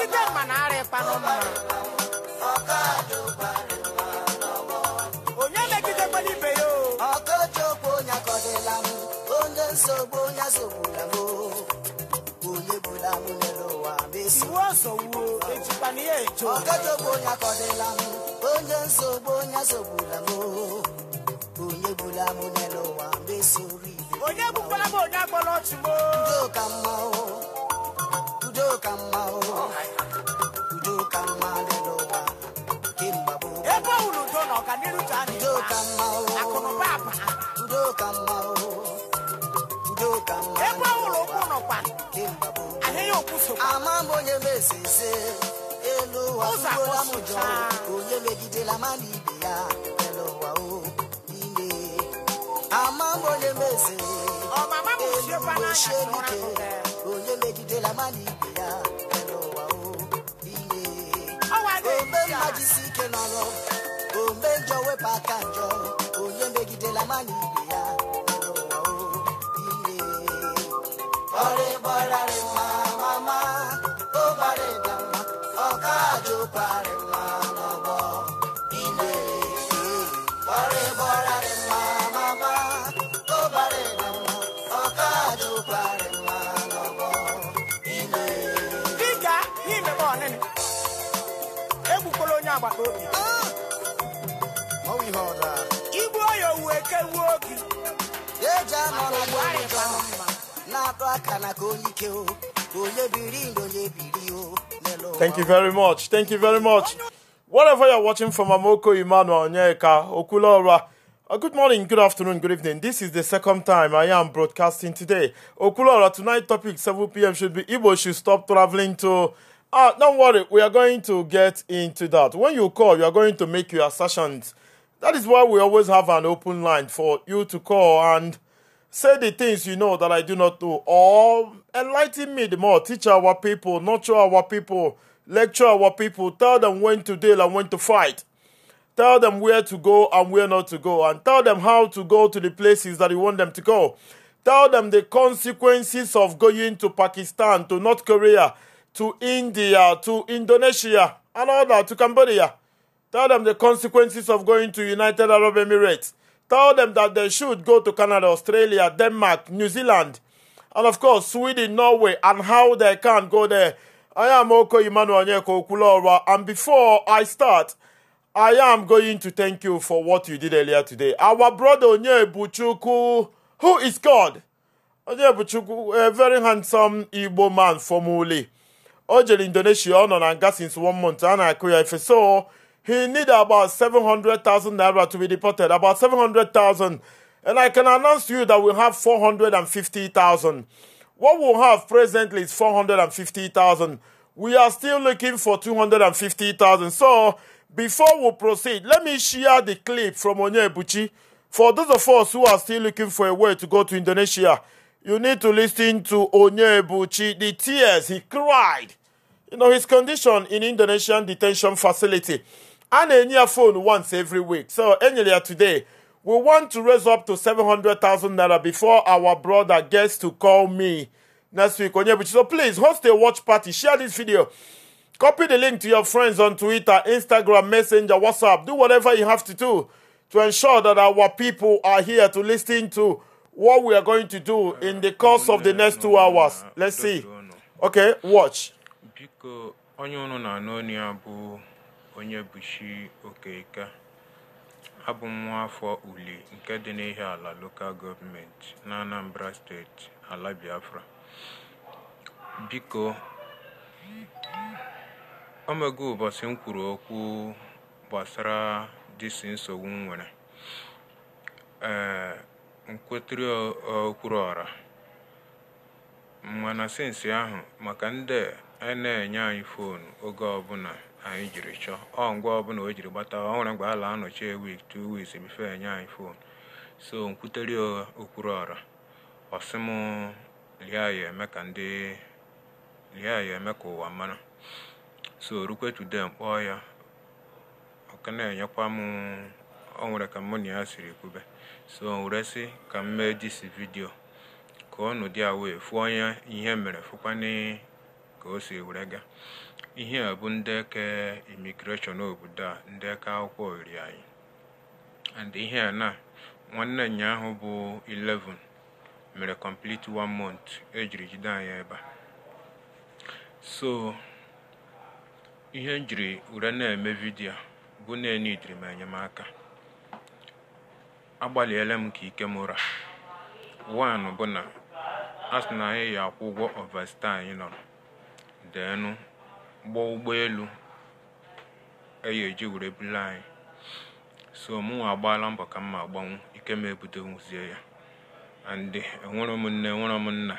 kite mana bụla bụla ebe unu olè méjì tó Thank you very much. Thank you very much. Whatever you're watching from Amoko Emmanuel Onyeka, Okulora, uh, good morning, good afternoon, good evening. This is the second time I am broadcasting today. Okulora, tonight topic 7 p.m. should be Igbo should stop traveling to Ah, don't worry, we are going to get into that. When you call, you are going to make your assertions. That is why we always have an open line for you to call and say the things you know that I do not know, or enlighten me the more, teach our people, nurture our people, lecture our people, tell them when to deal and when to fight. Tell them where to go and where not to go, and tell them how to go to the places that you want them to go. Tell them the consequences of going to Pakistan, to North Korea, to India, to Indonesia, and all that, to Cambodia. Tell them the consequences of going to United Arab Emirates. Tell them that they should go to Canada, Australia, Denmark, New Zealand, and of course Sweden, Norway, and how they can go there. I am Oko Emmanuel Okulora, and before I start, I am going to thank you for what you did earlier today. Our brother Buchuku, who is God? Buchuku, a very handsome Igbo man from Uli o jere indonesia ọ nọ na nga since one month a na-akụ ya ife so he need about 700,000 naira to be deported about 700,000 and i can announce to you that we have 450,000 what we have presently is 450,000 we are still looking for 250,000 so before we proceed let me share the clip from Onyebuchi for those of us who are still looking for a way to go to Indonesia you need to listen to Onyebuchi the tears he cried you know his condition in Indonesian detention facility. And a near phone once every week. So earlier today, we want to raise up to 700,000 naira before our brother gets to call me next week. So please host a watch party, share this video, copy the link to your friends on Twitter, Instagram, Messenger, WhatsApp, do whatever you have to do to ensure that our people are here to listen to what we are going to do in the course of the next two hours. Let's see. Okay, watch. Biko onye unu na-anụ onye ya bụ Onyebuchi Okeke Abụ m nwa afọ Uli nke dị ala Local Government na Anambra Steeti, ala Biafra. Biko, o mego ụbọchị m okwu gbasara dịsị nsogbu m nwere. Ee, nkwetiri okwuru ọra mana ahụ maka ndị na-enye anyị fon oge ọbụla anyị jiri chọọ ọ ngwa ọbụla o jiri gbata ọ nwere mgbe a la anọchie wik tu wiks bife enye anyị fon so nkwuteri ụgha okwuru ọra ọsịm lia ya eme ka ndị lia ya eme ka ụwa mara so rukwe tude mkpọọ ya ọka na-enyekwa m ọ nwere ka mụ na ya siri kwube so sị ka m mee disi vidio ka ọ nụ dị wee fụ onye ihe mere fụkwana ka o si were ga ihe a bụ eke imigreshọn obodo a ndeke akwụkwọ oriri anyị and ihe a na nwanne nyaahụ bụ 11 mere complete one month ejiri jide anyị ebe a so ihe njiri jiri were na-eme vidiyo bụ na enidiri m enyemaka agbalịela m ka ike m ụra bụ na asị na anyị ya akwụ ụgwọ ọvasta anyị nọrọ deenụ gbaa ụgbọelu eyi eji were buli anyị so mụnwa agbaala mbọ ka mma agbanwu ike m ebutenwuzie ya andị enwero m nne m nna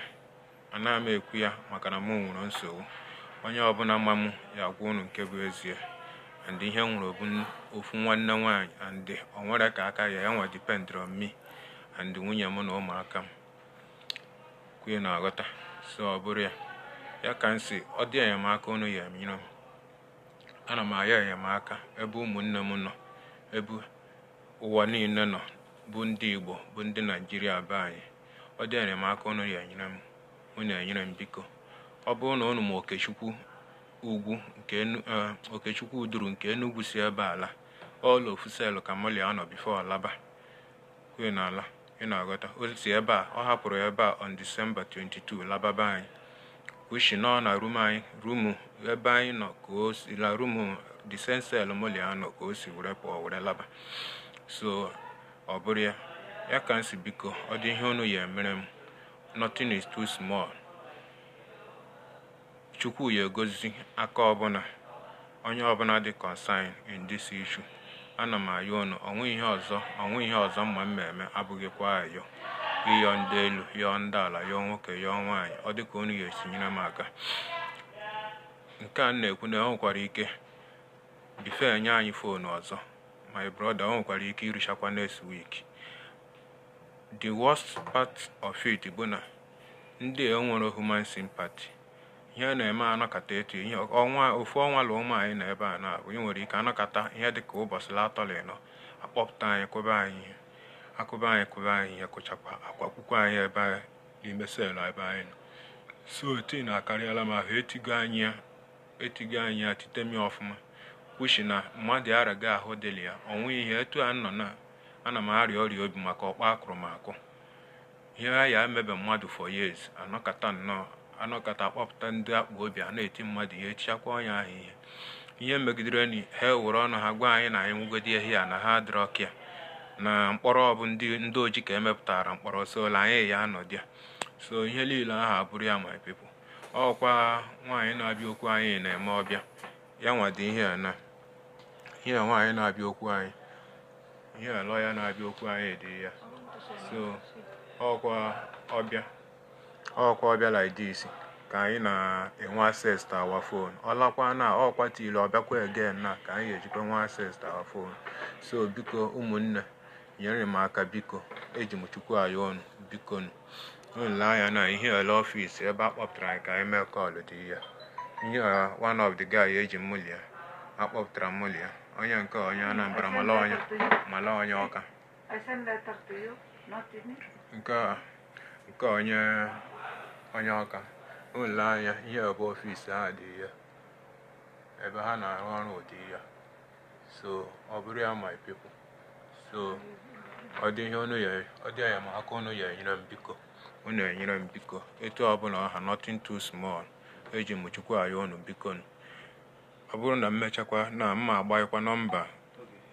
anaghị m ekwu ya maka na m nwere nsogbu onye ọbụla ma m ya agwa unu nke bụ ezie andị ihe nwere ofu nwanne nwaanyị andị onwere ka aka ya ya nwa dipendịrị on me andị nwunye m na ụmụaka m kwuye na aghọta so ọ bụrụ ya ya ka m si ọ dị enyemaka unu ya emiro ana m aya enyemaka ebe ụmụnne m nọ ebe ụwa niile nọ bụ ndị igbo bụ ndị naijiria be anyị ọ dị enyemaka unu ya enyere m unu enyere m biko ọ bụrụ na unu ma okechukwu ugwu nke e, okechukwu nke enugwu si ebe ala ọla ofuselu ka mmalia anọ bifo alaba na ala na-aghọta o si ebe a ọ hapụrụ ebe a on disemba 22 lababa anyị ushi nọ na rum anyị rumu ebe anyị nọ ka o si la rumu disensel ka o si were pụọ were laba so ọ bụrụ ya ya ka m biko ọ dị ihe unu ya mere m nothing is too small chukwu ya egozi aka ọbụla onye ọbụla dị concern in this issue ana m ayọ unu onwe ihe ọzọ onwe ihe ọzọ mma m ma eme abụghịkwa ayọ ịyọ ndị elu yọọ ndị ala yọọ nwoke yọọ nwaanyị ọ dịka unu ga nyere m aka nke a na-ekwu na enwekwara ike ife enye anyị foonu ọzọ my brother o nwekwara ike irụchakwa next week the worst part of it bụ na ndị enwere human sympathy ihe na-eme anakọta etu ihe ọnwa ofu ọnwa la ụmụ anyị na ebe a na-abụ ị nwere ike anakọta ihe dị ka ụbọchị latọlị nọ akpọpụta anyị kwụba anyị ihe akụba anyị kụba anyị ihe kụchakwa akwa akwụkwọ anyị ebe n'ime selụ ebe anyị nọ so tii na-akarịala m ahụ etigo anyị ya etigo anyị ya titemi ọfụma kwuchi na mmadụ araga ahụ dịlị ya ọ nweghị ihe etu a nọ na ana m arịa ọrịa obi maka ọkpa akụrụ m akụ ihe a ya emebe mmadụ fọ years anọkata nnọọ anọkata akpọpụta ndị akpa obi a na-eti mmadụ ihe echichakwa ọnya ahụ ihe ihe megidere na ha ewere ọnụ ha gwa anyị na anyị nwegodi ehi a na ha adịrọ ya. na mkpọrọ ọbụ ndị ndị oji ka emepụtara mkpọrọ so anyị ya anọdụ ya so ihe niile ahụ abụrụ ya my people ọkwa nwaanyị na-abịa okwu anyị na-eme ọbịa ya nwado ihe a na ihe nwaanyị na-abịa okwu anyị ihe alọ ya na-abịa okwu anyị dị ya so ọkwa ọbịa ọkwa ọbịa like this ka anyị na-enwe access to our phone ọlakwa na ọkwa tili ọbịakwa again na ka anyị ejikwa nwe access to our phone so biko ụmụnne nyere m aka biko eji m chukwu ayọ ọnụ bikonu anya na ihe ole ọfịs ebe a kpọpụtara anyị ka anyị mee kọlụ dị ya ihe one of the guy eji mụlia akpọpụtara mụlia onye nke onye anambra mala onye mala onye ọka nke onye onye ọka anya ihe ebe ọfịs ha dị ya ebe ha na-arụ ọrụ ụdị ya so ọ bụrụ ya my people so ọ dị ihe unu yere ọ dị ya unu enyere m biko unu enyere m biko etu ọbụla ọha notin too smal eji m chukwu unu biko ọ bụrụ na m na mma agbaghịkwa nọmba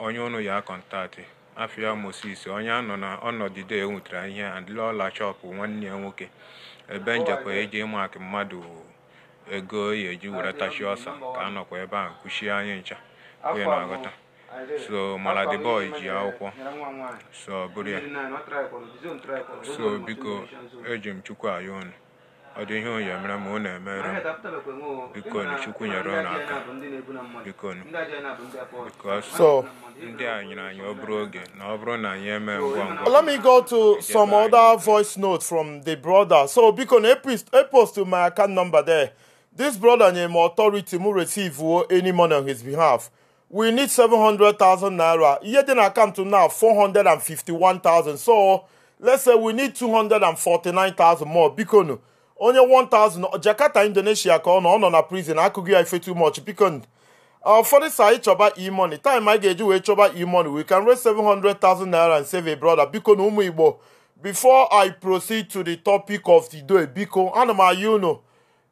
onye unu ya kọntaktị afia moses onye anọ na ọnọdụ de enwetara ihe ọla chọpụ nwanne ya nwoke ebe njekwa eji ịmakị mmadụ ego ya e eji were tachi ọsa ka a nọkwa ebe a kwuchie anyị ncha onye na agụta so maladi boy ji akwụkwọ so bụrụ ya so biko eji m chukwu ayọ unu ọ dị ihe onye mere ma ọ na-emere m biko na chukwu nyere unu aka biko so ndị a nyere anyị ọ bụrụ oge na ọ bụrụ na anyị emee ngwa ngwa let me go to some other voice note from the brother so biko na epost my account number there this brother nyere m authority m receive any money on his behalf we need 700,000 naira. Yet then I come to now 451,000. So let's say we need 249,000 more. Bikonu. Only 1,000. Jakarta, Indonesia, on on a prison. I could give you too much. Bikon. Uh, for this, I choba e money. Time I get you, choba e money. We can raise 700,000 naira and save a brother. Bikon umuibo. Before I proceed to the topic of the do day, Biko, anama, you know.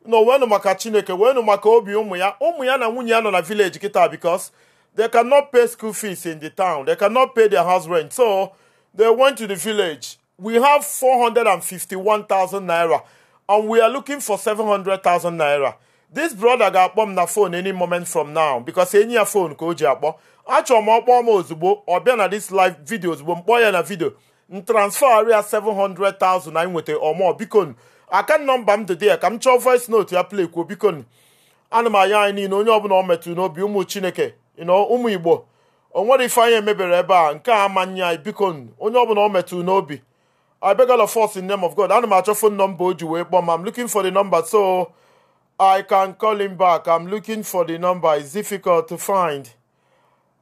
No, when maka Chineke, when maka obi ụmụ ya, ụmụ ya na nwunye ya nọ na village kita because They cannot pay school fees in the town. They cannot pay their house rent. So they went to the village. We have 451,000 naira and we are looking for 700,000 naira. This brother got bomb m na phone any moment from now because any phone ka o ji akpọ achọrọ m ọkpọ m ozugbo ọ bịa na this live video ozugbo m kpọọ ya na video m transfer ya 700,000 na nweta ọmọ bikon akan nọmba m the ya Come m chọọ voice note ya play kwuo bikon ana m anya anyị niile onye ọbụla metu no n'obi ụmụ Chineke You ụmụ igbo o nwere ife I emebere ebe a nke a amanye anyị biko onye ọbụla ọ metụrụ n'obi I beg all of us in the name of God. Ana m achọ phone number o ji wee kpọọ I'm looking for the number so I can call him back. I'm looking for the number. It's difficult to find.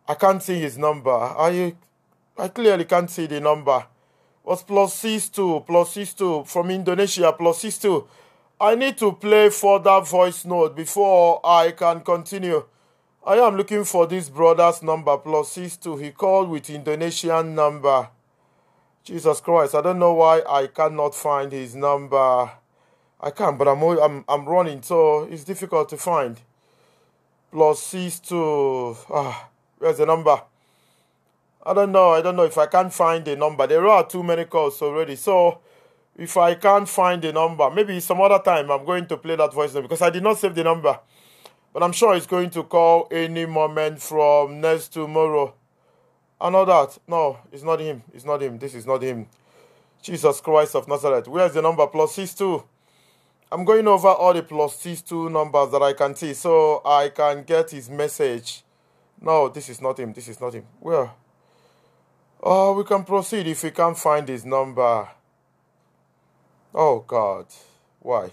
I can't see his number. I I clearly can't see the number. Was plus six two plus six two from Indonesia plus six two. I need to play further voice note before I can continue. I am looking for this brother's number plus six two. He called with Indonesian number. Jesus Christ, I don't know why I cannot find his number. I can't, but I'm I'm I'm running, so it's difficult to find. Plus six two. Ah, where's the number? I don't know. I don't know if I can't find the number. There are too many calls already. So if I can't find the number, maybe some other time I'm going to play that voice because I did not save the number. But I'm sure he's going to call any moment from next tomorrow. I know that. No, it's not him. It's not him. This is not him. Jesus Christ of Nazareth. Where's the number? Plus six two. I'm going over all the plus six two numbers that I can see so I can get his message. No, this is not him. This is not him. Where? Oh, we can proceed if we can't find his number. Oh, God. Why?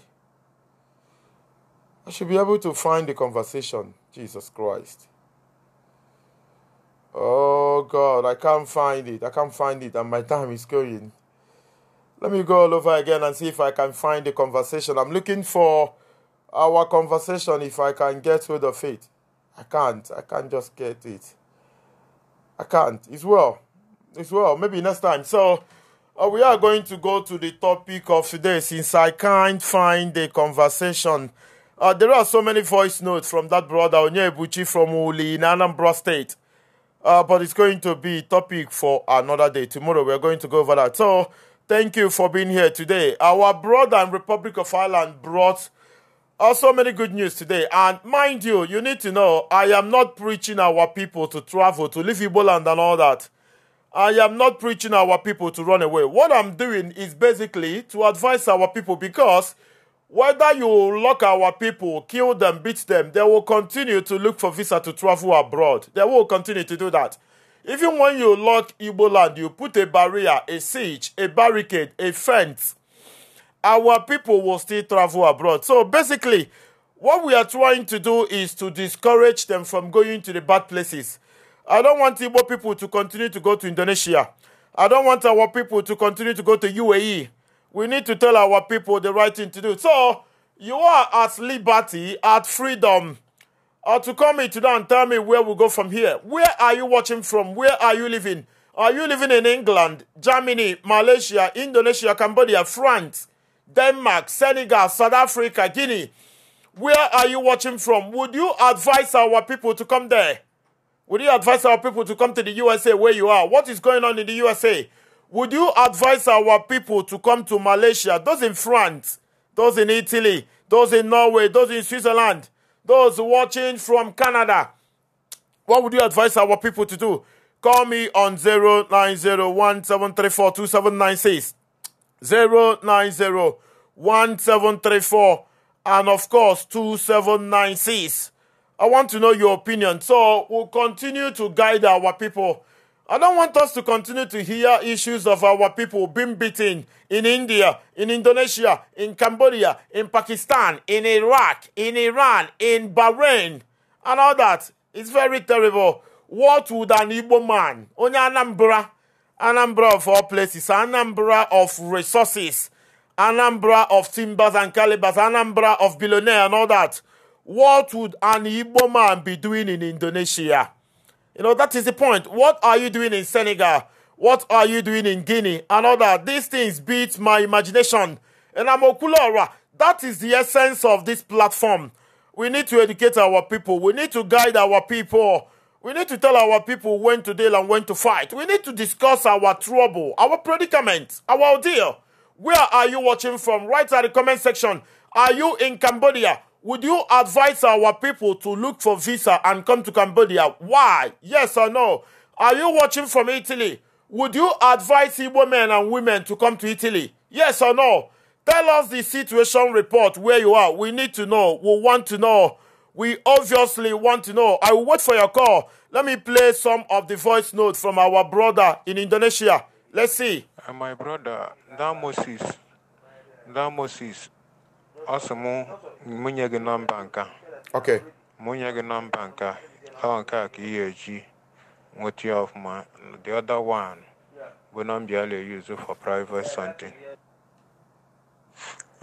I should be able to find the conversation. Jesus Christ. Oh God, I can't find it. I can't find it, and my time is going. Let me go all over again and see if I can find the conversation. I'm looking for our conversation if I can get rid of it. I can't. I can't just get it. I can't. It's well. It's well. Maybe next time. So uh, we are going to go to the topic of today since I can't find the conversation. Uh, there are so many voice notes from that brother Onyebuchi from Uli in Anambra State. Uh, but it's going to be topic for another day. Tomorrow we're going to go over that. So thank you for being here today. Our brother and Republic of Ireland brought uh, so many good news today. And mind you, you need to know I am not preaching our people to travel, to leave Iboland and all that. I am not preaching our people to run away. What I'm doing is basically to advise our people because whether you lock our people, kill them, beat them, they will continue to look for visa to travel abroad. They will continue to do that. Even when you lock Igbo land, you put a barrier, a siege, a barricade, a fence, our people will still travel abroad. So basically, what we are trying to do is to discourage them from going to the bad places. I don't want Igbo people to continue to go to Indonesia. I don't want our people to continue to go to UAE. We need to tell our people the right thing to do. So you are at liberty, at freedom, uh, to come here today and tell me where we go from here. Where are you watching from? Where are you living? Are you living in England, Germany, Malaysia, Indonesia, Cambodia, France, Denmark, Senegal, South Africa, Guinea? Where are you watching from? Would you advise our people to come there? Would you advise our people to come to the USA where you are? What is going on in the USA? Would you advise our people to come to Malaysia, those in France, those in Italy, those in Norway, those in Switzerland, those watching from Canada? What would you advise our people to do? Call me on 09017342796. 0901734 and of course 2796. I want to know your opinion. So we'll continue to guide our people I don't want us to continue to hear issues of our people being beaten in India, in Indonesia, in Cambodia, in Pakistan, in Iraq, in Iran, in Bahrain, and all that. It's very terrible. What would an Igbo man, only Anambra, Anambra of all places, Anambra of resources, Anambra of timbers and calibers, Anambra of billionaire and all that, what would an Igbo man be doing in Indonesia? You know, that is the point. What are you doing in Senegal? What are you doing in Guinea? And all that. These things beat my imagination. And I'm Okulora. That is the essence of this platform. We need to educate our people. We need to guide our people. We need to tell our people when to deal and when to fight. We need to discuss our trouble, our predicament, our ordeal. Where are you watching from? Write at the comment section. Are you in Cambodia? Would you advise our people to look for visa and come to Cambodia? Why? Yes or no? Are you watching from Italy? Would you advise Igbo men and women to come to Italy? Yes or no? Tell us the situation report where you are. We need to know. We want to know. We obviously want to know. I will wait for your call. Let me play some of the voice notes from our brother in Indonesia. Let's see. Uh, my brother, that Moses, that Moses, Asamu, mụnye gị nọmba nka okay mụnye gị nọmba nka ọ nke a ka ị ga-eji nweta ya ọfụma the other one bụ nọmba a na-eyuzu for private something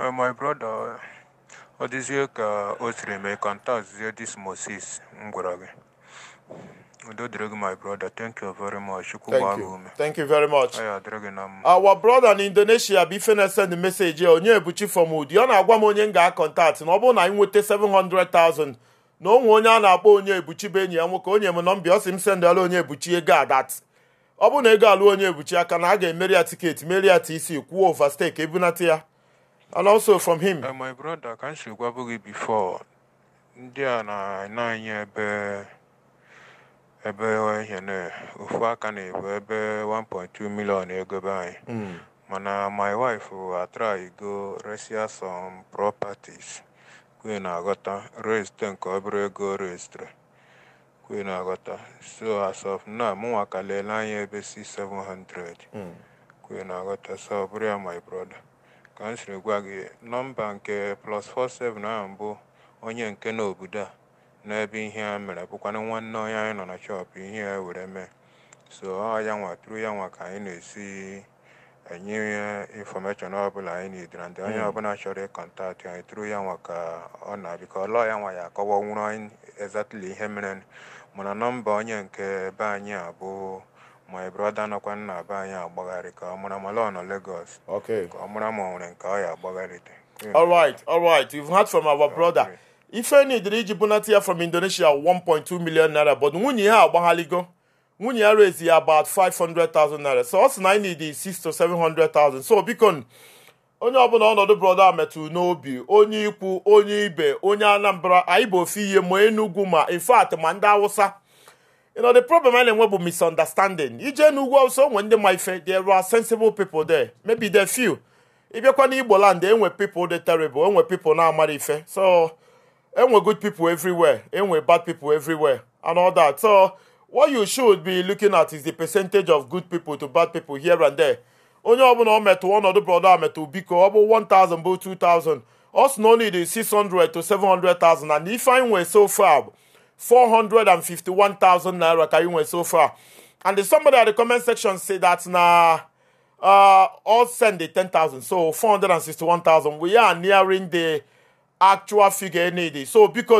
uh, my brother ọ dịzie ka o siri mee contact dis Moses m gwara gị my brother. Thank you very much. Thank you. Thank you very much. Oh, Our brother in Indonesia bụ ife na-esend meseji onye ebuchi from Udi ọ na-agwa m onye m ga-akọntaktị na ọ bụrụ na anyị nweta 700,000 na onwe onye a na-akpọ onye ebuchi bụ enyi ya nwoke onye m nọmba ọ sị m sendala onye ebuchi ego a dat ọ bụ na ego alụ onye ebuchi aka na a ga-emeri ya tiketi meri ya tc kwuo overstake ebunata ya and also from him eh, my brother ka m si gwabụ gị before ndị a na-anya ebe ebe ihe na ofu aka na-ebu ebe 1.2 million ego be anyị hmm. mana my wife atry uh, go resia some properties kwe na-aghọta rest nke obere ego restre kwe na-aghọta so as of now mụnwa ka lele anya ebe si 700 kwe na-aghọta so ọ bụrụ ya my brother ka m siri gwa gị nọmba nke plus 47 ahụ bụ onye nke n'obodo a n'ebe ihe a mere bụkwanụ nwanne onye anyị nọ na chọpụ ihe a were mee so ọ ya nwa tụrụ ya nwa ka anyị na-esi enye infọmeshọn ọbụla anyị na idira ndị onye hmm. ọbụla chọrọ ịkọntaktị anyị tụrụ ya nwa ka ọ na biko ọlọ ya nwa ya akọwa nwụrụ anyị ezatili ihe mere mana nọmba onye nke be anyị a bụ broda nọkwa nna be anyị agbagharị ka ọ mara ma lọ nọ ka ọ mara ma nwere nke ọ ya agbagharịte All right, all right. heard from our brother. ifeni dịrị iji bunata ya from indonesia 1.2 million naira but nwunye ya agbaghaligo nwunye ya rezi ya about 500,000 naira so ọ na anyị need 6 to 700,000 so biko onye ọbụla ọnọdụ brọda metụrụ n'obi onye ikwu onye ibe onye anambra anyị bụ ofe ihe ma enugwu ma ifeatị ma ndị awụsa you know the problem a na-enwe bụ misunderstanding ije n'ugwu awụsa onwe ndị ma ife there are sensible people there maybe there few ịbịakwa n'igbo land enwe people dị terrible enwe people na-amara ife so enwe good people everywhere enwe bad people everywhere and all that so what you should be looking at is the percentage of good people to bad people here and there onye ọbụla ọ metụ ọnọdụ brọda metụ biko ọ bụ 1000 bụ 2000 us no need 600 to 700000 and if i nwe so far 451000 naira ka you nwe so far and somebody at the comment section say that na uh, all send the 10000 so 461000 we are nearing the actual figure ị need so biko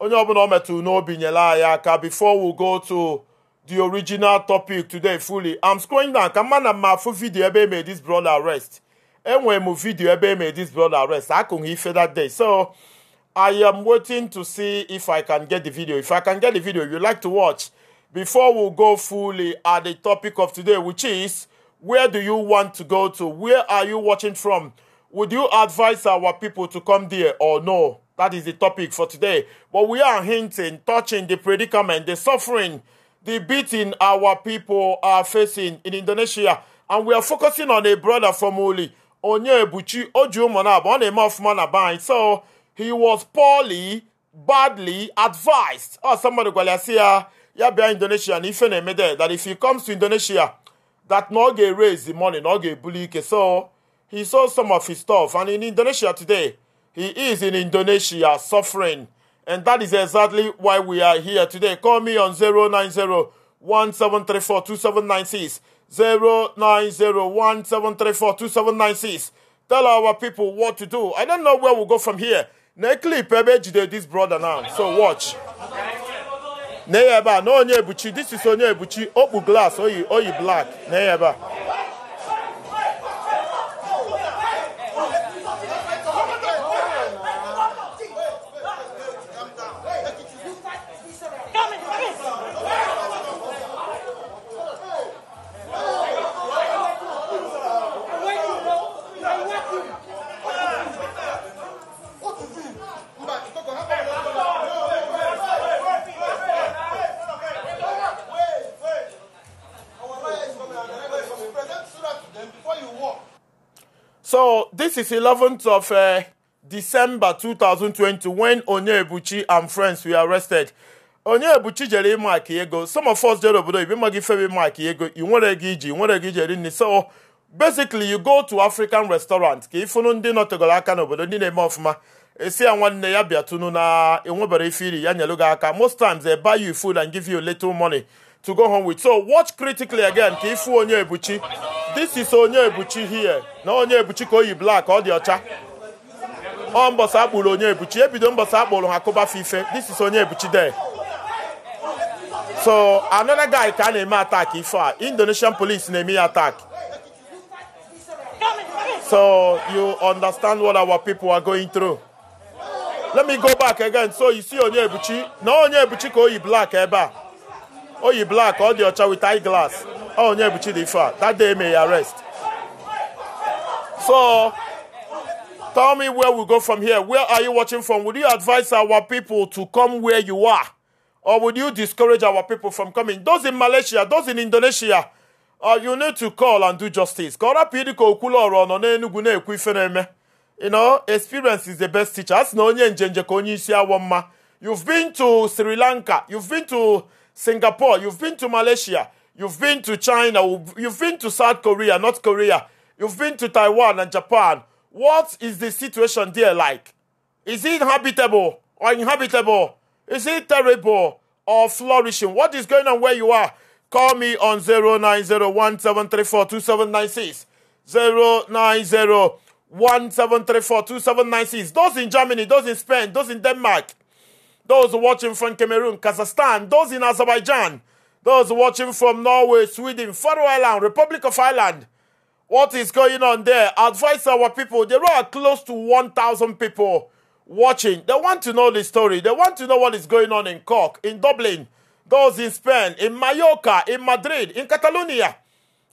onye ọbụla ọ metụrụ n'obi nyere anyị aka before we go to the original topic today fully i'm scrolling down ka mma na mma afụ vidio ebe emere this brother arrest enwere m vidio ebe emere this brother arrest akụghị ife that day so i am waiting to see if i can get the video if i can get the video you like to watch before we go fully at the topic of today which is where do you want to go to where are you watching from Would you advise our people to come there or no? That is the topic for today. But we are hinting, touching the predicament, the suffering, the beating our people are facing in Indonesia. And we are focusing on a brother from Uli, Onyebuchi Ojumonab, on a month man So he was poorly, badly advised. Oh, somebody gwalasia, ya in Indonesia, and if that if he comes to Indonesia, that no get raise the money, no get bully. So he sold some of his stuff. And in Indonesia today, he is in Indonesia suffering. And that is exactly why we are here today. Call me on 090 17342796. 09017342796. Tell our people what to do. I don't know where we'll go from here. Nekli Pebe Jide, this brother now. So watch. Neyeba, no Onyebuchi. This is Onyebuchi. Opu glass, oyi, oyi black. Neyeba. is 11th of uh, December 2020 when Onyebuchi and friends were arrested. Onyebuchi jere ịma ego some of us jere obodo ibe maghị ife ịma aka ego i nwere gị iji nwere gị jere nri so basically you go to African restaurant ka fụnụ ndị nọtegoro aka n'obodo ndị na-eme ọfụma esi ya nwanne ya bịatụnụ na enwebere ife iri ya nyelụ gị aka most times they buy you food and give you little money to go home with. So watch critically again ka ịfụ onye ebuchi. This is onye ebuchi here. Na onye ebuchi ka oyi black ọ dị ọcha. Ọ mbọsị akpụrụ onye ebuchi. Ebido mbọsị akpụrụ ha kụbafe ife. This is onye ebuchi there. So another guy ka a na-eme attack ife Indonesian police na-eme ya attack. So you understand what our people are going through. Let me go back again. So you see onye ebuchi. Na onye ebuchi ka oyi black ebe a. Oh, you black all the other with eyeglass. glass oh, yeah, but you Chidife that day may arrest so tell me where we go from here where are you watching from would you advise our people to come where you are or would you discourage our people from coming those in Malaysia those in Indonesia uh, you need to call and do justice you know experience is the best teacher you've been to Sri Lanka you've been to Singapore, you've been to Malaysia, you've been to China, you've been to South Korea, North Korea, you've been to Taiwan and Japan. What is the situation there like? Is it habitable or inhabitable? Is it terrible or flourishing? What is going on where you are? Call me on 09017342796. 2796. Those in Germany, those in Spain, those in Denmark, those watching from Cameroon, Kazakhstan, those in Azerbaijan, those watching from Norway, Sweden, Faroe Island, Republic of Ireland. What is going on there? Advise our people. There are close to 1,000 people watching. They want to know the story. They want to know what is going on in Cork, in Dublin, those in Spain, in Mallorca, in Madrid, in Catalonia,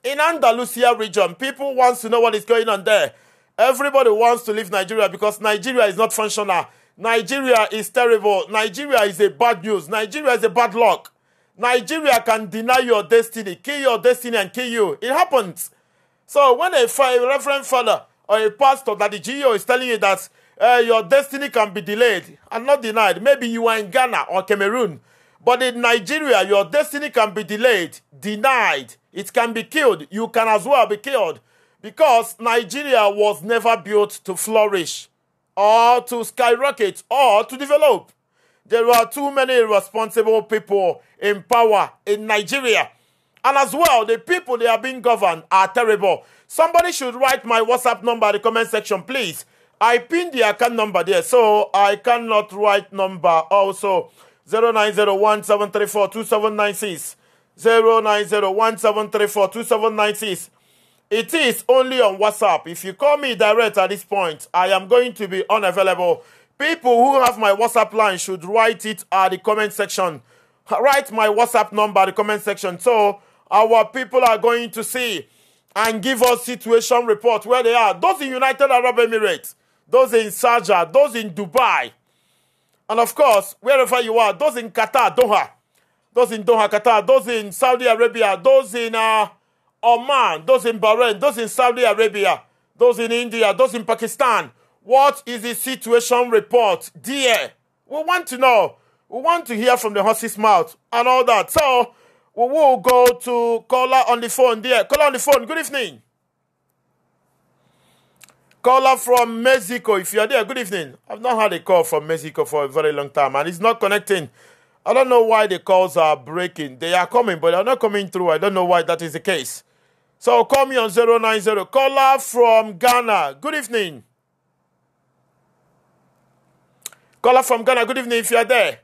in Andalusia region. People wants to know what is going on there. Everybody wants to leave Nigeria because Nigeria is not functional. Nigeria is terrible. Nigeria is a bad news. Nigeria is a bad luck. Nigeria can deny your destiny, kill your destiny, and kill you. It happens. So when a, a reverend father or a pastor that the GEO is telling you that uh, your destiny can be delayed and not denied, maybe you are in Ghana or Cameroon, but in Nigeria, your destiny can be delayed, denied. It can be killed. You can as well be killed because Nigeria was never built to flourish or to skyrocket or to develop. There are too many irresponsible people in power in Nigeria. And as well, the people they are being governed are terrible. Somebody should write my WhatsApp number in the comment section, please. I pinned the account number there, so I cannot write number also. 0901 2796. 2796. It is only on WhatsApp. If you call me direct at this point, I am going to be unavailable. People who have my WhatsApp line should write it at the comment section. Write my WhatsApp number the comment section. So our people are going to see and give us situation report where they are. Those in United Arab Emirates, those in Sharjah, those in Dubai, and of course, wherever you are, those in Qatar, Doha, those in Doha, Qatar, those in Saudi Arabia, those in uh, Oman, those in Bahrain, those in Saudi Arabia, those in India, those in Pakistan. What is the situation report, dear? We want to know. We want to hear from the horse's mouth and all that. So we will go to caller on the phone, dear. Caller on the phone. Good evening. Caller from Mexico. If you're there, good evening. I've not had a call from Mexico for a very long time and it's not connecting. I don't know why the calls are breaking. They are coming, but they're not coming through. I don't know why that is the case. So call me on 090. Caller from Ghana. Good evening. Caller from Ghana. Good evening if you're there.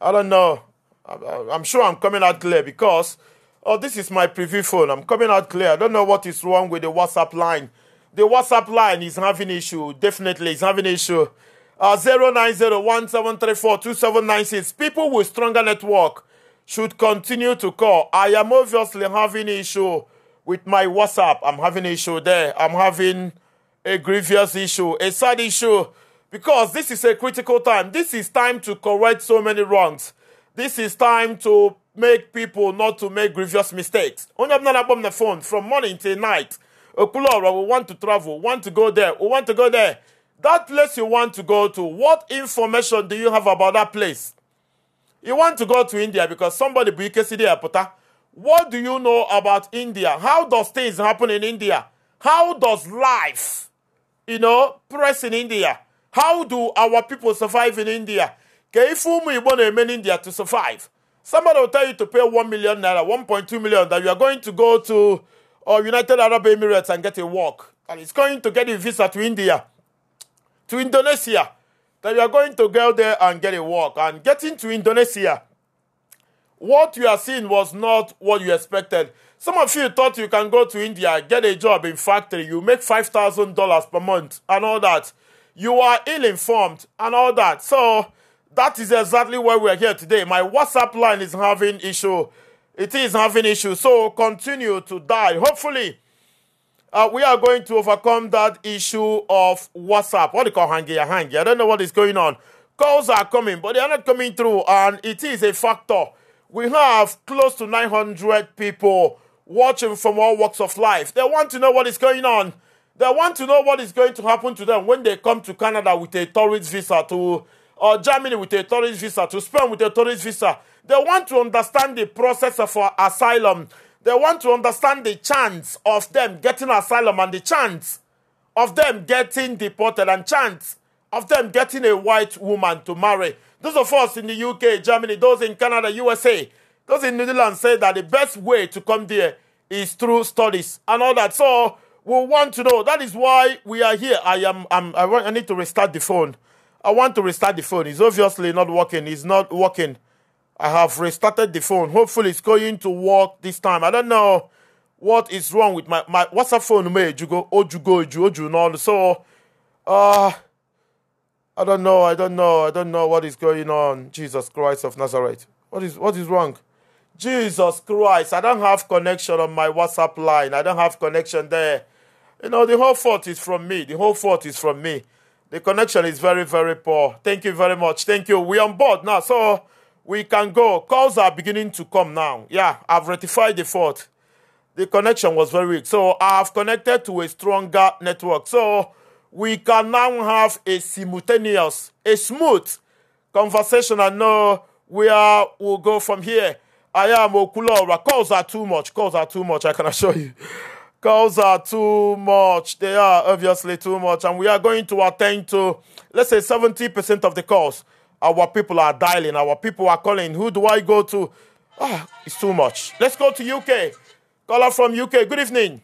I don't know. I'm sure I'm coming out clear because oh, this is my preview phone. I'm coming out clear. I don't know what is wrong with the WhatsApp line. The WhatsApp line is having issue. Definitely, it's having issue. Uh, 090 People with stronger network should continue to call. I am obviously having issue with my WhatsApp. I'm having issue there. I'm having a grievous issue, a sad issue, because this is a critical time. This is time to correct so many wrongs. This is time to make people not to make grievous mistakes. Only I'm not on the phone from morning till night. Okulora, we want to travel, want to go there, we want to go there. That place you want to go to, what information do you have about that place? You want to go to India because somebody bu ikesidi What do you know about India? How does things happen in India? How does life, you know, press in India? How do our people survive in India? Keifumu Igbo na-eme in India to survive. Somebody will tell you to pay 1 million naira, 1.2 million, that you are going to go to uh, United Arab Emirates and get a work. And it's going to get a visa to India, to Indonesia, that you are going to go there and get a work. And getting to Indonesia, what you are seeing was not what you expected. Some of you thought you can go to India, get a job in factory, you make five thousand dollars per month and all that. You are ill-informed and all that. So that is exactly why we are here today. My WhatsApp line is having issue. It is having issue. So continue to die. Hopefully, Uh, we are going to overcome that issue of WhatsApp. What do you call hangy hangy? I don't know what is going on. Calls are coming, but they are not coming through, and it is a factor. We have close to 900 people watching from all walks of life. They want to know what is going on. They want to know what is going to happen to them when they come to Canada with a tourist visa to or uh, Germany with a tourist visa, to Spain with a tourist visa. They want to understand the process of uh, asylum. They want to understand the chance of them getting asylum and the chance of them getting deported and chance of them getting a white woman to marry. Those of us in the UK, Germany, those in Canada, USA, those in New Zealand say that the best way to come there is through studies and all that. So we want to know. That is why we are here. I am. I'm, I want. I need to restart the phone. I want to restart the phone. It's obviously not working. It's not working. I have restarted the phone. Hopefully, it's going to work this time. I don't know what is wrong with my my WhatsApp phone. Me you go oju you know. So, uh, I don't know. I don't know. I don't know what is going on. Jesus Christ of Nazareth. What is what is wrong? Jesus Christ. I don't have connection on my WhatsApp line. I don't have connection there. You know, the whole fault is from me. The whole fault is from me. The connection is very, very poor. Thank you very much. Thank you. We're on board now. So we can go. Calls are beginning to come now. Yeah, I've rectified the fault. The connection was very weak. So I've connected to a stronger network. So we can now have a simultaneous, a smooth conversation I know where we'll go from here. I am Okulora. Calls are too much. Calls are too much, I can assure you. Calls are too much. They are obviously too much. And we are going to attend to, let's say, 70% of the calls. Our people are dialing, our people are calling. Who do I go to? Ah, it's too much. Let's go to UK. Caller from UK. Good evening.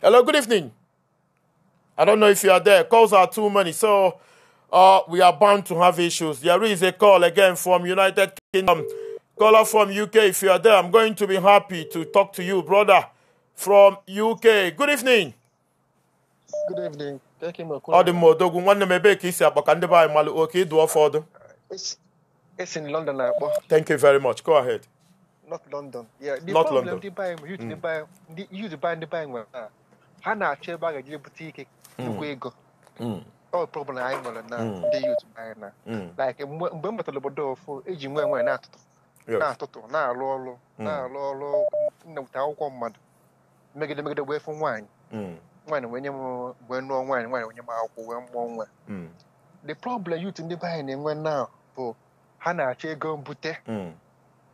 Hello, good evening. I don't know if you are there. Calls are too many, so uh, we are bound to have issues. There is a call again from United Kingdom. Caller from UK, if you are there, I'm going to be happy to talk to you, brother, from UK. Good evening. ọ dị mma odogwu nwanne m ebee ka isi ndị be anyị malụ oke ịdụ ọfọdụ It's in London akpọ thank you very much go ahead North London North problem mm. uh, na-achọ ebe a ga ike mm. nnukwu ego mm. obodo eji nwe atụtụ na-atụtụ na akwụkwọ mmadụ megide megide wee fụ nwaanyị nwaanyị wee nye m wee nụọ nwaanyị nwaanyị wee nye m akwụkwọ wee mụọ nwa hmm. the problem youth ndị be anyị na-enwe na bụ ha na-achọ ego mbute hmm.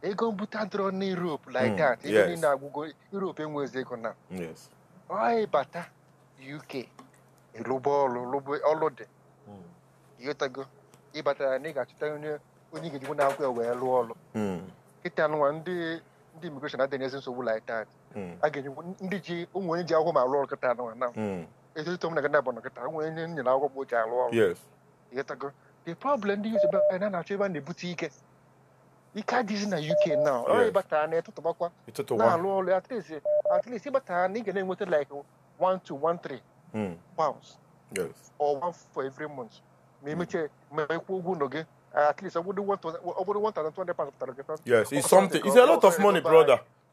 ego mbute adịrọ na Europe like hmm. that ego niile agwụgo Europe enweghịzi ego na anyị bata UK ịlụba ọrụ ọrụ dị ịghọtago ịbatara na ị ga-achọta onye ga-ejikwa na akwụkwọ wee lụọ ọrụ nkịta nwa ndị immigration adịghị ezi nsogbu like that ndị ji ụmụ onye ji akwụkwọ ma alụ ọrụ kịta nwa na m hmm. na gana bụ na nwe onye nyere akwụkwọ bụ ji alụ ọrụ ịghọtago the problem ndị yuzi ebe na-achọ ebe a na-ebute ike ike adịghịzi na uk na ọ ịbata na ịtụtụbakwa na-alụ ọrụ at least at least ịbata na ị ga na-enweta like one hmm. pounds or one for every month ma emechie hmm. ma ekwu ụgwọ ụlọ gị at least ọ bụrụ 1200 pounds pụtara gị yes it's something it's a lot of money brother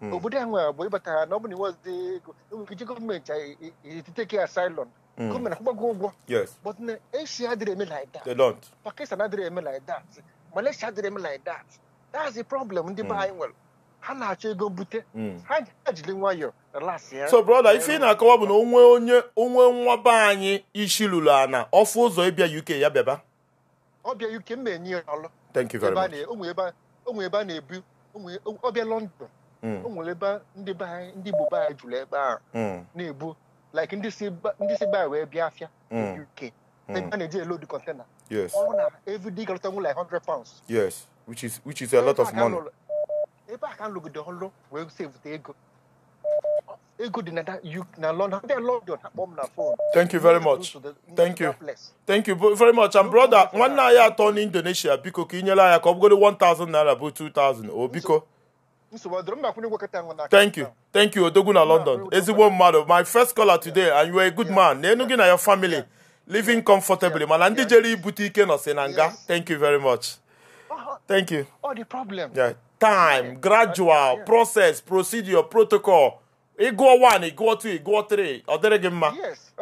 Mm. obodo nwere ịbata na ọ Obodiahua Boibata, nobody was the government to take care asylum. Come and go. ụgwọ. But Asia didn't like that. pakistan don't. Pakistan like that. Malaysia didn't like that. That's the problem ndị the buying mm. nwere ha na-achọ ego mbute mm. ha ejiri nwayọ so brother ife ị na-akọwa bụ na onwe onye onwe nwa be anyị isi lụrụ ana ọfụ ụzọ ịbịa UK ya bịaba ọbịa UK m na-enye ya ọlụ thank you very much onwe ebe a na-ebu ọbịa London o nwere ebe ndị be anyị ndị Igbo be anyị jụrụ ebe ahụ mm. na-ebu like ndị si be anyị wee bịa afịa mm. UK mm. a na-eji elo dị kọntena ọrụ na everyday galata nwụ like 100 pounds yes which is which is a lot of money ebe a ka nlụgide ọrụ wee sevute ego ego dị na London ndị London akpọ m na fon thank you very much thank you thank you very much and brother nwanne anyị atọ n'indonesia biko ka ị nyere anya ka ọ bụgoro 1000 naira bụ 2000 o biko Thank you. Thank you, Odogu na London. Ezigbo mmadụ, my first caller today and you are a good man. na gị na your family living comfortably mana ndị jere ibute ike nọsị na nga. Thank you very much. Oh, oh. Thank you. All oh, the problem. Yeah. Time, gradual, process, procedure, protocol. Ị 1 one, 2 gụọ two, Ọ dịrị gị mma.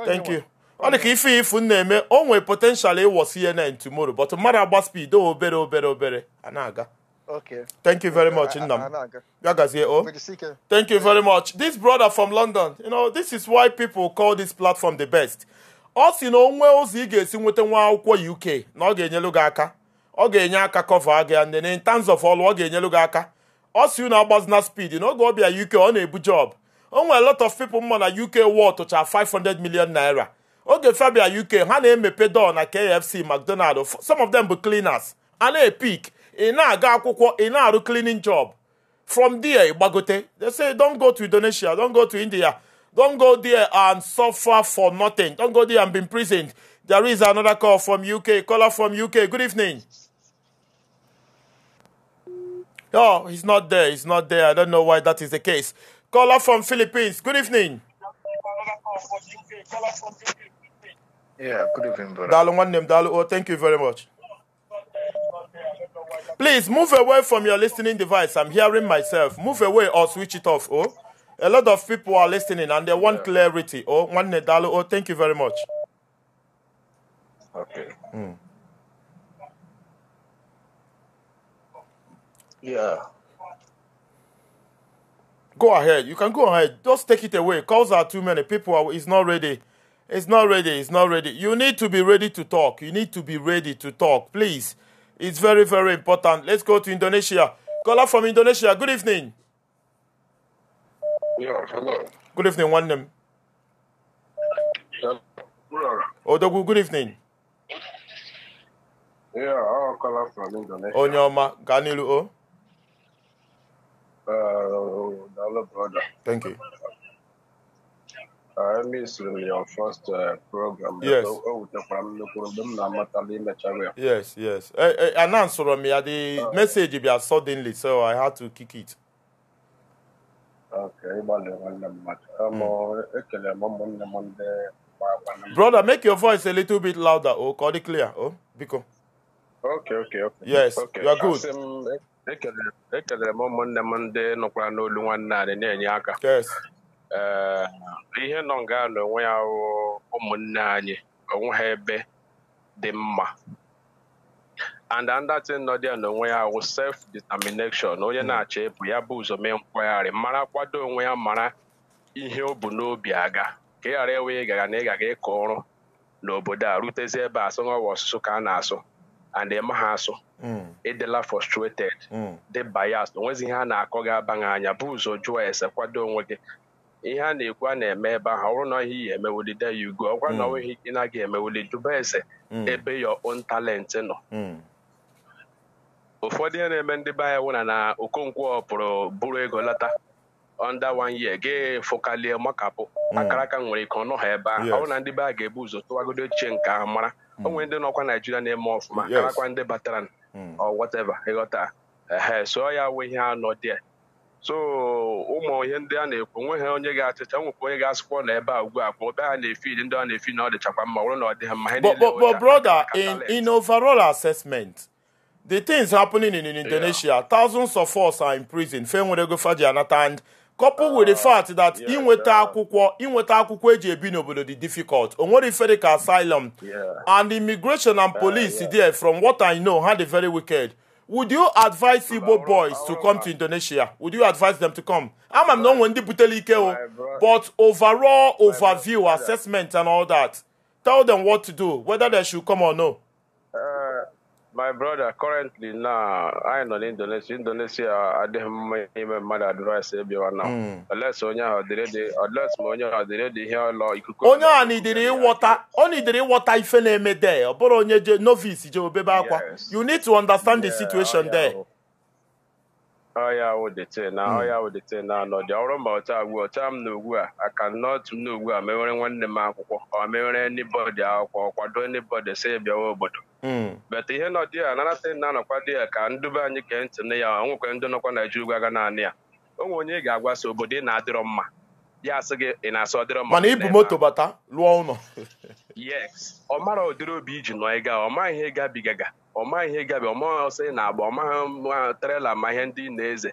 Thank you. ọ dị ka ife ifu nna eme o potential ịwọ CNN tomorrow but mmadụ agba speed obere obere obere a aga Okay. Thank you very much, Innam. Oh. Yagazie Thank you very much. This brother from London, you know, this is why people call this platform the best. Ọ you know onwe ụzọ ị ga-esi nweta nwa akwụkwọ UK na ọ ga-enyelu gị aka. Ọ ga-enye aka cover gị and in terms of all, ọ ga-enyelu gị aka. Ọ sị na agbazina speed na oge ọ bịa UK ọ na-ebu job. O a lot of people mma na UK war tụcha 500 million naira. Oge Fabia UK ha na-emepe door na KFC, McDonald, some of them be cleaners. A na-epik ị na-aga akwụkwọ ị na-arụ cleaning job from there ịgbagote they say don't go to Indonesia don't go to India don't go there and suffer for nothing don't go there and be imprisoned there is another call from UK caller from UK good evening oh he's not there he's not there I don't know why that is the case caller from Philippines good evening yeah good evening brother. Oh, thank you very much Please move away from your listening device. I'm hearing myself. Move away or switch it off. Oh, a lot of people are listening and they want clarity. Oh, one nedalo. Oh, thank you very much. Okay. Mm. Yeah. Go ahead. You can go ahead. Just take it away. Calls are too many. People are. It's not ready. It's not ready. It's not ready. You need to be ready to talk. You need to be ready to talk. Please It's very, very important. Let's go to Indonesia. Caller from Indonesia. Good evening. Yeah, hello. Good evening, one name. Yeah. Odogu, good evening. Yeah, I'll call us from Indonesia. Onyoma, Ganilu O. Uh, brother. Thank you. misiri your first program o wetakwara m nnukwu mgbe m na-amatala imechara ya yes yes Anansoro m ya the message bịa suddenly so i had to kick it okay ịgbalị nwanne mmadụ ekele m ụmụnne m ndị brother make your voice a little bit louder oh ka ọ dị clear oh biko okay okay okay yes okay. you are good Ekele m ụmụnne m ndị nọkwara n'olu nwanne anyị na-enye aka yes ihe nọ nga n'onwe ya ụmụnne anyị onwe ha ebe dị mma and andatin nọ na n'onwe ya wụ self determination onye hmm. na-achọ ebu ya bụ ụzọ mee mkpagharị mara kwado onwe ya mara ihe o bu n'obi aga ka ị ghara ewe ịgara na ị gaga ịkọ ọrụ n'obodo a rutezi ebe asụ nwawa ọsụsụ ka a na-asụ and ịma ha asụ hmm. ịdịla frustrated hmm. dị bias onwezi ihe a na-akọ gị abaghị anya bụ ụzọ jụọ ese kwado onwe gị ihe a na-ekwu a na-eme ebe ahụ ọ na ọ hmm. ihe emewulide ya ugo ọkwa na ọnweghị ị na-aga emewuli jụba ese hmm. ebe your own talent nọ hmm. ụfọdụ ihe na-eme ndị be anyị nwụna na Okonkwo pụrụ bụrụ ego lata under one year ga fụkalie makapụ akaraka nwere ike ọnụ ha ebe ahụ ọ na ndị be a ga-ebu ụzọ tụwagodo ochie nke ahụ mara onwe ndị nọkwa Naijiria na-eme ọfụma karakwa ndị batara ọ whatever ịghọta so ya nwe ihe anọ dị so ụmụ ihe ndị a na-ekwu onweghị onye ga-achịcha nwekwa onye ga-asịkwa na ebe a ugbu a ebe ha na-efid ndị ọ na-efi na ọ dịchakwa mma wụrụ na ọ dịghị mma but brother in in overall assessment the things happening in, in Indonesia yeah. thousands of us are in prison fe nwere ego faji anata and coupled with the ah, fact that inweta akwụkwọ inweta akwụkwọ eji ebi n'obodo dị difficult o nwere ife dịka asylum and immigration and ah, police there from what i know ha dị very wicked would you advise Igbo boys to come to Indonesia? Would you advise them to come? I'm not Wendy eh, oh. Butelike, but overall overview, assessment, and all that. Tell them what to do, whether they should come or no. my brother currently now anyị nọ n'indonesia indonesia adịghị mma ime mmadụ advice ebiwa na unless onye ahụ dịrịdị unless ma onye ahụ dịrịdị ihe ọlọ ikuku onye ahụ nidiri ịwọta ọ nidiri ịwọta ife na-eme there ọ bụrụ onye je novice je obebe akwa you need to understand the situation there ọya wụ na ọya hmm. wụ na anọdụ ọ bụrụ ma ọ ugbu ọcha m na ugbu a aka nọtụ m na ugbu a mewere nwanne m akwụkwọ ọ mewere anybody akwụkwọ kwado anybody si bịawa obodo hmm. bete ihe nọ dị ya nanata na-anọkwa dị ya ka ndube anyị kee ntị na ya onwekwe ndị nọkwa Naịjirịa ugwu aga naanị ya nwe onye ị ga agwasa obodo ị na-adịrọ mma ya asị gị ị na-asụ ọdịrị mma mana ibu moto bata lụọ ụlọ yes ọ mara ụdịrị obi iji nọ ịga ọ maghị ihe gabigaga ọ maghị ihe gabi ọ maghị ọsọ ị na-agba ọ maghị trela ma ihe ndị na-eze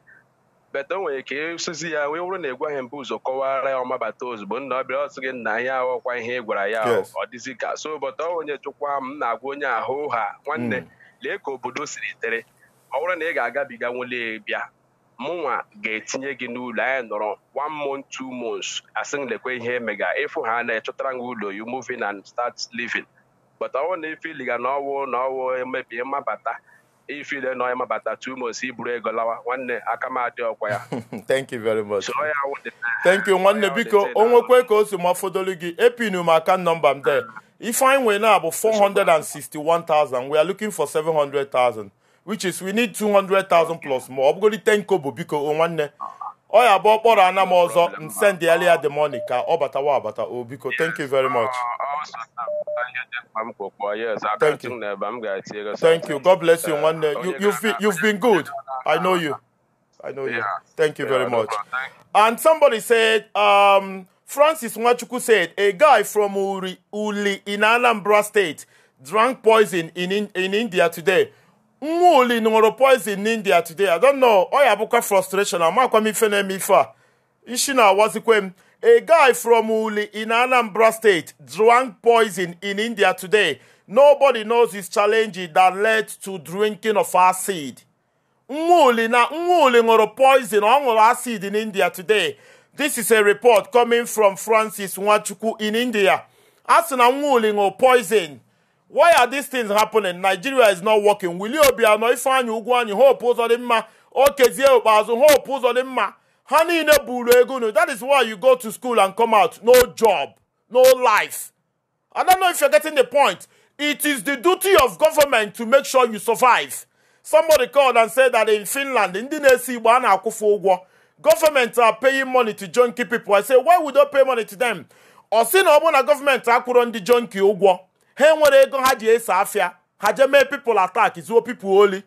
beta o nwere ka ịsụzi ya wee wụrụ na ịgwaghị mbụ ụzọ kọwara ya ọmabata ozugbo nna ọbịa ọsị gị nna ya aghọkwa ihe ị gwara ya ọ dịzi ka so bọta onye chụkwa m na-agwa onye ahụ ha nwanne hmm. lee ka obodo siri tere ọ wụrụ na ị ga-agabiga nwele bịa mụnwa ga-etinye gị n'ụlọ anyị nọrọ one month two months asị lekwe ihe emega ịfụ ha na-echọtara gị ụlọ you moving and start living but ọwụ na ifiliga na ọwụ e na ọwụ emebi mmabata ifile na ịmabata two months iburu ego lawa nwanne aka m adị ọkwa ya thank you very much thank you nwanne biko o nwekwe ka o si ma fodolu gị epinu m aka nọmba m de ifeanyị nwere na abụ 461,000 we are looking for 700,000 which is we need 200,000 plus more. ọ bụgodi 10 kobo biko nwanne ọ ya bụ ọkpọrọ ana m ọzọ send the uh, earlier the money ka ọ oh, batawa abata o biko thank you very uh, much uh, oh, thank you thank you god bless you nwanne eh, oh, you, you've, been, you've been good i know you i know you thank you very much and somebody said um, francis nwachukwu said a guy from uri uli in anambra state drank poison in, in, in india today mmụọli ṅụrụ poison n'india today i don know frustration amakwa m ife na-eme ife a isi na-awazikwe m a guy from uli in anambra state drank poison in india today nobody knows his challenge that led to drinking of acid mmụọli na mmụọli ṅụrụ poison ọ ṅụrụ acid in india today this is a report coming from francis nwachukwu in india a sị na mmụọli ṅụrụ poison why are these things happening nigeria is not working wili obiano ifeanyi ugwuanyi hope ụzọ dị mma okezie ikpeazụ hope ụzọ dị mma ha niile buru ego unu that is why you go to school and come out no job no life i don't know if you're getting the point it is the duty of government to make sure you survive somebody called and said that in finland ndị na-esi igbo a na-akwụfe ụgwọ government are paying money to junkie people i say why would they pay money to them ọ sị na ọ bụrụ na gọọmenti akwụrụ ndị junkie ụgwọ ha enwere ego ha ji ese afịa ha jee mee pipụl atak zuo pipụl oli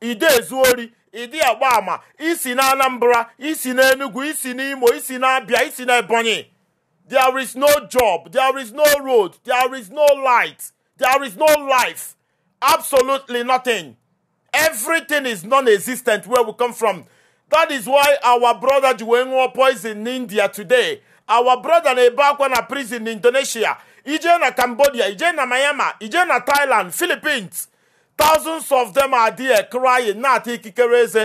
ide ezu ori ịdị agba ama isi na anambra isi na enugu isi na imo isi na abịa isi na ebonyi there is no job there is no road there is no light there is no life absolutely nothing everything is non-existent where we come from that is why our brother ji wee ṅụọ poison in india today our brother na-ebe akwa na prison in indonesia ije na cambodia ije na myanmar ije na thailand philippines thousands of them are there crying na-ata ikikere eze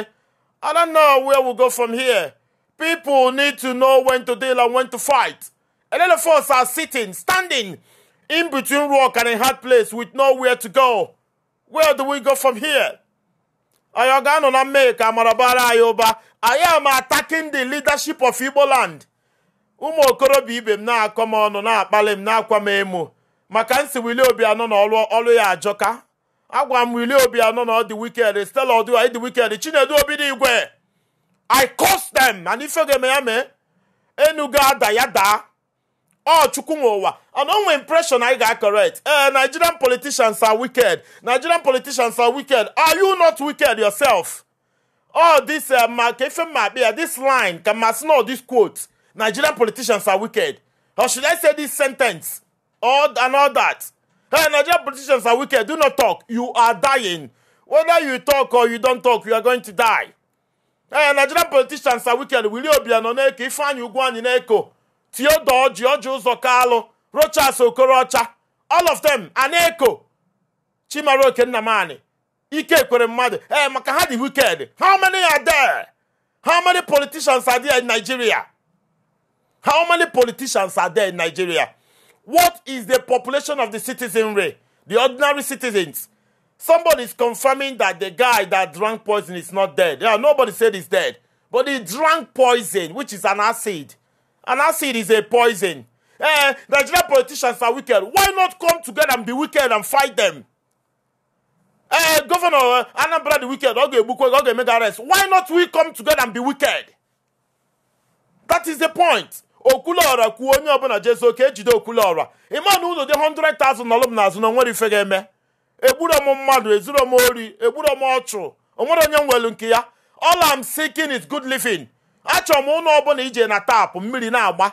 i don't know where we go from here people need to know when to deal and when to fight a lot of us are sitting standing in between rock and a hard place with nowhere to go where do we go from here anyị ọ ga-anọ na mmehie ka amara bara anyị i am attacking the leadership of igbo land ụmụ okorobịa ibe m na-akọ m ọnụ na-akpali m na-akwa m emo maka nsi Willie Obianọ na ọlụ ọlụ ya ajọka agwa m Willie Obianọ na ọ dị wikend Stella ọdụ dị wikend Chinedu Obidigwe I curse them and ife ga-eme ya mee enugo ada ya daa ọ chukwu nwe ụwa and onwe impression anyị ga-correct ee eh, Nigerian politicians are wicked Nigerian politicians are wicked are you not wicked yourself all this eh, ma ka ife mma akpị ya this line ka masị na this quote Nigerian politicians are wicked. Or should I say this sentence? All and all that. Hey, Nigerian politicians are wicked. Do not talk. You are dying. Whether you talk or you don't talk, you are going to die. Hey, Nigerian politicians are wicked. Will you be an na-eko Ifeanyi Ugwuanyi na-eko Theodore George zokalo rocha Rochas Okorocha all of them are na Chimaro Okennamani Ike Ekwere mmadụ ee maka wicked how many are there how many politicians are there in Nigeria How many politicians are there in Nigeria? What is the population of the citizenry, the ordinary citizens? Somebody is confirming that the guy that drank poison is not dead. Yeah, nobody said he's dead. But he drank poison, which is an acid. An acid is a poison. The eh, Nigerian politicians are wicked. Why not come together and be wicked and fight them? Eh, Governor uh, Anambra the wicked, okay, Bukwe, okay, make arrest. Why not we come together and be wicked? That is the point. okwuluọra kwuo onye ọbụla jezo ka ejide okwuluọra ịma na ụlọ dị 100,000 nọlụ m azụ na nwere ife ga-eme egburu m mmadụ ezuru m ori egburu m ọchụ onwere onye nwelu nke ya all I'm seeking is good living achọrọ m ụlọ ọbụla ije na taapụ mmiri na-agba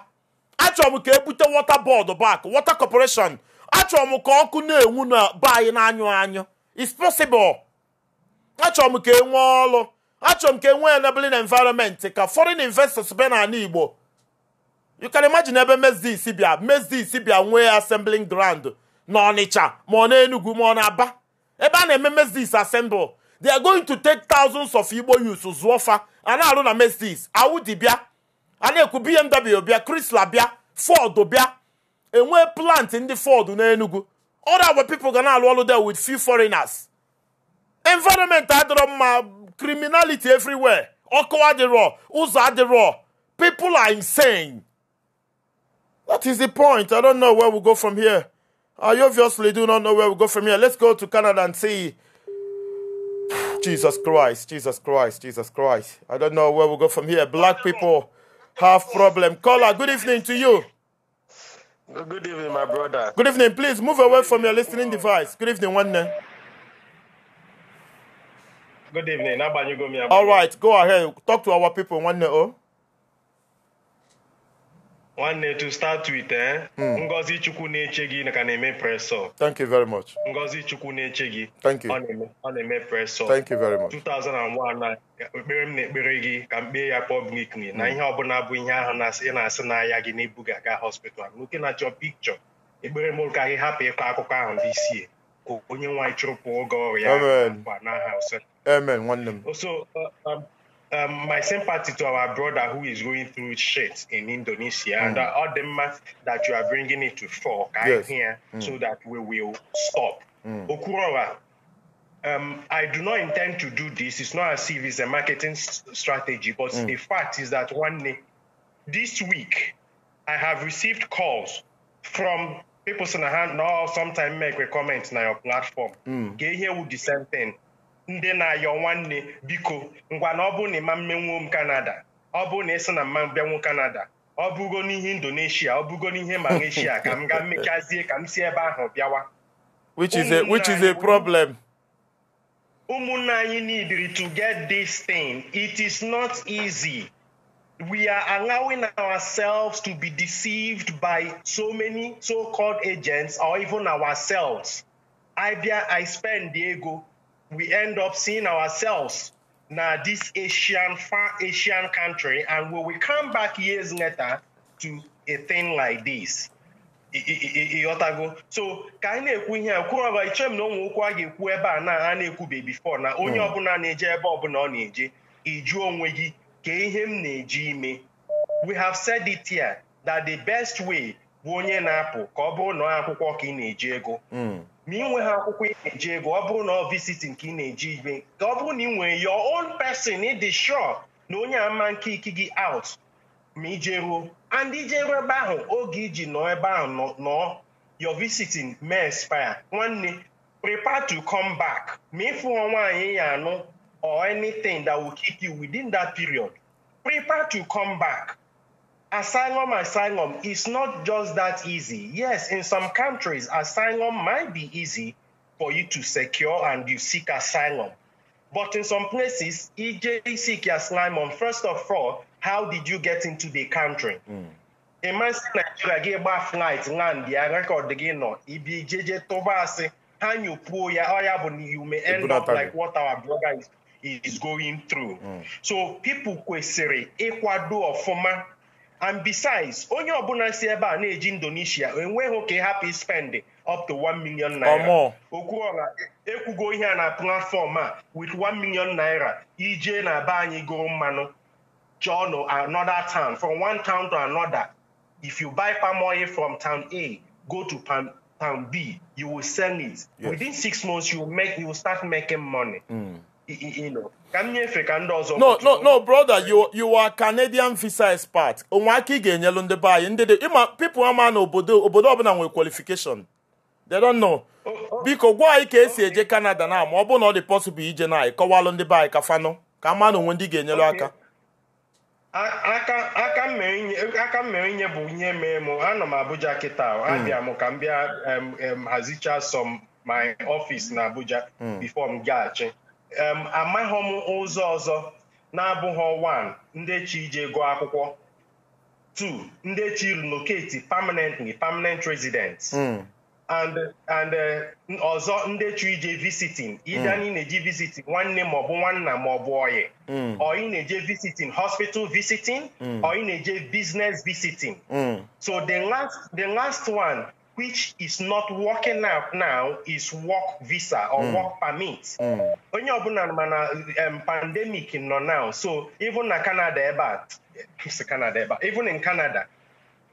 achọrọ m ka ebute wọta bọọdụ bak wọta kọpọreshọn achọrọ m ka ọkụ na-enwu na be anyị na-anyụ anyụ it's possible achọrọ m ka e nwee ọlụ. achọrọ m ka enwee enabling environment ka foreign investors bịa n'ala Igbo you can imagine ebe Mezi Isi bịa Mezi bịa nwee assembling ground na Ọnịcha ma ọ na-Enugu ma ọ na-Aba ebe a na-eme Mezis assemble they are going to take thousands of Igbo youths zụọ fa a na-arụ na Mezis Audi bịa a na-ekwu BMW bịa Chrysler bịa Ford bịa enwee plant ndị Ford na Enugu other our ga na-alụ ọlụ there with few foreigners environment adịrọ mma criminality everywhere ọkụ adịrọ ụzọ adịrọ people are insane What is the point? I don't know where we go from here. I obviously do not know where we go from here. Let's go to Canada and see. Jesus Christ, Jesus Christ, Jesus Christ. I don't know where we go from here. Black people have problem. Caller, good evening to you. Good evening, my brother. Good evening. Please move away from your listening device. Good evening, one name. Good evening. All right, go ahead. Talk to our people, one name. Oh. nwanne to start with eh hmm. ngozi chukwu na-eche gị ka na-eme press thank you very much ngozi chukwu na-eche gị thank you ọ na-eme press up thank you very much 2001 ekpere m na-ekpere gị ka m kpee ya publicly na hmm. ihe bụla bụ ihe ahụ ị na-asị n'ahịa gị na-ebu gị aga hospital nwoke na-achọ pikchọ ekpere m ka gị hapụ ịkọ akụkọ ahụ dị isie ka onye nwanyị chụrụpụ oge ọrụ ya n'aha so um, my sympathy to our brother who is going through shit in Indonesia mm. and the aftermath that you are bringing it to fork yes. here mm. so that we will stop. Mm. um, I do not intend to do this. It's not as if it's a marketing strategy, but mm. the fact is that one day, this week, I have received calls from people in the hand now sometime make a comment on your platform. Mm. Get here with the same thing. ndị na-ayọ nwanne biko ngwa na ọ bụ na ịma mmenwuo m kanada ọ bụ na ịsị na mma mbịanwu kanada ọ bụgo n'ihe indonesia ọ bụgo n'ihe malaysia ka m gaa mmechazie ka m si ebe ahụ bịawa which is a which is a problem ụmụnna anyị need to get this thing it is not easy we are allowing ourselves to be deceived by so many so-called agents or even ourselves. I, I spend the ego we end up seeing ourselves now this Asian, far Asian country, and when we come back years later to a thing like this. ịghọtago so ka anyị na-ekwu ihe a kwurọba iche m na ụmụ ụkwụ a ga-ekwu ebe a na a na-ekwube bifo na onye hmm. ọbụla na-eje ebe ọbụla ọ na-eje ịjụ onwe gị ka ihe m na-eji ime we have said it here that the best way bụ onye na-apụ ka ọ bụrụ na akwụkwọ ka ị na-eji ego hmm. ma ị ha akwụkwọ ị na-eji ego ọ bụrụ na ọ visitin nke ị na-eji ibe ka ọ bụrụ na ị nwere your own person ịdị sure na onye ama nke iki gị out ma ije ruo and ebe ahụ oge iji nọ ebe ahụ nọ your visiting may expire nwanne prepare to come back ma ịfụọ nwaanyị ya anụ or anything that will keep you within that period prepare to come back asylum, asylum is not just that easy. Yes, in some countries, asylum might be easy for you to secure and you seek asylum. But in some places, EJ seek asylum. First of all, how did you get into the country? Mm. A man Nigeria gị gba flight land the record again. nọ ibi jeje tụba asị ha nyopuo ya you may end up like what our brother is, is going through. Mm. So people kwesịrị ịkwado ọfụma and besides onye ọbụla si ebe a na-eji indonesia enweghị ka happy spend up to 1 million naira go ekwugo ihe a na platform a with 1 million naira ije na be anyị gụrụ mmanụ chọọ another town from one town to another if you buy palm oil from town a go to palm, town b you will sell it yes. within six months you will make you will start making money mm. you, you know ka m ka ndị ọzọ no no no brother you you are Canadian visa expert onwe aka ị ga-enyelu ndị be anyị ndị dị ịma pipu ama na obodo obodo ọbụla nwere qualification they don't know oh, oh. biko gwa anyị ka esi eje Canada na ma ọ bụrụ na ọ dị possible ije na anyị kọwalụ ndị be anyị ka fanụ ka ama na onwe ndị ga-enyelu aka aka m mere inye bụ ihe mee m anọ m Abuja kịta hmm. abịa m ka m bịa hazicha some my office na Abuja hmm. before m gaghachi amaghị m ụzọ ọzọ na-abụghị one ndị chi ije gụọ akwụkwọ two ndị chi relocate permanently permanent residents hmm. and and eh, ọzọ ndị chi ije visiting ịda na ị hmm. na-eji visiting nwanne maọbụ nwanna maọbụ ọyị hmm. ọ ị na-eje visiting hospital visiting ọ ị na-eje business visiting so the last the last one which is not working out now is work visa or mm. work permit. Mm. Onye ọbụla mana pandemic nọ now so even na Canada ebe a Canada ebe even in Canada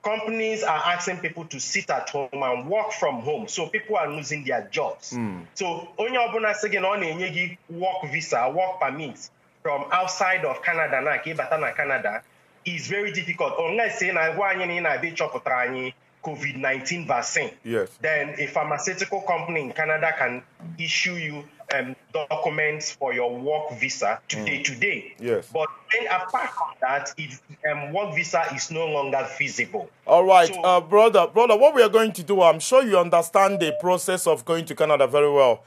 companies are asking people to sit at home and work from home so people are losing their jobs. Mm. So onye ọbụla sị gị na ọ na-enye gị work visa work permit from outside of Canada na ka ịbata na Canada is very difficult unless ị na-agwa anyị na ị na-abịa ịchọpụtara anyị COVID 19 vaccine, yes. then a pharmaceutical company in Canada can issue you um, documents for your work visa today. Mm. Today, yes. But then apart from that, if um, work visa is no longer feasible. All right, so, uh, brother, brother, what we are going to do, I'm sure you understand the process of going to Canada very well.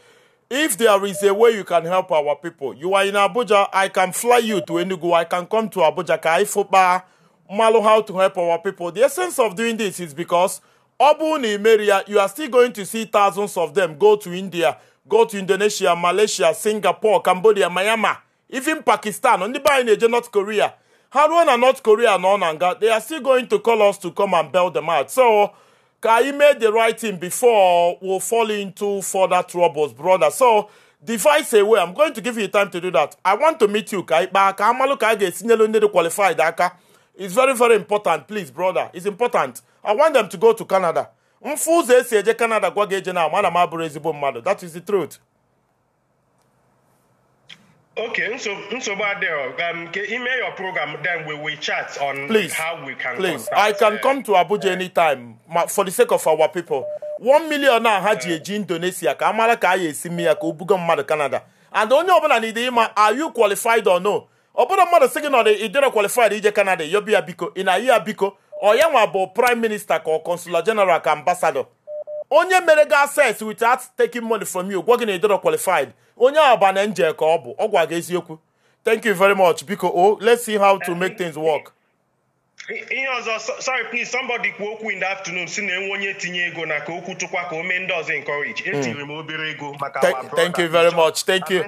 If there is a way you can help our people, you are in Abuja, I can fly you to Enugu, I can come to Abuja, Kaifuba. mmalụ how to help our people the essence of doing this is because ọ bụrụ na you are still going to see thousands of them go to india go to indonesia malaysia singapore cambodia myanmar even pakistan ndị be anyị na-eje north korea How ruo na north korea and na they are still going to call us to come and bail them out so Kai made the right thing before we'll fall into further troubles brother so device a way i'm going to give you time to do that i want to meet you Kai. But I'm ka amalụ ka a ga-esinyelu qualified aka It's very, very important. Please, brother. It's important. I want them to go to Canada. Mfụzọ esi eje Canada gwa gị eje na mana That is the truth. Okay, so nsogbu adịghị um, email your program then we will chat on please, how we can please. Contact, I can uh, come to Abuja uh, anytime for the sake of our people. One million now had ji eh. eji Indonesia ka amara ka a ya esi mme ya ka Canada. And the only ọbụla n'ide ịma are you qualified or no? obodo bụrụ mmadụ sị gị na ọdị ịdịrọ kwalifaid ije kanada yobi ya biko ị na-ayị biko ọ nwa bụ prime minister ka consular general ka ambassador onye mere gị access without taking money from you gwa gị na ịdịrọ qualified onye abana nje ka ọ bụ ọ gwa gị eziokwu thank you very much biko o oh, let's see how to make things work ihe ọzọ sorry please somebody kwuo okwu in the afternoon si na enwe onye tinye ego na ka okwu tụkwa ka o mee ndị ọzọ encourage hmm. etinyere m obere ego maka thank you very much thank you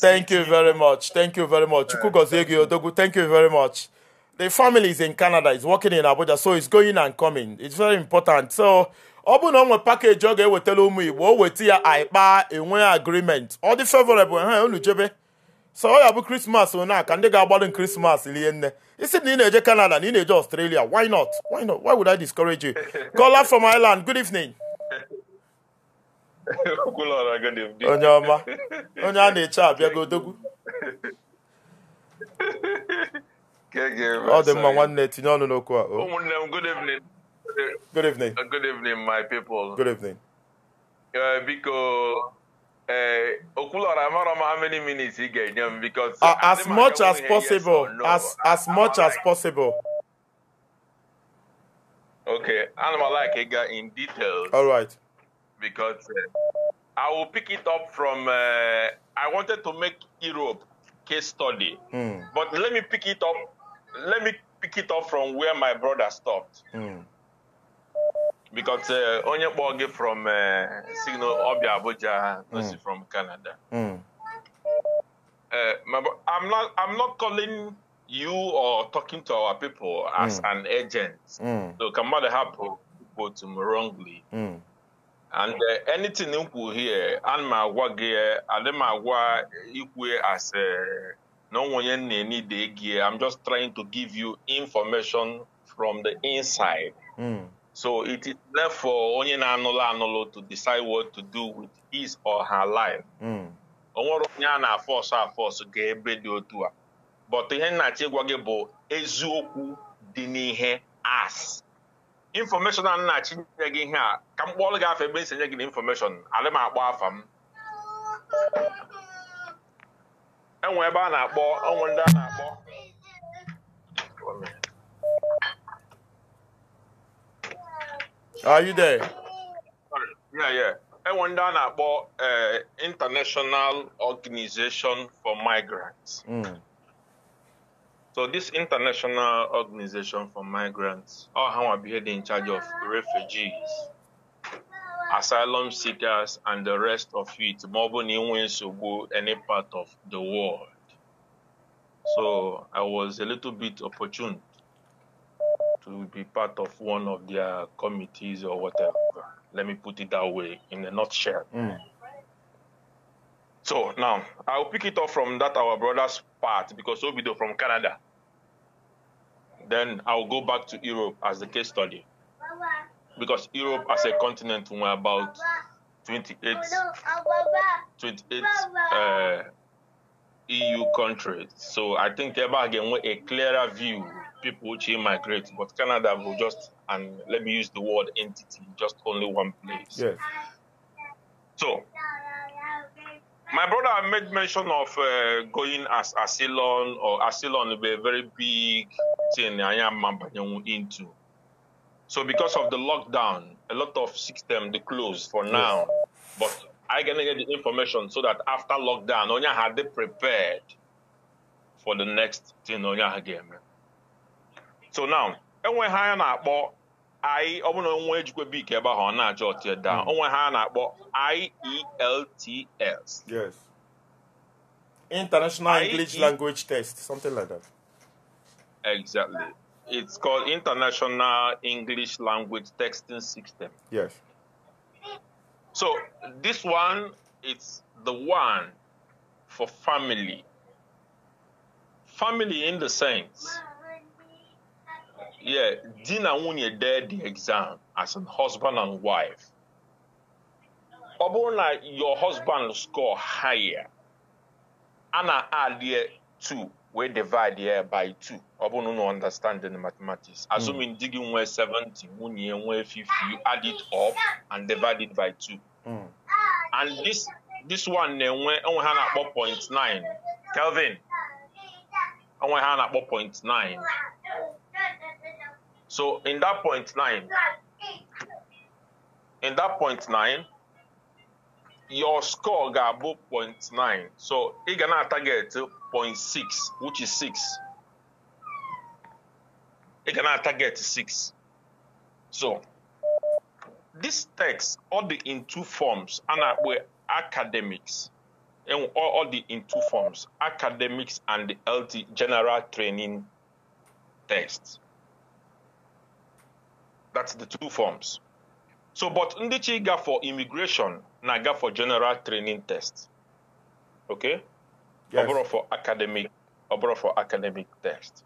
thank you very much thank you very much eh, chukwu gozie gị odogwu thank you very much the family is in canada is working in abuja so it's going and coming it's very important so ọ bụ na o nwe pakeji ọ ga-ewetara ụmụ igbo o weta ya anyị enwe agreement ọ dị favorable ha unu jebe so ọ oh, ya bụ krismas one aka ndị ga-agbalụ krismas rie nne isi na ị na-eje canada na ị na-eje australia why not why not why would i discourage you kola from island good evening onye ọma onye a na-eche abịago odogwu ọ dị mma nwanne tinye ọnụ n'okwu a oh. ụmụnne m good evening good evening good evening my people good evening biko uh, eh, Okulora, I don't how many minutes he gave them because uh, as much as possible, yes no. as as I'm much like, as possible. Okay, animal like Ega in details. All right, because uh, I will pick it up from. Uh, I wanted to make Europe case study, mm. but let me pick it up. Let me pick it up from where my brother stopped. Mm because uh, onye kpọọ gị from uh, signal ọbịa Abuja not hmm. from Canada. Mm. Uh, I'm not I'm not calling you or talking to our people as mm. an agent. Mm. So kamada help people to me wrongly. Mm. And uh, anything you here, and my work here, and my work as a uh, no one need I'm just trying to give you information from the inside. Mm. So it is left for onye na-anụlụ anụlụ to decide what to do with his or her life. Hmm. O nwere onye a na-afọsụ afọsụ ga ebe dị otu a. But ihe nnachi gwa gị bụ eziokwu dị n'ihe as. Information a nnachi nye gị ihe a ka m kpọọrọ gị afọ ebe esi nye gị na information alị m akpọ afa m. Enwe ebe a na-akpọ onwe ndị a na-akpọ Are you there? Yeah, yeah. I wonder about international organization for migrants mm. so this international organization for migrants ọ ha nwa bụ in charge of refugees asylum seekers and the rest of it Mobile ọ bụ na any part of the world so i was a little bit opportune to be part of one of their committees or whatever. Let me put it that way in a nutshell. Mm. So now I'll pick it up from that our brother's part because Obido from Canada. Then I'll go back to Europe as the case study. Because Europe as a continent we're about 28, 28 uh, EU countries. So I think ever again a clearer view people which immigrate, but Canada will just, and let me use the word entity, just only one place. Yes. So, my brother made mention of uh, going as asylum or asylum be a very big thing I am into. So because of the lockdown, a lot of system they closed for now. Yes. But I can get the information so that after lockdown, Onya had they prepared for the next thing Onya again so now enwe ha a na-akpọ i ọbụna onwe ejikwa bik ebe ahụ ọ hmm. I tie down onwe ha na-akpọ IELTS yes international english language test something like that exactly it's called international english language texting system yes so this one it's the one for family family in the sense yeah, Dina Wunye did the exam as a husband and wife. Obona, your husband score higher. Anna add here two, we divide here by two. Obona no understand the mathematics. Hmm. Assuming mm. digging where 70, Wunye where 50, you add it up and divide it by two. Hmm. And this this one, when Hannah 4.9, Kelvin, when Hannah 4.9. So in that point nine, in that point nine, your score got above point nine. so he gonna target 0.6 which is 6 He gonna target 6 so this text all the in two forms and we're academics and all the in two forms academics and the LT general training text that's the two forms. So, but Ndichi got for immigration, naga for general training test. Okay? Yes. for academic, overall for academic test.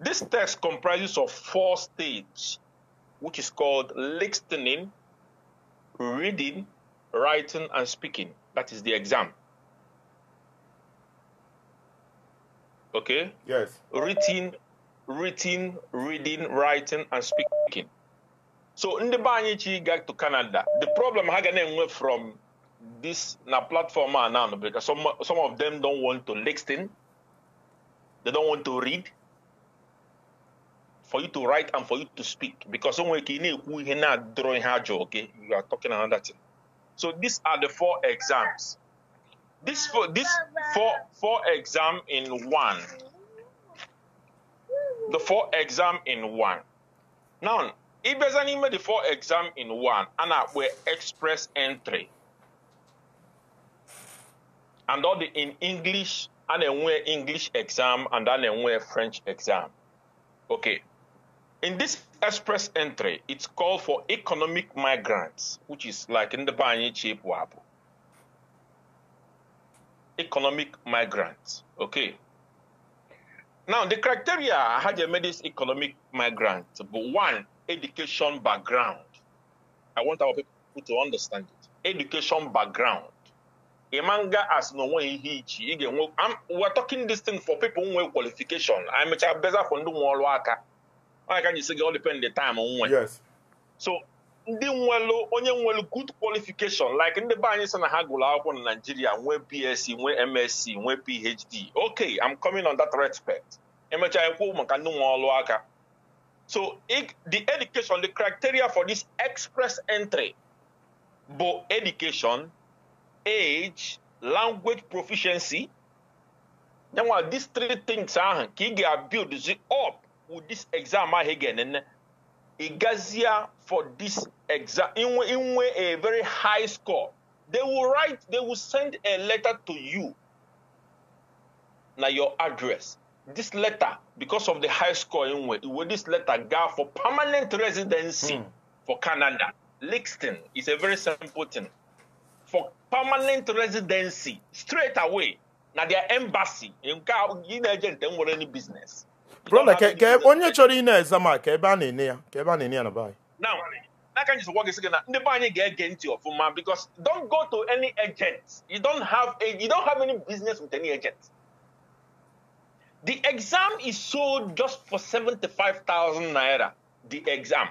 This test comprises of four stages, which is called listening, reading, writing, and speaking. That is the exam. Okay? Yes. Written written, reading, writing, and speaking. So in the Banyichi got to Canada. The problem Haganen went from this na platform now because some some of them don't want to listen, they don't want to read. For you to write and for you to speak, because someone can not drawing hard okay? You are talking another thing. So these are the four exams. This four, this four four exam in one the four exam in one. Now, if there's an email, the four exam in one, and we express entry. And all the in English, and then we English exam, and then we French exam. Okay. In this express entry, it's called for economic migrants, which is like in the Banyi Chip Wabu. Economic migrants. Okay. Now, the criteria I had a this economic migrant, but one, education background. I want our people to understand it. Education background. Imanga as no one again. I'm we're talking this thing for people who have qualification. I'm a better for no more worker. I can you say all depend the time on one? Yes. So ndị nwelụ onye nwelụ good qualification like ndị be anyị sị na ha gụrụ akwụkwọ na Naịjirịa nwee BSc nwee MSc nwee PhD okay I'm coming on that respect emechaa ekwu maka ndị nwe ọlụ aka so the education the criteria for this express entry bụ education age language proficiency yanwa these three things ahụ ka ị ga-build up with this exam ahụ ị ga-enene Igazia for this exam, in, in a very high score. They will write, they will send a letter to you. Now your address. This letter, because of the high score in with this letter go for permanent residency mm. for Canada. Lixton is a very simple thing. For permanent residency, straight away, now their embassy, in agent, they any business brother ke onye chori i ị na-eze ma ka ebe a na-ene ya ka ebe na-ene ya na be anyị now like I just work again. The buying agent of man because don't go to any agent. You don't have a, you don't have any business with any agent. The exam is sold just for seventy five thousand naira. The exam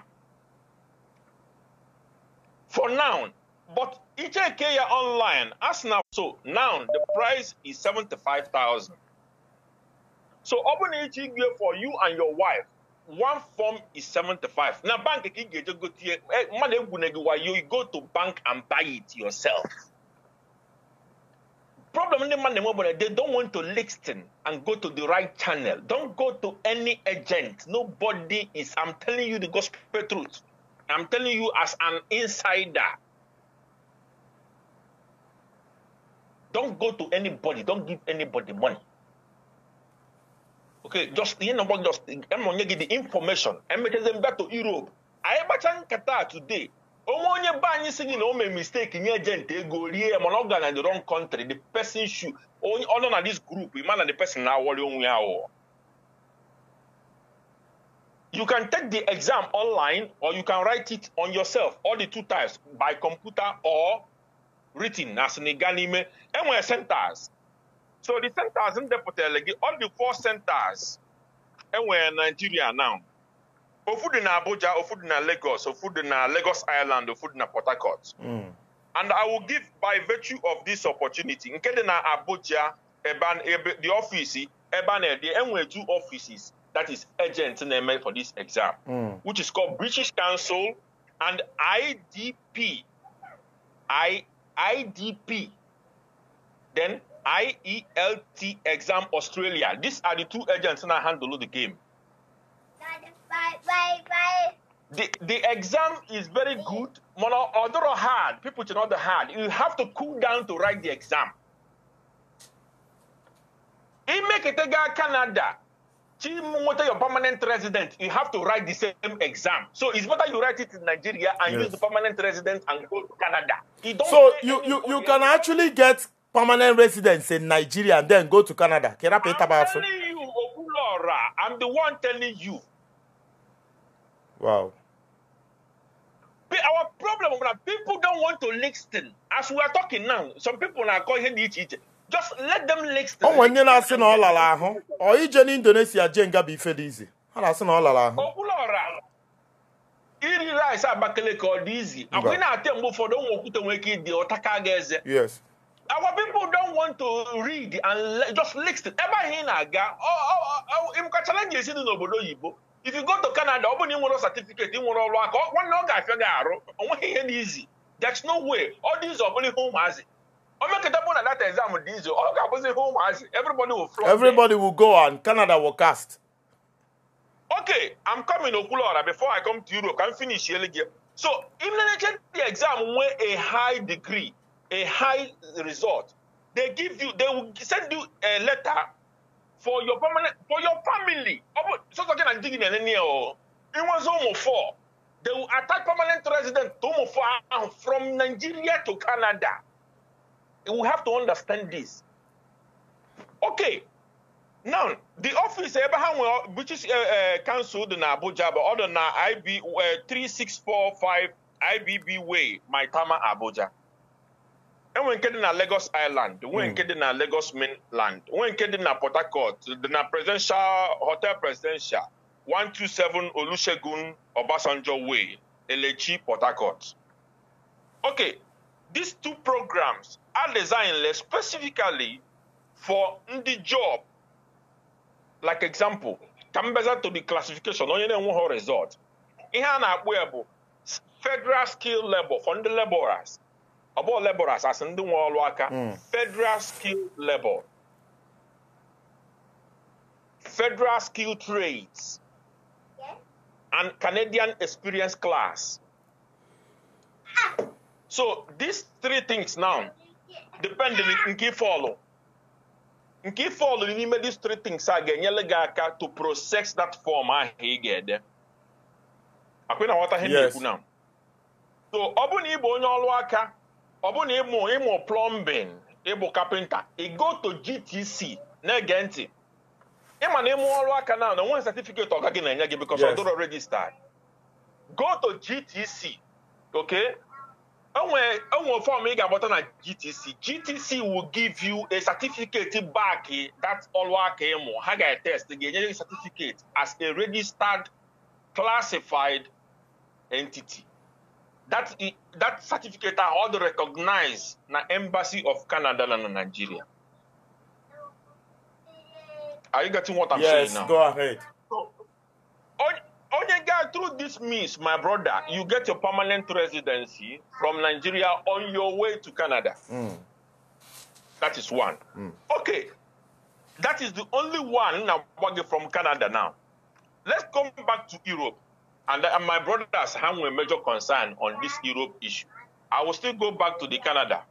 for now, but it is IKEA online as now. So now the price is seventy five thousand. so ọbụna ịchọ igwe for you and your wife one form is seventy-five. Eh, na bank ka ị ga-eje gotie mmadụ egwune gị wayo you go to bank and buy it yourself problem ndị mmadụ na-enwe bụ na they don't want to listen and go to the right channel don't go to any agent nobody is i'm telling you the gospel truth i'm telling you as an insider don't go to anybody don't give anybody money okay just yẹn na bɔ just ẹ na ɔnyɛ gidi information ɛmɛtɛsɛ mba to europe ayébàtà nkata today ɔmo onye ba anyi sigi na ɔmo mistake nye agent ego rie ɛmɔ na ɔga na the wrong country the person shoe ɔno na this group ima na the person na awɔre onwe awɔ. You can take the exam online or you can write it on yourself, all the two types, by computer or written as an Iganime. And we're centers. So the centers ndị all the four centers and we in Nigeria now. Ofu dị na Abuja, ofu dị na Lagos, ofu dị na Lagos Island, ofu dị na Port Harcourt. Hmm. And I will give by virtue of this opportunity nke dị Abuja the office ebe a two offices that is agent na for this exam mm. which is called British Council and IDP I, IDP then IELT Exam Australia. These are the two agents that handle the game. Bye, bye, bye. The, the exam is very good, but although hard, people should not hard. You have to cool down to write the exam. In Meketega, Canada, Chimote, your permanent resident, you have to write the same exam. So it's better you write it in Nigeria and yes. use the permanent resident and go to Canada. You so you, you, you can actually get permanent residents in Nigeria and then go to Canada. I'm telling you, Okulora, I'm the one telling you. Wow. But our problem is that people don't want to listen. As we are talking now, some people are calling each other. Just let them listen. Oh, when you're not saying all along, or you in Indonesia, Jenga be fed easy. I'm not saying all along. Okulora. Iri rice Abakaleke ọ dị izi. Akwụghị na-ate mgbe ụfọdụ ụmụ okwute nwere ike ịdị ọtaka ga Yes our people don't want to read and just listen. Ebe ihe na-aga ịmụka chalenji esi dị n'obodo oyibo if you go to Canada ọ bụ na ị nwere certificate ị nwere ọrụ aka nwanne ọ ga-afịa gị arụ onweghị ihe n'izi there's no way ọ dị izu ọbụla ihe ụmụazị omekata bụ na data exam dị izu ọ ga-abụzi ihe ụmụazị everybody will flock everybody will go and Canada will cast okay I'm coming Okwuluora before I come to Europe ka m finish ele gị so im the exam nwee a high degree a high result, they give you, they will send you a letter for your permanent, for your family. So talking and digging and any or it was almost four. They will attack permanent resident to from Nigeria to Canada. We have to understand this. Okay. Now, the office Abraham British uh, uh, Council in Abuja, but other than IB uh, 3645 IBB Way, Tama Abuja enwere nke dị na Lagos Island nwee hmm. nke dị na Lagos Mainland nwee nke dị na Port Harcourt dị na presidential hotel presidential 127 Olusegun Obasanjo Way Elechi Port Harcourt okay these two programs are designed specifically for ndị job like example ka mbeza to the classification onye na-enweghị result ihe a na-akpụ ya bụ federal skill labor for ndị laborers Abụọ bụ laborers asị ndị nwe ọrụ aka hmm. federal skilled labor federal skilled trades and Canadian experience class ah. so these three things now depend nke ifeọlụ nke ifeọlụ n'ime these three things a ga-enyere gị aka to process that form ahụ ị ga-ede akwị na nwata ihe na-ekwu na so ọ bụ na ị bụ onye ọrụ aka ọ bụ na ịmụ ịmụ plọmbin ịbụ kapịnta ịgo to GTC na-ege ntị ịma na ịmụ ọrụ aka na na onwe satifiketi ọga gị na-enye gị bikos ọdụrọ dọrọ regista go GTC ok onwe fọm ị ga-agbata na GTC GTC will give you a certificate back that ọrụ aka ịmụ ha ga-etest ga-enye gị certificate as a registered classified entity that that certificate are all recognized na embassy of Canada and Nigeria. Are you getting what I'm yes, saying now? Yes, go ahead. So, on, guy, through this means, my brother, you get your permanent residency from Nigeria on your way to Canada. Mm. That is one. Mm. Okay, that is the only one now from Canada now. Let's come back to Europe. And, and uh, my brothers have a major concern on this Europe issue. I will still go back to the Canada.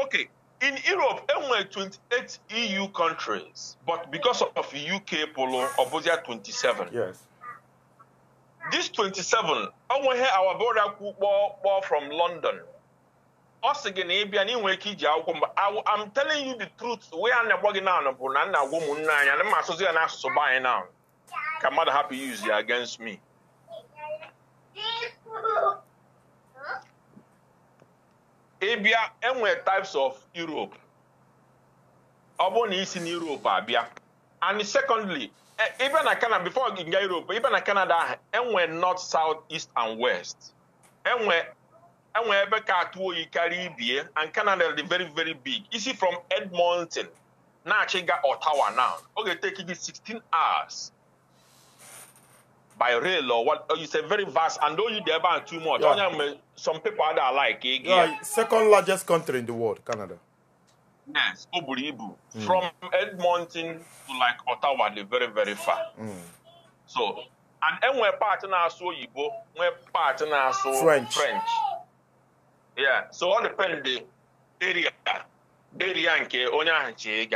Okay, in Europe, there were 28 EU countries, but because of UK polo, Obusia 27. Yes. This 27, I will hear our brother Kubo from London. Us again, Abian, I'm telling you the truth. We are not working on a woman, and I'm associating us to buy now. Come out happy use against me. ịbịa enwe types of Europe ọ bụrụ na isi na Europe abịa and secondly e, ịbịa na Canada before gị nga Europe ịbịa na Canada ahụ enwe north south east and west enwe enwe ebe ka atụ oyi karịa ibie and Canada dị very very big isi from Edmonton na-achịga Ottawa now oge ga-eteki gị 16 hours by rail or what oh, it's a very vast and though you there ban too much yeah. Know, some people that like eh, yeah, yeah. second largest country in the world canada yes Oburibu. Mm. from edmonton to like ottawa they very very far mm. so and then when partner so Igbo, when part na so french french yeah so all depend the area area and ke ahụ chee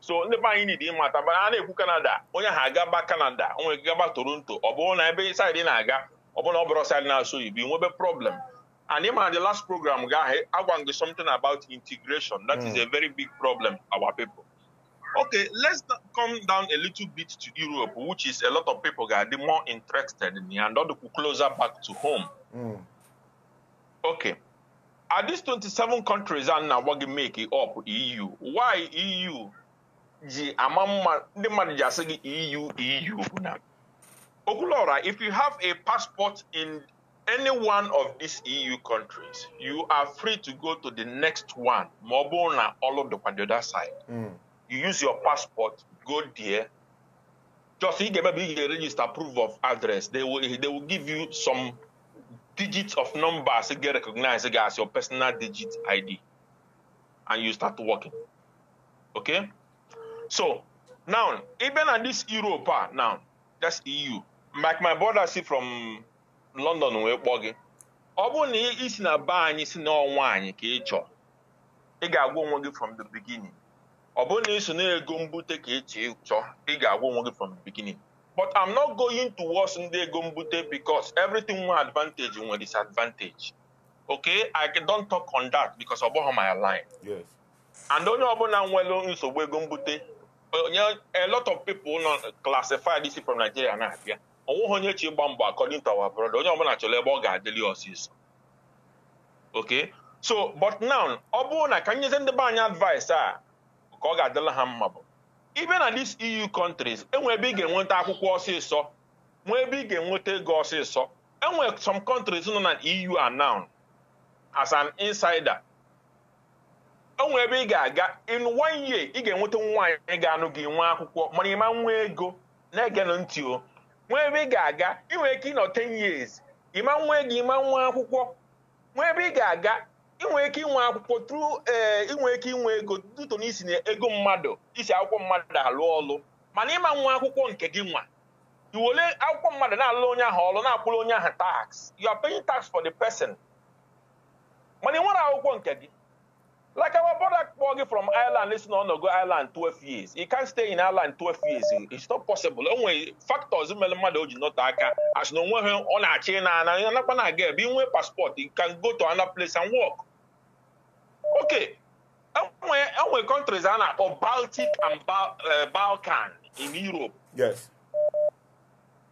so ndị be anyị nidi ịmata mana a na-ekwu kanada onye ha agaba kanada onwe gaba toronto ọ bụrụ na ebe saịdị na-aga ọ bụrụ na ọ bụrụ saịdị na-asụ igbo nwebe problem and ịma na the last program ga agwa gị something about integration that is a hmm. very big problem our people okay let's come down a little bit to europe which is a lot of people ga-adị more interested in and ọ dịkwu closer back to home mm. okay are these 27 countries a na-agwa gị make up eu why eu ji eu eu if you have a passport in any one of these EU countries you are free to go to the next one ma all bụrụ the other side mm. you use your passport go there just i give ga-eme bu ga-register proof of address they will, they will give you some digits of numbers get recognized as your personal digit ID and you start working okay So now, even at this Europe ah, now, that's EU. Like my brother si from London wee kpọọ gị. Ọ na isi na be anyị si na ọnwa anyị ka ị chọọ, ị ga-agwa onwe gị from the beginning. Ọ bụrụ na ị na-ego mbute ka ị e chọọ, ị ga-agwa onwe gị from the beginning. But I'm not going towards ndị ego mbute because everything nwere advantage nwere disadvantage. Okay, I don't talk on that because ọ my line. Yes. And onye ọbụla nwere nsogbu ego mbute you know, a lot of people not classified this from Nigeria na abịa onweghị onye chi gba mbọ according to our brother onye ọbụla chọrọ ebe ọ ga-adịli ọsịsọ okay so but now ọ bụrụ na ka nyezi ndị be anyị advice a ka ọ ga-adịla ha mma bụ ibe na these EU countries enwe ebe ị ga-enweta akwụkwọ ọsịsọ nwee ebe ị ga-enweta ego ọsịsọ enwe some countries nọ na EU are now as an insider onwe ebe ị ga-aga in one year ị ga-enweta nwaanyị ga-anụ gị nwa akwụkwọ mana ịma nwa ego na-egenụ ntị o nwee ebe ị ga-aga ị ike ịnọ 10 years ịma nwa ego ịma nwa akwụkwọ nwee ebe ị ga-aga ị ike inwe akwụkwọ tru ee eh, ị ike inwe ego duto na isi na ego mmadụ isi akwụkwọ mmadụ alụ ọlụ mana ịma nwa akwụkwọ nke gị nwa iwole akwụkwọ mmadụ na-alụ onye ahụ ọlụ na-akwụrụ onye ahụ tax you are tax for the person mana ị nwere akwụkwọ nke gị Like our brother Borgi from Ireland, listen on go Ireland 12 years. He can't stay in Ireland 12 years. It's not possible. Only factors in Melamado do not aka as no one on a chain and not gonna get being with passport. He can go to another place and work. Okay. And when countries are now or Baltic and ba uh, Balkan in Europe. Yes.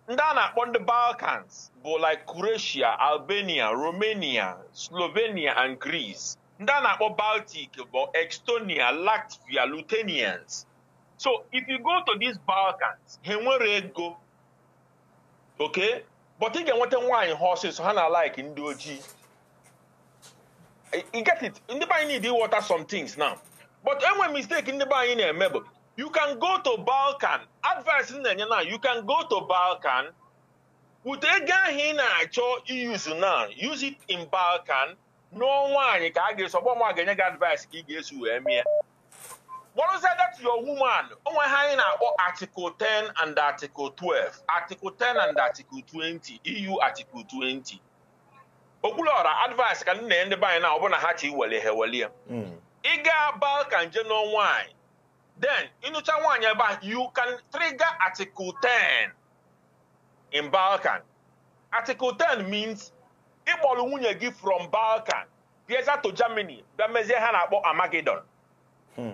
Ndana on the Balkans, but like Croatia, Albania, Romania, Slovenia, and Greece. ndị a na-akpọ Baltic bụ Estonia, Latvia, Lithuanians so if you go to these Balkans ha enwere ego okay but ị ga-enweta nwaanyị ha ọsịsọ ha na like ndị ojii you get it ndị be anyị need water some things now but enwe mistake ndị be anyị na-eme bụ you can go to Balkan advice na-enye na you can go to Balkan with ego ahụ ị na-achọ use now use it in Balkan nụọ nwaanyị ka a ga-eso ọgbọ nwa ga-enye gị advice ka ị ga eso wee mie kpọrụzie that your woman onwe ha anyị na-akpọ article 10 and article 12 article 10 and article 20 EU article 20 okwuluọra advice ka nna ya ndị be na ọbụna ha chi wele ha welie hmm. ị gaa balkan je nụọ nwaanyị then ịnụcha nwaanyị ebe a you can trigger article 10 in balkan article 10 means ịkpọrọ nwunye gị from Balkan bịaza to Germany bịa mezie ha na-akpọ Amagedon hmm.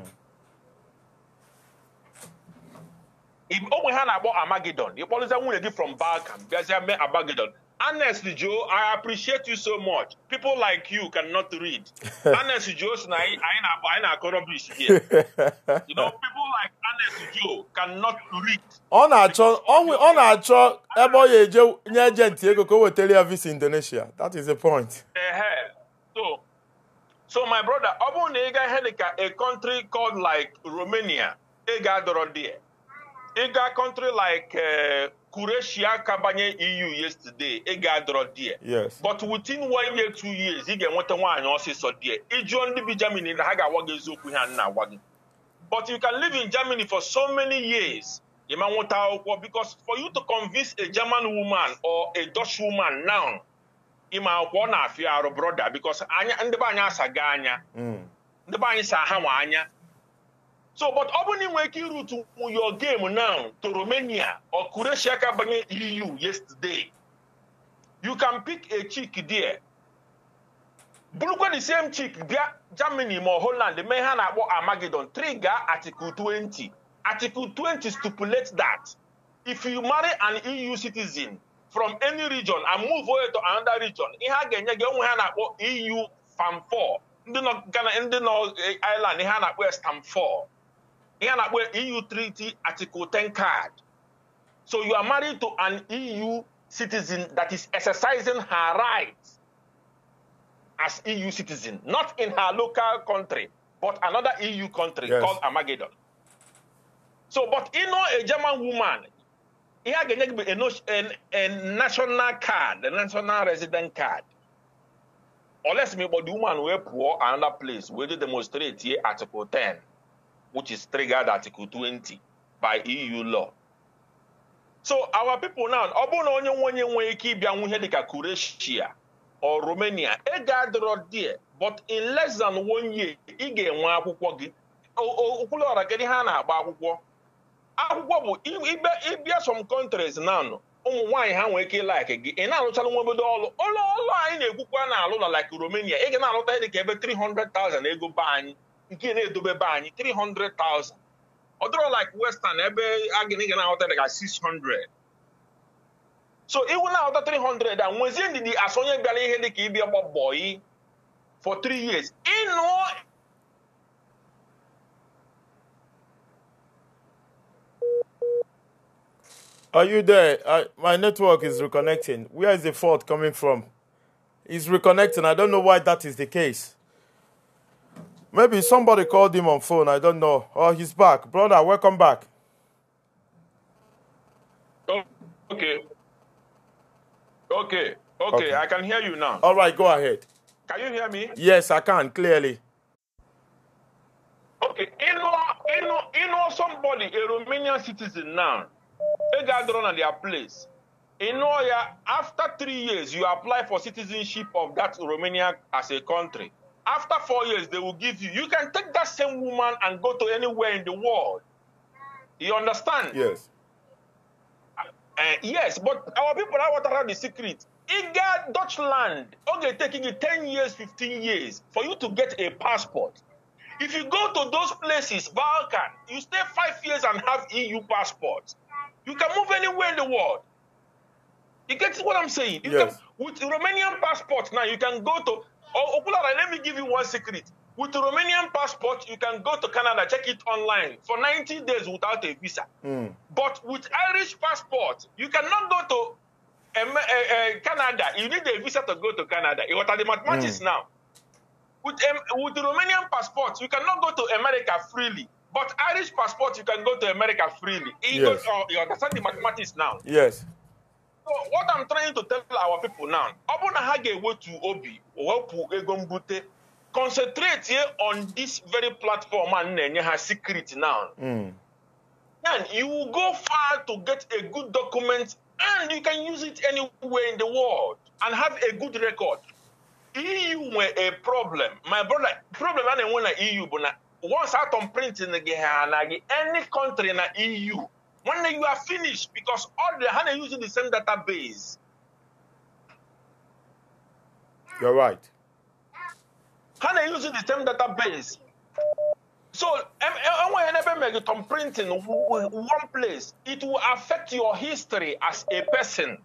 ogbe ha na-akpọ Amagedon ịkpọrọzie nwunye gị from Balkan bịazie mee Amagedon Honestly, Joe, I appreciate you so much. People like you cannot read. Honestly, Joe, I ain't rubbish here. You know, people like Honestly Joe cannot read. On our na-achọ on, na na-achọ ebe o Joe, ga-eje nye ejenti ego Indonesia. That is the point. Eh, eh. So, so my brother, ọ bụrụ na a country called like Romania, ị ịga country like uh, Croatia kabanye EU yesterday ị ga-adọrọ die yes but within one year two years ị ga-enweta nwaanyị ọsịsọ die ịjụọ ndị bi Germany na ha ga-agwa gị eziokwu ha nna agwa gị but you can live in Germany for so many years ịma nweta akwụkwọ because for you to convince a German woman or a Dutch woman now ịma akwụkwọ na-afịa arụ brother because ndị be anyị asaga anya mm. ndị be anyị sa ha nwa anya so but ọ bụrụ na ị nwere ike irutu your game now to Romania or Croatia ka banye EU yesterday you can pick a chick there bụrụkwa same chick bịa Germany ma Holland mee ha na-akpọ Armageddon 3 gaa Article 20 Article 20 stipulate that if you marry an EU citizen from any region and move away to another region ihe a ga-enye gị onwe ha na-akpọ EU fam 4 ndị nọ Ghana ndị nọ eh, Island ihe a na-akpọ Stamp 4 here na where EU Treaty Article 10 card. So you are married to an EU citizen that is exercising her rights as EU citizen, not in her local country, but another EU country yes. called Armageddon. So, but you know, a German woman, he had a, a national card, a national resident card. Unless me, but the woman were poor another place, where they demonstrate here Article 10. which is triggered Article 20 by EU law. So our people now, ọ bụrụ na onye nwenye nwee ike ịbịa nwu ihe dịka Croatia or Romania, ị ga-adọrọ die but in less than one year ị ga-enwe akwụkwọ gị okwulu ọra gịdị ha na-agba akwụkwọ akwụkwọ bụ ịbịa some countries now ụmụ nwanyị ha nwee ike ịlaiki gị ị na-alụchala nwa obodo ọlụ ụlọ anyị na-ekwukwa na alụ na like Romania ị ga na-alụta dịka ebe 300,000 ego be anyị nke na-edobe be anyị three hundred thousand. ọ dọrọ like western ebe agịnịga na-aghọta dịka 600 so iwu na-aghọta 300 a nwezie ndidi asụ onye bịara ihe dịka ịbịa gbabọyi for 3 years ịnụọ Are you there? I, my network is reconnecting. Where is the fault coming from? It's reconnecting. I don't know why that is the case. Maybe somebody called him on phone. I don't know. Oh, he's back. Brother, welcome back. Oh, okay. Okay. Okay. Okay. I can hear you now. All right. Go ahead. Can you hear me? Yes, I can clearly. Okay. You know, you know, you know somebody, a Romanian citizen now, they got drawn at their place. You know, yeah. after three years, you apply for citizenship of that Romania as a country. After four years, they will give you. You can take that same woman and go to anywhere in the world. You understand? Yes. Uh, uh yes, but our people are what around the secret. Iga, Dutchland, okay, taking you 10 years, 15 years for you to get a passport. If you go to those places, Balkan, you stay five years and have EU passport. You can move anywhere in the world. You get what I'm saying? You yes. Can, with Romanian passport now, you can go to Oh, Okulara, let me give you one secret. With Romanian passport, you can go to Canada, check it online for 90 days without a visa. Mm. But with Irish passport, you cannot go to um, uh, uh, Canada. You need a visa to go to Canada. What are the mathematics mm. now? With, um, with Romanian passport, you cannot go to America freely. But Irish passport, you can go to America freely. You, yes. go, uh, oh, you understand the mathematics now? Yes. So what I'm trying to tell our people now, ọ bụrụ na ha ga-ewetu obi wepụ ego mbute concentrate on this very platform a na-enye ha secret now. Mm. Then you will go far to get a good document and you can use it anywhere in the world and have a good record. EU nwere a problem. My brother, problem a na-enwe na EU bụ na once atom printing gị ha anaghị any country na EU One day you are finished because all the HANA using the same database. You're right. HANA using the same database. So, when you printing one place, it will affect your history as a person.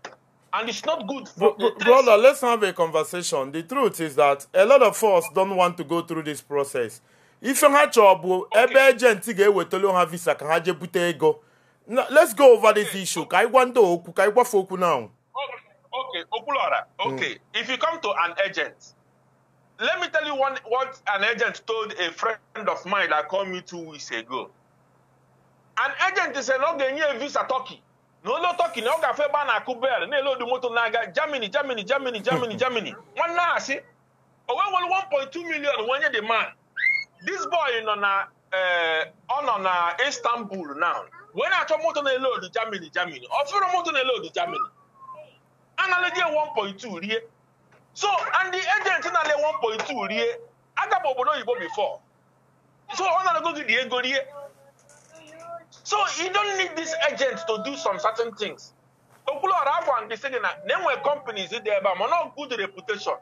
And it's not good for Bro- Brother, let's have a conversation. The truth is that a lot of us don't want to go through this process. If you have trouble, ebe agent ga-ewetara ha visa ka ha jee bute ego. let's go over okay. this issue. Kai wando oku, kai wafoku now. Okay, Okulora. Okay, mm. if you come to an agent, let me tell you one what an agent told a friend of mine that called me two weeks ago. An agent is an ogenye visa Turkey. No, no talking. no ban a bana No, no lo motor naga, Germany, Germany, Germany, Germany, Germany. One now. na si, owe 1.2 million when you demand. This boy, you know, na, uh, eh, on, on uh, Istanbul now wee na-achọ moto na-ele odu Germany Germany ọfụrụ moto na-ele odu Germany a na-eleje 1.2 rie so ndị ejenti na-ele 1.2 rie aga m obodo oyibo before so ọ na-alego gị dị ego rie so you don't need this agent to do some certain things okwuluọra agwa ndị sị gị na na-enwe companies dị ebe a mana good reputation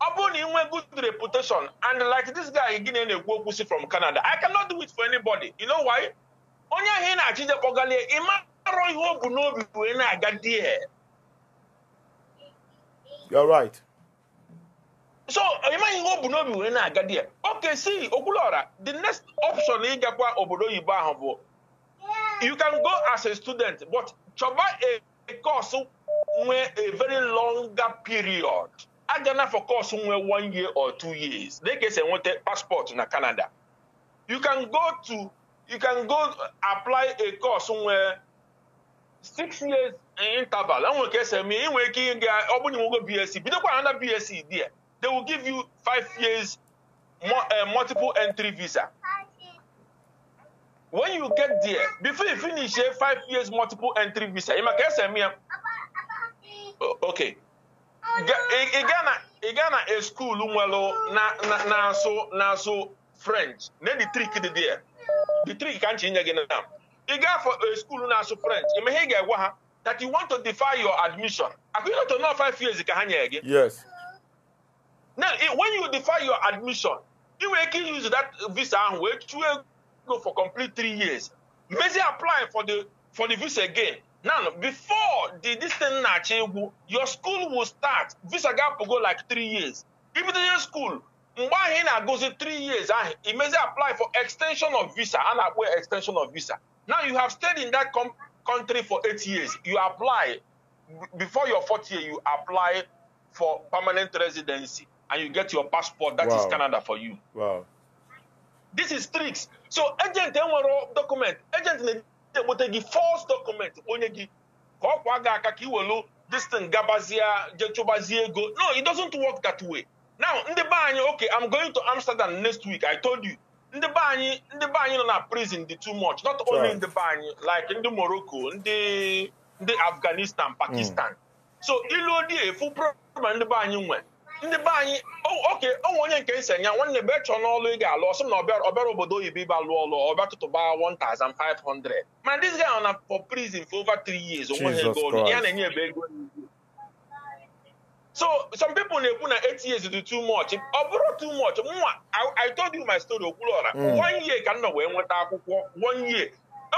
ọ bụrụ na ị good reputation and like this guy gị na-ekwu okwu si from Canada I cannot do it for anybody you know why? onye ahụ ị na-achịje kpọgalie ị marọ ihe o bu n'obi wee na-aga di ya right so ị maghị ihe o bu n'obi wee na-aga di ya oke si okwulora the next option ịgakwa obodo oyibo ahụ bụ you can go as a student but chọba a course nwee a very longer period agana for course nwee one year or two years na-ekesa enweta passport na Canada you can go to you can go apply a course somewhere six years in interval enwere ka esi eme inwe ike ịga ọ bụrụ na inwego bsc bidokwa another bsc there they will give you five years eh, multiple entry visa when you get there before you finish a five years multiple entry visa ịma ka esi eme ya okay ị gaa na ị gaa na a school nwere na na na nso na nso french na ndị trik dị there The three can't change again, now. ị gaa for a eh, school now as a friend. You may egwa ha that you want to defy your admission Are akụnye to nọ five years ka ha nyere gị yes now eh, when you defy your admission you nwere ike use that visa ahụ wee chụọ go for complete three years mezi apply for the for the visa again now before the this thing na your school will start visa ga go like three years ibido the school mgbe ahụ ị na-agụzi 3 years ahụ imezi apply for extension of visa a na-akpọ extension of visa now you have stayed in that country for 8 years you apply before your fourth year you apply for permanent residency and you get your passport that wow. is Canada for you wow. this is tricks so agent enwere document agent na-egbute gị false document onye gị ka kwa aka ka iwelu this gabazie jechụbazie ego no it doesn't work that way now in the anyị okay i'm going to amsterdam next week i told you in the anyị in the anyị nọ na prison dị too much not only in the anyị like in the morocco ndị the afghanistan hmm. pakistan so ilu odi full problem in the ndị be anyị nwere ndị be anyị oh, oke onwe onye nke nsi nya nwanne be chọọ n'ọlụ ị ga-alụ ọsọ na ọbịara obodo oyibo ịba lụọ ọlụ to buy 1500 Man, this guy na for prison for over three years Jesus Christ. So some people na-ekwu na eight years is too much ọ bụrụ too much nwa I told you my story Okwuluora hmm. one year ka m nọ wee nweta akwụkwọ one year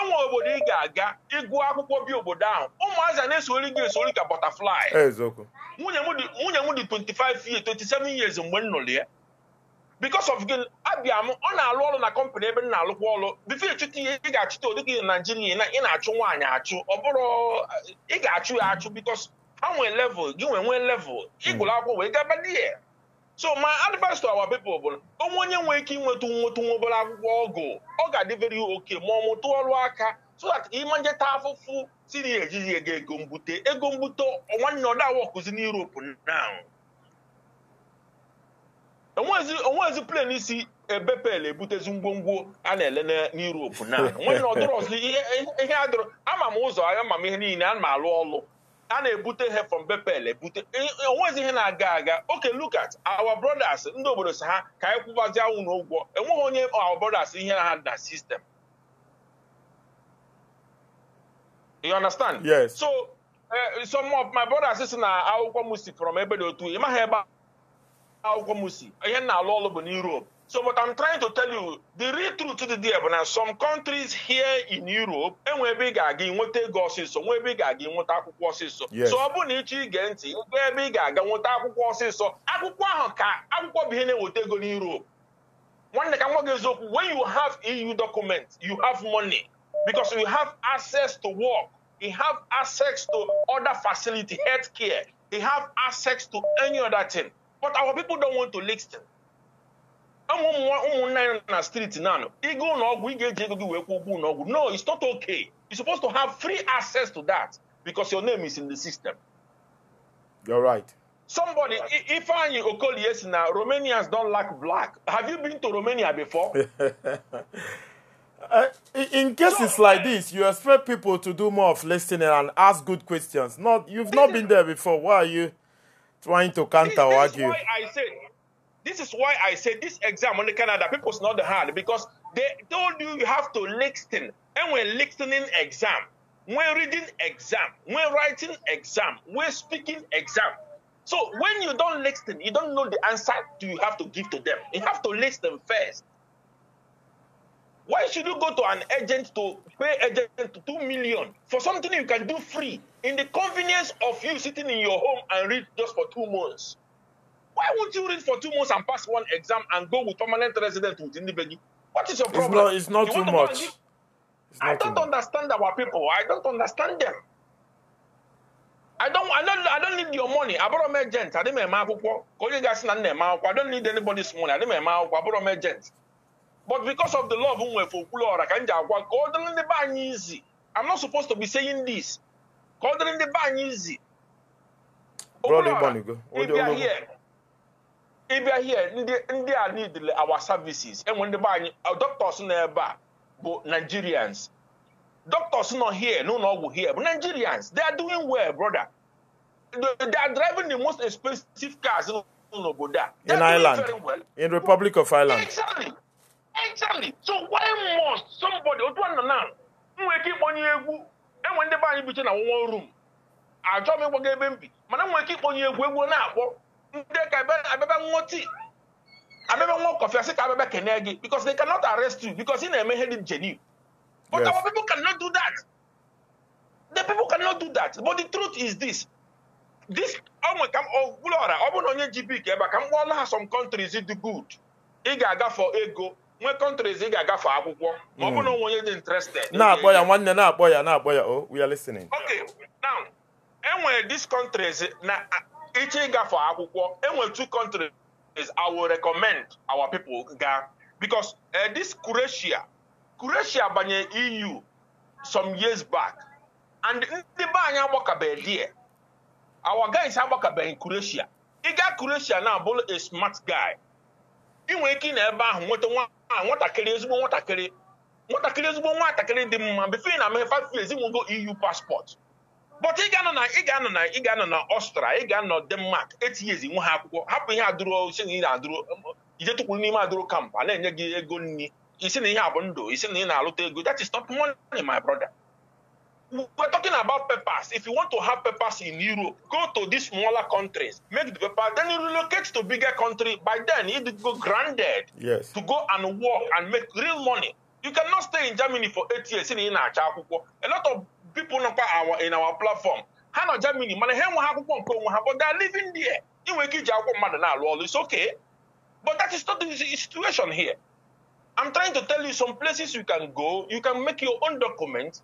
enwe obodo ị ga-aga ịgụ akwụkwọ bi obodo ahụ ụmụazị na-esori gị esori ka butterfly eh, nwunye m dị 25 years 27 years mgbe m nụrụ ya because of gị abịa m ọ na-alụ ọrụ na kọmpanị ebe m na-alụkwa ọrụ bifo ịchụta ihe ị ga-achụta ụdị gị na Naijiria ị na-achụ nwaanyị achụ ọ bụrụ ị ga-achụ ya achụ because ha nwee level gị nwee nwee level ịgụrụ akwụkwọ wee gaba di ya so my advice to our people bụ onwe onye nwee ike inweta nwetu nwa obere akwụkwọ ọgụ ọ ga-adị oke ma ọ mụtụ ọrụ aka so that ịma njeta afụfụ siri ejighị ego ego mbute ego mbute nwanne ọ dawa ọkụzi na Europe now onwezi plen isi ebepel ebutezi ngwongwo a na-ele n'Europe na nwanne ọdụrọ ọzọ ihe adịrọ ama m ụzọ ama m ihe niile ana m alụ ọlụ a na-ebute ha from Bepel ebute e, e, onwezi ihe na-aga aga oke look at our brothers ndị obodo si ha ka anyị anwụ na ụgwọ enweghị onye our brothers ihe na ha na sistem you understand yes so eh, some of my brothers si na akwụkwọ musi from ebe dị otu ị maghị ebe akwụkwọ musi ihe na-alụ ọlụ bụ na Europe So what I'm trying to tell you, the real truth to the deal, now some countries here in Europe, enwebe ị ga-aga nweta ego ọsịsọ, nwebe ị ga-aga nweta akwụkwọ ọsịsọ. So ọ bụrụ na ịchọ ige ntị, ego ebe ị ga-aga nweta akwụkwọ ọsịsọ, akwụkwọ ahụ ka akwụkwọ bụ ihe na-eweta ego in Europe. Nwanne ka nwa gị eziokwu, when you have EU documents, you have money because you have access to work, you have access to other facility, healthcare, you have access to any other thing. But our people don't want to listen. ụmụnna ya na street na anọ ịga ụlọ ọgwụ ị ga-eji ego gị wee kwụọ ụgwọ ụlọ ọgwụ no it's not okay you're supposed to have free access to that because your name is in the system you're right somebody if ifeanyi okolie si na romanians don't lack black have you been to romania before Uh, in cases like this, you expect people to do more of listening and ask good questions. Not you've not been there before. Why are you trying to counter argue? This is why I say This is why I say this exam on the Canada is not hard because they told you you have to listen. And when listening exam, when reading exam, when writing exam, when speaking exam. So when you don't listen, you don't know the answer to you have to give to them. You have to listen first. Why should you go to an agent to pay agent two million for something you can do free in the convenience of you sitting in your home and read just for two months? Why won't you read for two months and pass one exam and go with permanent resident with Indibegi? What is your problem? It's not, it's not too much. I don't understand much. our people. I don't understand them. I don't, I don't, I don't need your money. I borrow my gent. I didn't make my akwụkwọ. I don't need anybody's money. I didn't make my I borrow my gent. But because of the love nwe for Okwuluora I can't ji agwa ka ọ dịrị ndị be anyị I'm not supposed to be saying this. Ka ọ dịrị ndị be anyị izi. Okwuluora, if you are here, ịbịa here ndị ndị a need our services enwe ndị be anyị doctors na-ebe a bụ nigerians doctors nọ here n'ụlọ ọgwụ here bụ nigerians they are doing well brother they are driving the most expensive cars n'obodo a. in ireland well. in republic of ireland. exactly exactly so why must somebody otu a nọ na nwee ike ịkpọnye egwu enwe ndị be anyị biche na one room ajọ m ịgbaga ebe m bi mana nwee ike ịkpọnye egwu egwu na-akpọ ndị ka abịaba ṅụọ tii abịaba ṅụọ kọfị asị ka abịaba kene gị because they cannot arrest you because ị na-eme ihe dị genuine but yes. our people cannot do that the people cannot do that but the truth is this this ọnwe ka ọbụla ọra ọ bụ na onye ji bik ebe a ka m kpọọla ha some countries do good ị ga-agafe ego nwe countries ị ga-agafe akwụkwọ ma ọ hmm. bụ na onwe onye dị interested na-akpọ ya nwanne na-akpọ ya na-akpọ ya o oh, we are listening okay now enwere these countries na iche ịgafe akwụkwọ enwere two countries I will recommend our people ga because uh, this Croatia Croatia banye EU some years back and ndị be anyị agbakabeghị die our guys agbakabeghị Croatia ịga Croatia na abụrụ a smart guy inwe ike ị na ebe ahụ nweta nwatakịrị ezigbo nwatakịrị nwatakịrị ezigbo nwatakịrị dị mma bifo na ameghe five years EU passport but ị ga-anọ na ị ga-anọ na i years ga-anọ na ọstra ị ga-anọ denmark etinyezi nwa ha akwụkwọ hapụ ihe adụrụ isi na ị na-adụrụ ije tụkwuru n'ime adụrụ kamp na-enye gị ego nri isi na ihe a bụ ndụ isi na ị na-alụta ego that is not money my brother we're talking about papers if you want to have papers in europe go to these smaller countries make the paper then you relocate to bigger country by then you go granted. yes. to go and work and make real money you cannot stay in germany for eight years in na-acha akwụkwọ a lot of people nọkwa our in our platform How nọ Germany mana ha enweghị have nke onwe ha but they are living there You will give your akwụkwọ it's okay but that is not the situation here I'm trying to tell you some places you can go you can make your own documents,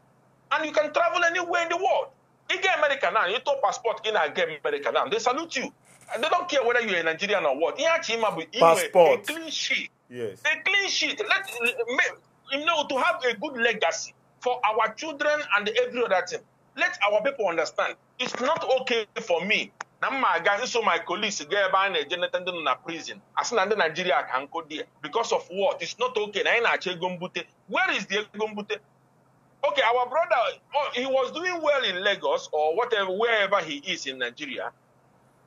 and you can travel anywhere in the world You ga America now you talk passport gị na America now they salute you they don't care whether you're a Nigerian or what Passport. a clean sheet yes. a clean sheet let, you know to have a good legacy for our children and every other thing. Let our people understand. It's not okay for me. na m ma aga my colleagues gaa ebe a na-eje nleta ndị prison As in, ndị Nigeria can go there because of what it's not okay where is the ego mbute okay our brother oh, he was doing well in Lagos or whatever wherever he is in Nigeria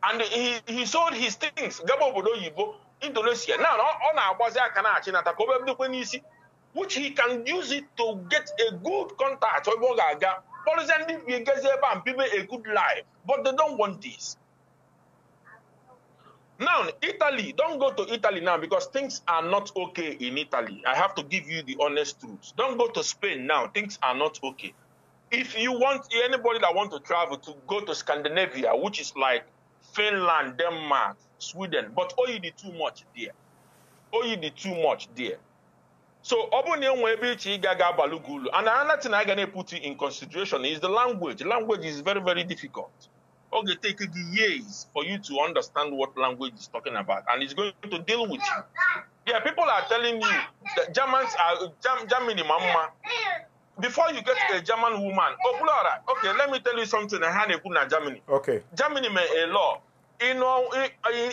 and he, he sold his things gaba obodo oyibo Indonesia now on na-agbazi aka na-achị nata ka which he can use it to get a good contact with Bogaga. Policy we get and people a good life, but they don't want this. Now, Italy, don't go to Italy now because things are not okay in Italy. I have to give you the honest truth. Don't go to Spain now. Things are not okay. If you want anybody that want to travel to go to Scandinavia, which is like Finland, Denmark, Sweden, but oh, you did too much there. Oh, you did too much there. So Obunye Webichi Gaga Balugulu. And another thing I'm gonna put in consideration is the language. Language is very, very difficult. Okay, take years for you to understand what language is talking about, and it's going to deal with you. Yeah, people are telling you that Germans are German Germany mama. Before you get a German woman, oh, okay, let me tell you something. I had a Germany. Okay. Germany made a law. You know,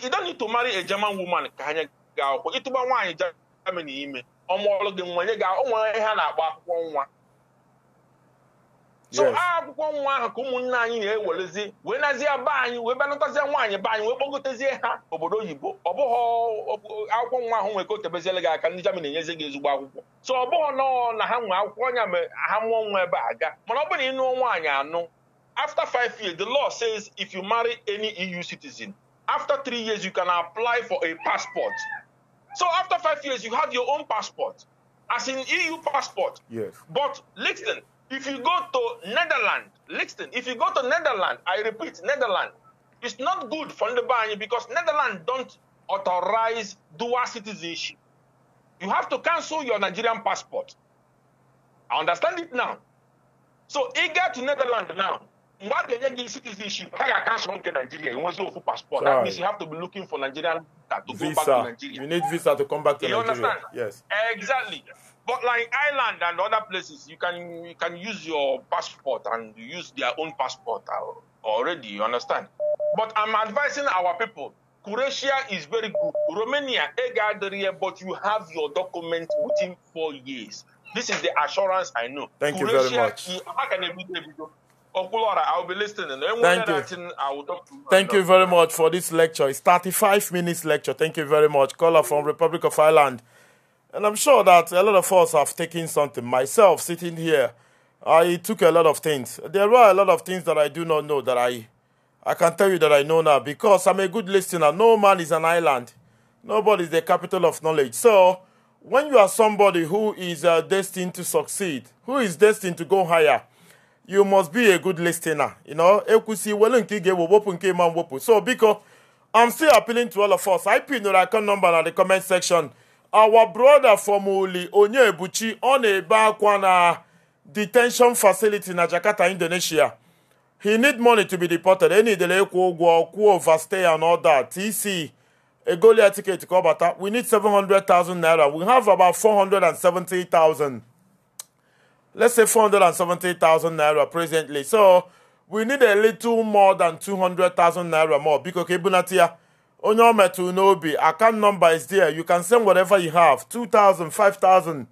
you, don't need to marry a German woman. It'll be one Germany. ọmụọlụ gị nwa gị onwere ihe a na-akpọ akwụkwọ nwa so akwụkwọ nwa ahụ ka ụmụnne anyị na-ewerezi wee nazie be anyị wee banatazie nwaanyị be anyị wee kpọgotezie ha obodo oyibo ọ akwụkwọ nwa ahụ nwere ka o gị aka ndị Germany enyezi gị ezigbo akwụkwọ so ọ bụghị nọọ na ha nwee akwụkwọ ọnya ma ha mụọ nwa ebe a ga mana ọ bụrụ na nụọ nwaanyị anụ after five years the law says if you marry any EU citizen after three years you can apply for a passport So after five years, you have your own passport, as in EU passport. Yes. But listen, if you go to Netherlands, listen, if you go to Netherlands, I repeat, Netherlands, it's not good for the Bani because Netherlands don't authorize dual citizenship. You have to cancel your Nigerian passport. I understand it now. So eager to Netherlands now. mmadụ enye gị citizenship ha ga-aka sọrọ nke Nigeria enwezi ofu passport that means you have to be looking for Nigerian to visa. go back to Nigeria. You need visa to come back to Nigeria. you Understand? Yes. Exactly. But like Ireland and other places, you can you can use your passport and use their own passport already. You understand? But I'm advising our people. Croatia is very good. Romania, Egadria, but you have your document within four years. This is the assurance I know. Thank Croatia, you very much. How can I Okulora, oh, I'll be listening. Thank you. Thank you very much for this lecture. It's 35 minutes lecture. Thank you very much. Caller from Republic of Ireland. And I'm sure that a lot of us have taken something. Myself, sitting here, I took a lot of things. There were a lot of things that I do not know that I, I can tell you that I know now because I'm a good listener. No man is an island. Nobody is the capital of knowledge. So when you are somebody who is uh, destined to succeed, who is destined to go higher, you must be a good listener you know ekwusi iwelu nke ị ga nke ịma mwepụ so biko i'm still appealing to all of us i pinụrụ account number na the comment section our brother from uli onyebuchi ọ na-ebe akwa na detention facility na jakarta indonesia he need money to be deported enidere ịkwụ ụgwọ kwuo overstay and all that tc egolia tiketi ka ọ bata we need 700,000 naira we have about 470,000 let's say 470,000 naira presently. So we need a little more than 200,000 naira more. Biko kebunatia. Onyo metu nobi. Account number is there. You can send whatever you have. 2,000, 5,000,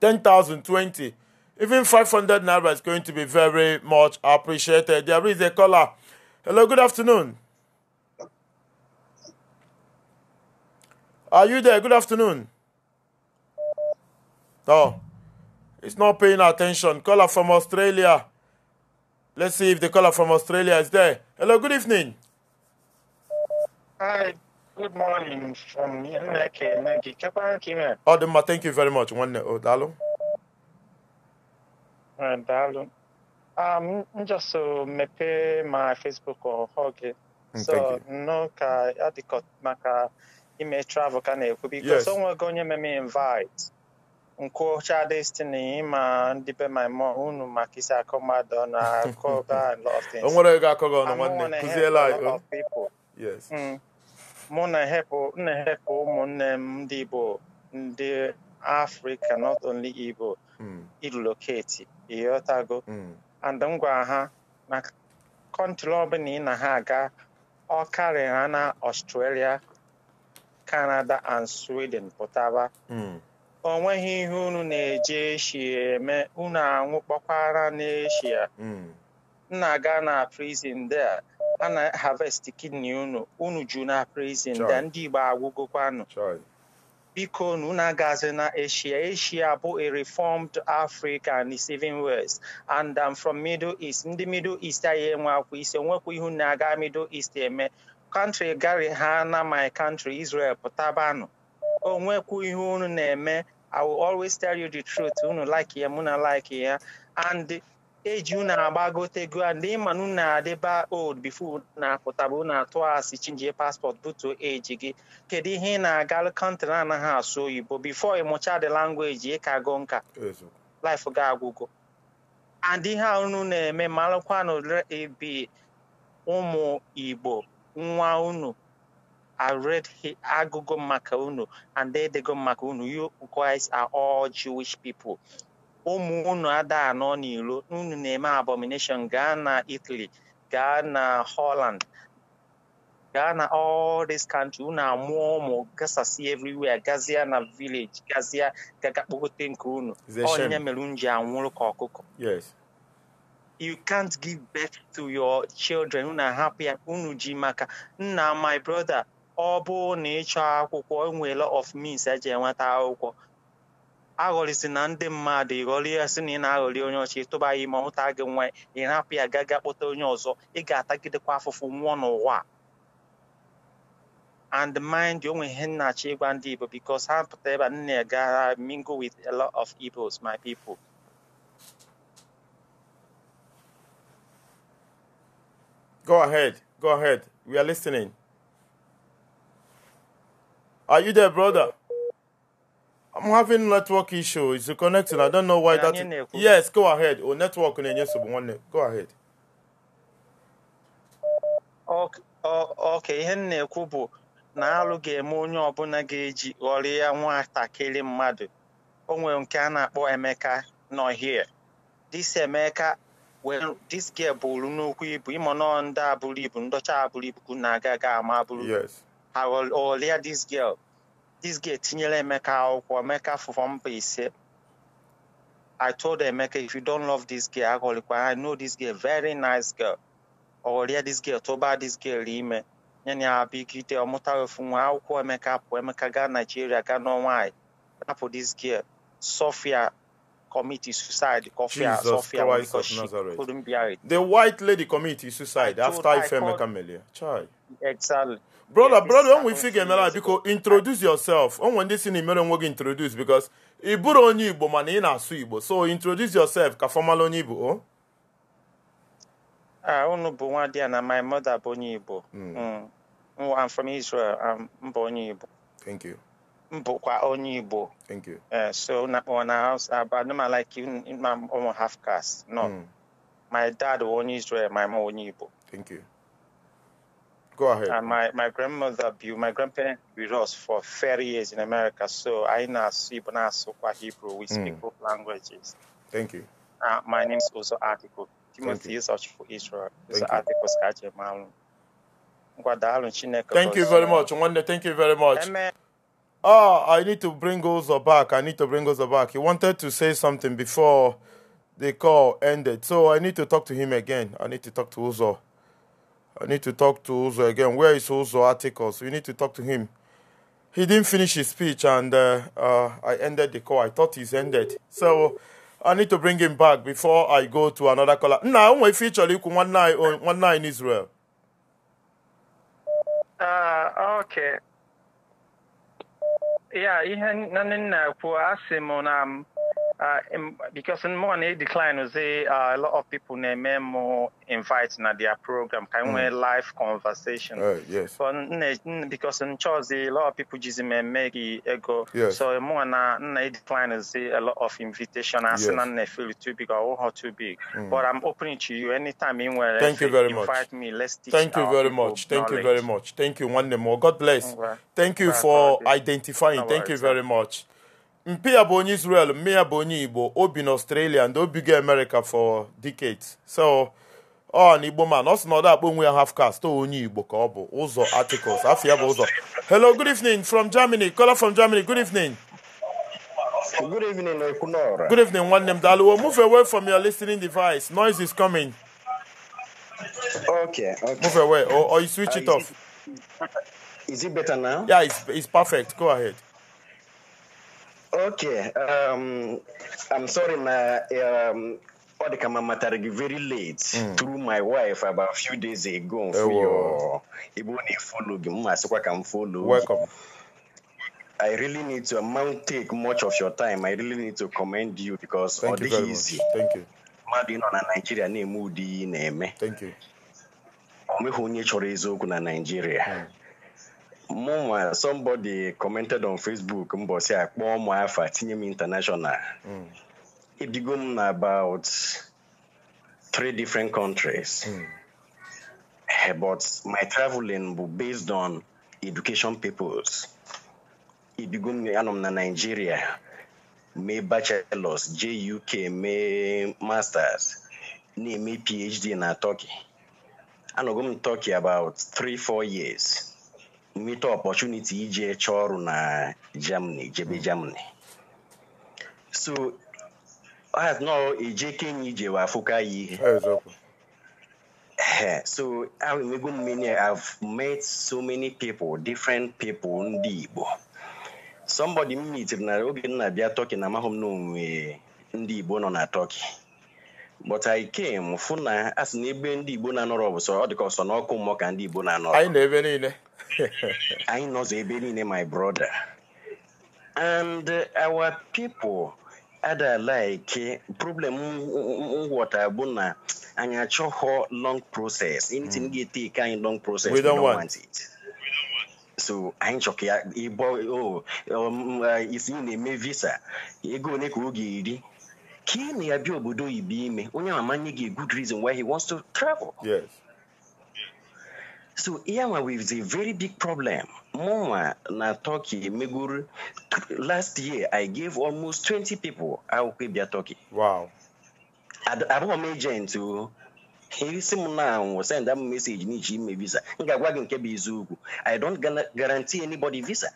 10,000, 20. Even 500 naira is going to be very much appreciated. There is a caller. Hello, good afternoon. Are you there? Good afternoon. Oh. It's not paying attention. Caller from Australia. Let's see if the caller from Australia is there. Hello, good evening. Hi, good morning from Nake, thank you very much. One oh, Dalo. Hello. Uh, Dalo. Um, just so make my Facebook or hug. Mm, so no ka adikot maka ime travel ka na-ekwu biko yes. onwego onye me invite. nkwụcha destiny ịma ndị be my mom unu maka isi akọ mmadụ ọnụ akọba and lot of things. o nwere ego akọ gị ọnụ nwanne kụziela anyị. mụ na ehepụ ụmụnne m ndị Igbo ndị Africa not only Igbo mm. iloketi ịghọtago mm. and m gwara ha na kọntrị ọbụla ị na ha aga ọ karịrị ha na Australia Canada and Sweden pụtaba mm. o nweghị ihe unu na-eji eshia eme unu anwụ anwụkpọkwara n'eshia nna hmm. ga na prison dea a na harvest kidney unu unu ju na prison there ndị Igbo agwụgokwanụ biko na unu agazi na Asia Asia bụ a reformed Africa and the even west and I'm from Middle East ndị Middle East anyị enwe akwa isi onwekwa ihu na aga Middle East eme country gari ha na my country Israel pụtabanụ onwekwu ihe unu na-eme I will always tell you the truth. Unu like ya, muna like ya. And eji unu agbagotego and ịma na unu old before na apụtaba na atụ asị chinjie passport butu eji gị kedu ihe ị na-aga kọntrị anaghị asụ oyibo before ịmụcha the language ị ka go nka life ga agwụgo and ihe unu na-eme malụkwanụ ebi e, ụmụ igbo nwa unu I read Agogo maka unu and Edego maka unu. You guys are all Jewish people. Ụmụ unu ada anọ n'ilo unu na-eme abomination gaa na Italy gaa na Holland gaa na all this country unu amụọ ụmụ gasasị everywhere gazia na village gazia gaga kpogote nke unu onye mere unu ji anwụrụ ka ọkụkọ you can't give birth to your children unu hapụ ya unu ji maka nna my brother ọ bụ na ịchọ akwụkwọ nwere of means eji enweta akwụkwọ aghọrịsị na ndị mmadụ ịghọrị ya sị na ị na-aghọrị onye ọchị tụba ya ime ọhụta gị nwa ị hapụ ya gaa gaa kpọta onye ọzọ ị ga-atagidekwa afụfụ nwụọ n'ụwa and mind you onwe ihe nnachi ịgwa ndị Igbo because ha pụta ebe nna ya gara mingle with a lot of Igbos my people go ahead go ahead we are listening Are you there, brother? I'm having network issue. It's connecting. I don't know why that. Is... Yes, go ahead. Oh, network in yes, one. Go ahead. Okay, ihe na-ekwu bụ na alụ ga-eme onye ọbụla ga-eji ghọrọ ya nwatakịrị mmadụ. O nwere nke a na-akpọ Emeka nọ here. This Emeka well this girl bụrụ n'okwu ibu ịmụ nọ ndị abụrụ ibu ndọcha abụrụ ibu na-aga ga ama abụrụ. I will olea oh, this girl. This girl tinyele Emeka or Emeka from Base. I told Emeka, if you don't love this girl, I know this girl, very nice girl. Olea this girl, toba this girl, ime. Nyanya abigite omutawe funwa akwụkwọ Emeka pụ Emeka gaa Nigeria gaa n'ọnwa rapụ this girl. Sophia committed suicide. Sophia, Sophia because she Nazareth. couldn't bear it. The white lady committed suicide I after Ifemeka Melia. Child. Exactly. brother brother onwe isi ga-emere biko introduce yourself onwe ndị si na imere onwe gị introduce because ị bụrụ onye igbo mana ị na-asụ igbo so introduce yourself ka fọmal onye igbo oh. ah, unu bụ nwa a na my mother bụ onye igbo hmm. Hmm. I'm from Israel mba onye igbo thank you mbụkwa onye igbo thank you eh, so na anụma like you ma half caste no hmm. my dad bụ onye Israel my mom onye igbo thank you Go ahead. And uh, my, my grandmother, my grandparents with us for 30 years in America. So I know Ibana Sokwa Hebrew. We hmm. speak mm. both languages. Thank you. Uh, my name is also Article. Timothy is for Israel. It's Article Skaje Malum. Thank you very much. thank you very much. Amen. Oh, I need to bring Ozo back. I need to bring Ozo back. He wanted to say something before the call ended. So I need to talk to him again. I need to talk to Ozo. I need to talk to Uzo again. Where is Uzo Articles? We need to talk to him. He didn't finish his speech and uh, uh, I ended the call. I thought he's ended. So I need to bring him back before I go to another caller. Now, we feature you one night one night in Israel. Uh, okay. Yeah, I na na uh, because in money decline, we see uh, a lot of people they more invite na their program, kind mm. of live conversation. Uh, yes. But because in Chelsea, a lot of people just make ego. Yes. So more na na decline see a lot of invitation. I yes. na feel too big or oh, too big. Mm. But I'm opening to you anytime anywhere. Thank you very much. Invite me. Let's teach Thank you very much. Thank knowledge. you very much. Thank you. One more. God bless. Thank you for identifying. Thank you very much. mpi ya bụ onye Israel mme ya bụ onye Igbo o bi n'Australia ndị obigo America for decades so ọ na Igbo man ọ sị na ọ dakpọ onwe ya half caste onye Igbo ka ọ bụ ụzọ articles afọ ya bụ ụzọ hello good evening from Germany caller from Germany good evening good evening Ekwunora good evening nwanne m daalụwo move away from your listening device noise is coming okay okay move away or, or you switch uh, it off is it, is it better now yeah it's, it's perfect go ahead Okay. Um, I'm sorry, na um, ọ dị ka m gị very late mm. through my wife about a few days ago mfe eh, your ebe ọ na-efolo gị mma asịkwa ka m folo gị I really need to, I take much of your time. I really need to commend you because Thank all you very easy. Thank you. mmadụ ịnọ na Naịjirịa na-eme ụdị na-eme. Thank you. O nweghị onye chọrọ eziokwu na mụnwa somebody commented on Facebook mbọsị a kpọọ m afa tinye international ebigo hmm. m na about three different countries mm. but my traveling bụ based on education peoples It began anọ m na Nigeria my bachelors J.U.K., my masters na PhD na Turkey anọgo m Turkey about 3-4 years nweta ọpọchuniti iji chọọ ọrụ na Germany jebe hmm. Germany so nọ eje Kenya ije wee afụka ya ihe so enwego mmiri I've met so many people different people ndị Igbo somebody m mitere na oge nna na-abịa Turkey na amaghị m na onwe ndị Igbo nọ na Turkey but I came fụ na asị na ebe ndị Igbo na-anọrọ bụ sọ ọ dịka ọsọ ọkụ mmụọ ka ndị Igbo na-anọrọ anyị na ebe niile I know Zebeline, my brother. And uh, our people ada like problem water buna and I choho long process. Anything get mm. take a long process. We don't, we don't want. want it. so i chọ ka ịbọ isi na-eme visa ego ole ka ọ ga-eri ka ị na-abịa obodo oyibo gị good reason why he wants to travel yes. so here with a very big problem mụnwa na turkey megoro last year i gave almost 20 people akwụkwọ ịbịa turkey wow abụghị m agent o isi m na anwụ send m meseji n'iji ime visa m ga-agwa gị nke bụ eziokwu i don't guarantee anybody visa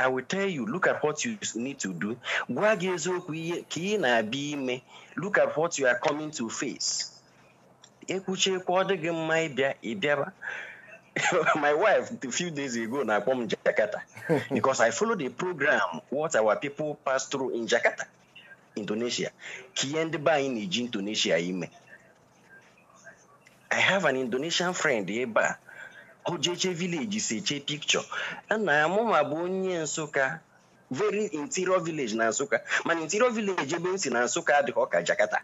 I will tell you, look at what you need to do. Gwa gị eziokwu ihe ka ị na-abịa ime, look at what you are coming to face. ekwuchi ekwu ọ dịghị mma ịbịa ịbịaba my wife a few days ago na-akpọ m Jakarta because I follow the program what our people pass through in Jakarta Indonesia ka ihe ndị be anyị na-eji Indonesia ime I have an Indonesian friend ebe a ojeche village si eche picture na ya mụma bụ onye Nsụka very interior village na Nsụka mana interior village ebe m si na Nsụka adịghị ọka Jakarta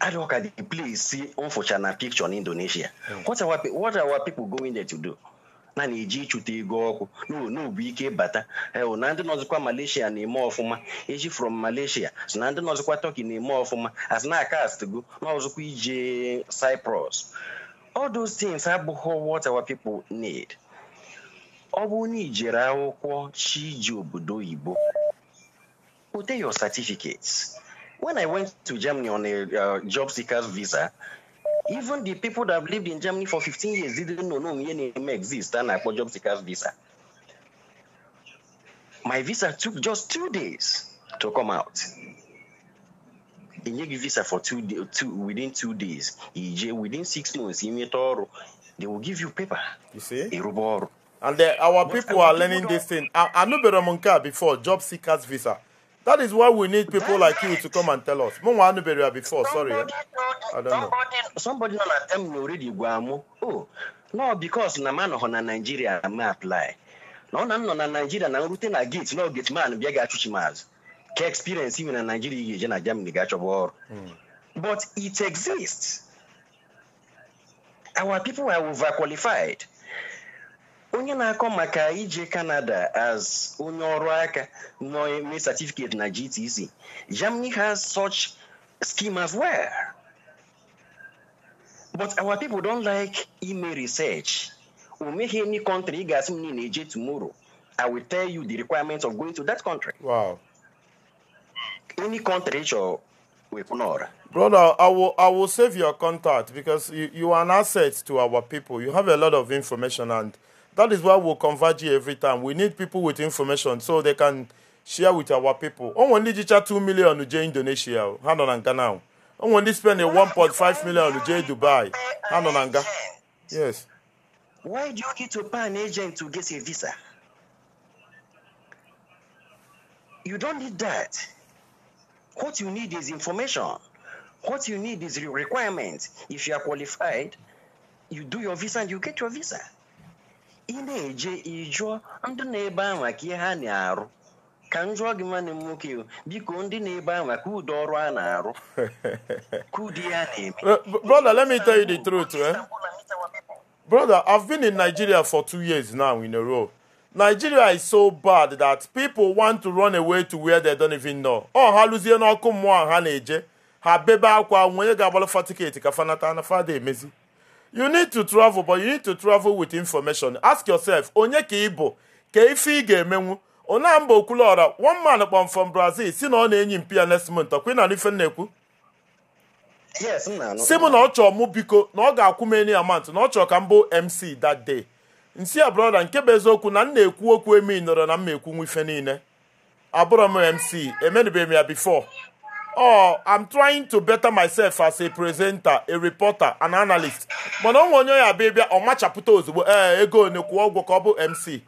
Adoka, dey play see unfortunate picture in Indonesia. What are what are our people going there to do? na na-eji ịchụta ego ọkụ n'obu ike bata eh, oh, na ndị nọzikwa Malaysia na-eme ọfụma eji from Malaysia so na ndị nọzikwa Turkey na-eme ọfụma as na na n'ọzụkwa ije Cyprus all those things abụghị what our people need ọ bụ na ijere akwụkwọ chi ji obodo oyibo pụte your certificates when I went to Germany on a uh, job seeker's visa, even the people that have lived in Germany for 15 years didn't know no name exists and I for job seeker's visa. My visa took just two days to come out. give visa for two, days, two within two days. within six months. They will give you paper. You see? And the, uh, our people are learning this thing. I, I know Beramunka before job seekers visa. That is why we need people like you to come and tell us. Mo wanu beria before, sorry. Eh? I don't know. Somebody like them already gwamu. Oh, no, because na man on Nigeria am apply. No, na no na Nigeria na rute na gate, no gate man bia ga chuchi maz. Ke experience even na Nigeria ye na Germany ga chobo. Hmm. But it exists. Our people are overqualified. onye na-akọ maka ije Canada as onye ọrụ aka na-eme certificate na GTC Germany has such scheme as well but our people don't like ime research o meghị any country ị ga-asị m na-eje tomorrow I will tell you the requirements of going to that country wow any country chọrọ Ignore. Brother, I will I will save your contact because you, you are an asset to our people. You have a lot of information and That is why we'll converge here every time. We need people with information so they can share with our people. Oh, only teacher 2 million to Indonesia. Hand on Anga now. Oh, only spend 1.5 million to Dubai. Hand on Anga. Yes. Why do you need to pay an agent to get a visa? You don't need that. What you need is information. What you need is requirements. If you are qualified, you do your visa and you get your visa ị na-eje ịjụọ ndị na-ebe anwa ka ihe ha na-arụ ka m jụọ gị nwanne m nwoke biko ndị na-ebe anwa ka ụdị ọrụ a na-arụ ka ya na-eme brother let me tell you the truth eh? brother i've been in nigeria for two years now in a row nigeria is so bad that people want to run away to where they don't even know ọ ha lụzie n'ọkụ mmụọ ha na-eje ha bebe akwa nwonye ga-agbalụ fa tiketi ka fanata na fada emezi you need to travel but you need to travel with information ask yourself onye ka ị bụ ka ife ị ga-emenwu onamba okwuluọra one man kpọm from brazil si na ọ na-enyi mpi ya next month ọkwa na ife na-ekwu si m na ọ chọọ mụ biko na ọ ga-akwụ m eni amant na ọ chọọ ka m bụ mc that day nsi a brọda nke bụ eziokwu na m na-ekwu okwu emi nọrọ na m ekwu nwa ife niile abụrọ m mc emenụbeghị m ya bifo or oh, I'm trying to better myself as a presenter, a reporter, an analyst. Mana onwe onye ya bịa ọ machapụta ozugbo eh, ego one kwụọ ụgwọ ka ọ bụ MC.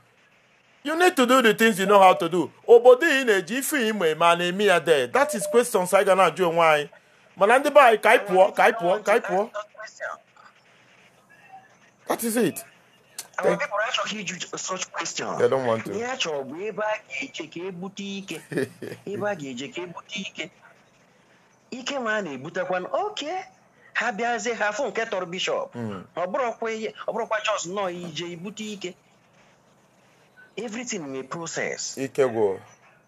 You need to do the things you know how to do. Obodo ị na-eji ife ime eme a na-eme ya de. That is questions i gana na-ajụ onwe anyị. Mana ndị be anyị ka anyị pụọ ka anyị pụọ ka anyị pụọ. That is it. Àwọn people achọghị ịjụ such question. They don't want to. Ihe bụ ebe a ga-eje ka ebute ike. Ebe a ga-eje ka ebute ike. ike ma a na-ebutekwa oke ha bịazie ha afụ nke tọrọ bishọp hmm. ọ bụrụkwa chọs nọọ ije ibute ike everything nwee process ike gwụ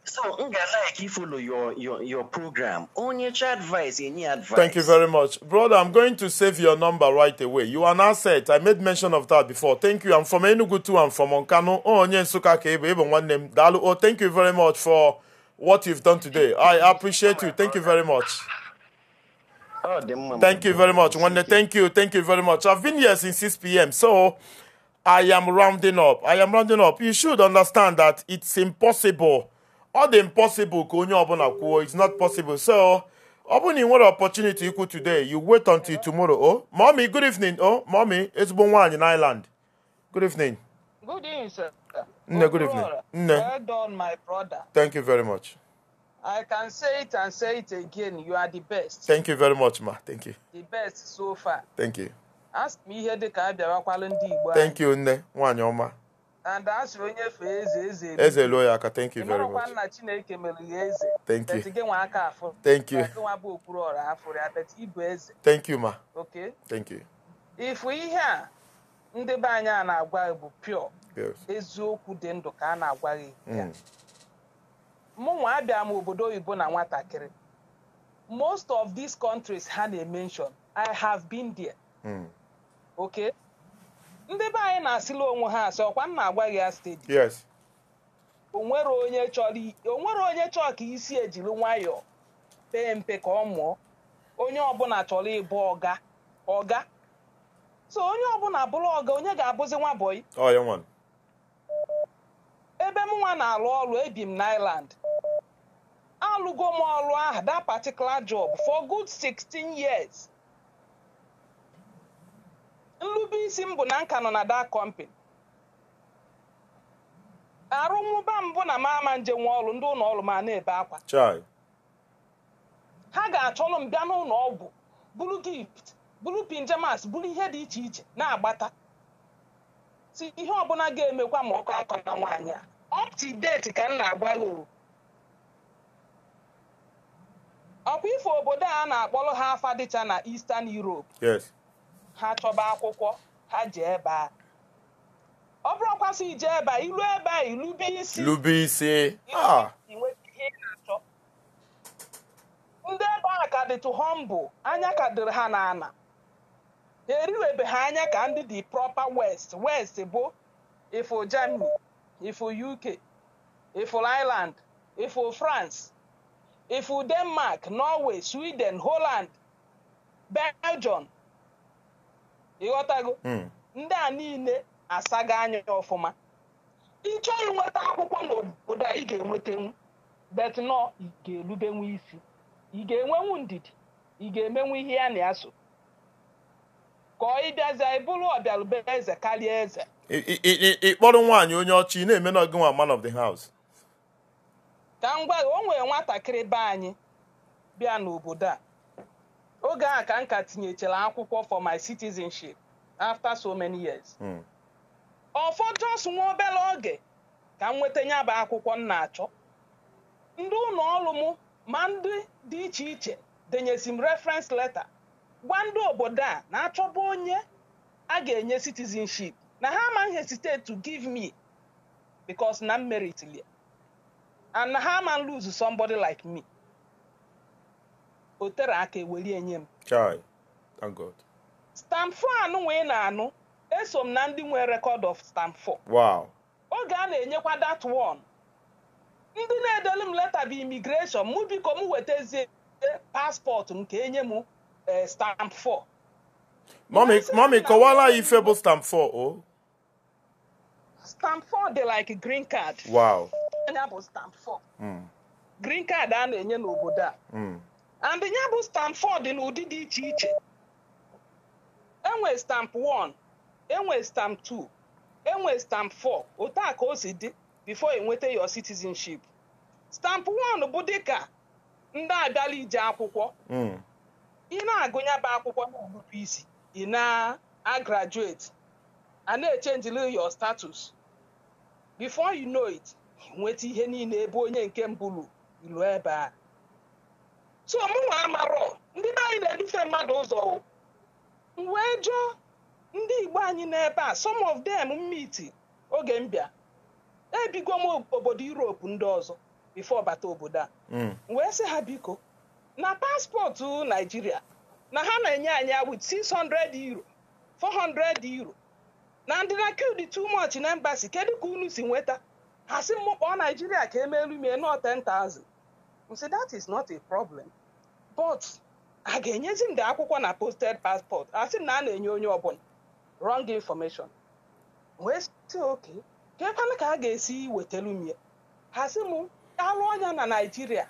So, Ngalai, follow your, your, your program. Only advice, any advice. Thank you very much. Brother, I'm going to save your number right away. You are now set. I made mention of that before. Thank you. I'm from Enugu too. I'm from Onkano. Oh, Onye Nsuka Kebe, Ebon Dalu. Oh, thank you very much for what you've done today. I appreciate you. Thank you very much. Oh, thank you very much. Wanda, thank you. Thank you very much. I've been here since 6 p.m. So I am rounding up. I am rounding up. You should understand that it's impossible. All the impossible, it's not possible. So, open in what opportunity you could today. You wait until tomorrow. Oh, mommy, good evening. Oh, mommy, it's been one in Ireland. Good evening. Good evening, sir. Oh, nne, good evening. Nne. Well done, my brother. Thank you very much. I can say it and say it again. You are the best. Thank you very much, ma. Thank you. The best so far. Thank you. Ask me ihe dika ka a bịawakwala ndị Igbo Thank you, nne. nwanyi oma. And asịrị onye eze eze elu. Eze lụọ ya aka. Thank you very much. nna Chineke mere ya eze. Thank you. Etige nwa aka afu. Thank you. Nwa bụ okpuru ora afu ya, bet ibu eze. Thank you, ma. Okay. Thank you. Ifu ihe a ndị be anyị a na-agwa bụ pio eziokwu dị ndụ ka a na-agwa gị ya mụnwa mm. abịa m obodo oyibo na nwatakịrị most of these countries ha na-emenshon I have been there mm. ok ndị be anyị na-asịla onwe ha asị ọkwa m na-agwa gị ya steji onwere onye chọrọ ka isi ejiri nwayọọ pee mpe ka ọ mụọ onye ọbụla chọrọ ịbụ ọga ọga so onye ọbụla bụrụ ọga onye ga-abụzi nwa bọị oh, ebe m nwa na-alụ ọrụ ebi m n'Ireland alụgo m ọrụ ahụ that particular job for good 16 years nlube m bụ na nka nọ na that company Arụ m bụ na m ama nje nwa ọrụ ndị ụlọ ọrụ ma na-ebe akwa ha ga-achọrọ m bịa n'ụlọ ọgwụ bụrụ gift bụrụ pinjamas bụrụ ihe dị iche iche na-agbata si ihe ọbụla ga-emekwa ma ọkụ akọ na nwaanyị a up ka m na-agwa lụrụ ọkwa ifo obodo a na-akpọrọ ha afa dịcha na Eastern Europe ha chọba akwụkwọ ha ji ebe a ọ bụrụkwasị ije ebe a ilu ebe a ilube isi lube isi ah. ihe ị na-achọ ndị ebe a ka dịtụ humble anya ka dịrị ha n'ana. ebe ha anya ka ndị dị proper west west bụ ifo germany ifo uk ifo ireland ifo france ifo denmark norway sweden holand belgium ịghọtago hmm. ndị a niile asaga anya ọfụma ịchọọ inweta akwụkwọ n'obodo ị ga-enwetanwu bet nọ ị ga elubenwu isi ị ga-enwenwu ndidi ị ga-emenwu ihe ya na ya so ka ịbịazie ịbụrụ ọbịalụbe eze karịa eze ịkpọrọ nwaanyị onye ọchị na-eme na gịnwa man of the house ka m gwa o nwere nwatakịrị be anyị bịa n'obodo a oge a ka m ka tinyechara akwụkwọ for my citizenship after so many years hmm. ọfọ jos nwa obere oge ka m nweta ya bụ akwụkwọ m na-achọ ndị ụlọ ọrụ m ma ndị dị iche iche denyezi m reference letter gwa ndị obodo a na-achọba onye a ga-enye citizenship na ha amaghị hesitate to give me because na mmeritili and na ha ama lose somebody like me o tere aka eweli enye m stamp 4 anụ wee na-anụ eso m na ndị nwee rekọd of stamp 4 wow oge a na-enyekwa dat one ndị na-edelu m leta bụ immigration mụ biko m wetazie paspọtụ m ka enye m Eh, stamp 4 mommy ife bụ stamp 4 o stamp 4 dey like green card wow bụ stamp 4 hmm. green card a na-enye n'obodo a and ya bụ hmm. stamp 4 dị n'ụdị dị iche iche enwe stamp 1 enwe stamp 2 enwe stamp 4 otu ka o si dị before enweta your citizenship stamp 1 bụ dịka ndị akwụkwọ ị na-agụnya bụ akwụkwọ na-agụpụ isi ị na-agraduate a na-echenjili your status before you know it nweta ihe niile ebe onye nke mbụ ilu ebe a so mụnwa amarọ ndị be anyị na-edufe mmadụ ụzọ wee jụọ ndị Igbo anyị n'ebe a some of them mmiti oge mbịa, bịa ebigo m obodo Europe ndị ọzọ bifo bata obodo a hmm. wee sị ha biko na paspọtụ naijiria na ha na-enye anya wit 600 euro 400 euro na ndị na kild too much na embassy kedu ka unu si nweta ha si e m kpọọ naijiria ka elu mie nọ 10,000 msi that is not a problem but a ga-enyezi ndị akwụkwọ na posted passport a sị na a na-enye onye ọbụla wrong information wee si oke keekwana ka a ga-esi wetalu mie ha sị m alụ ọnya na naijiria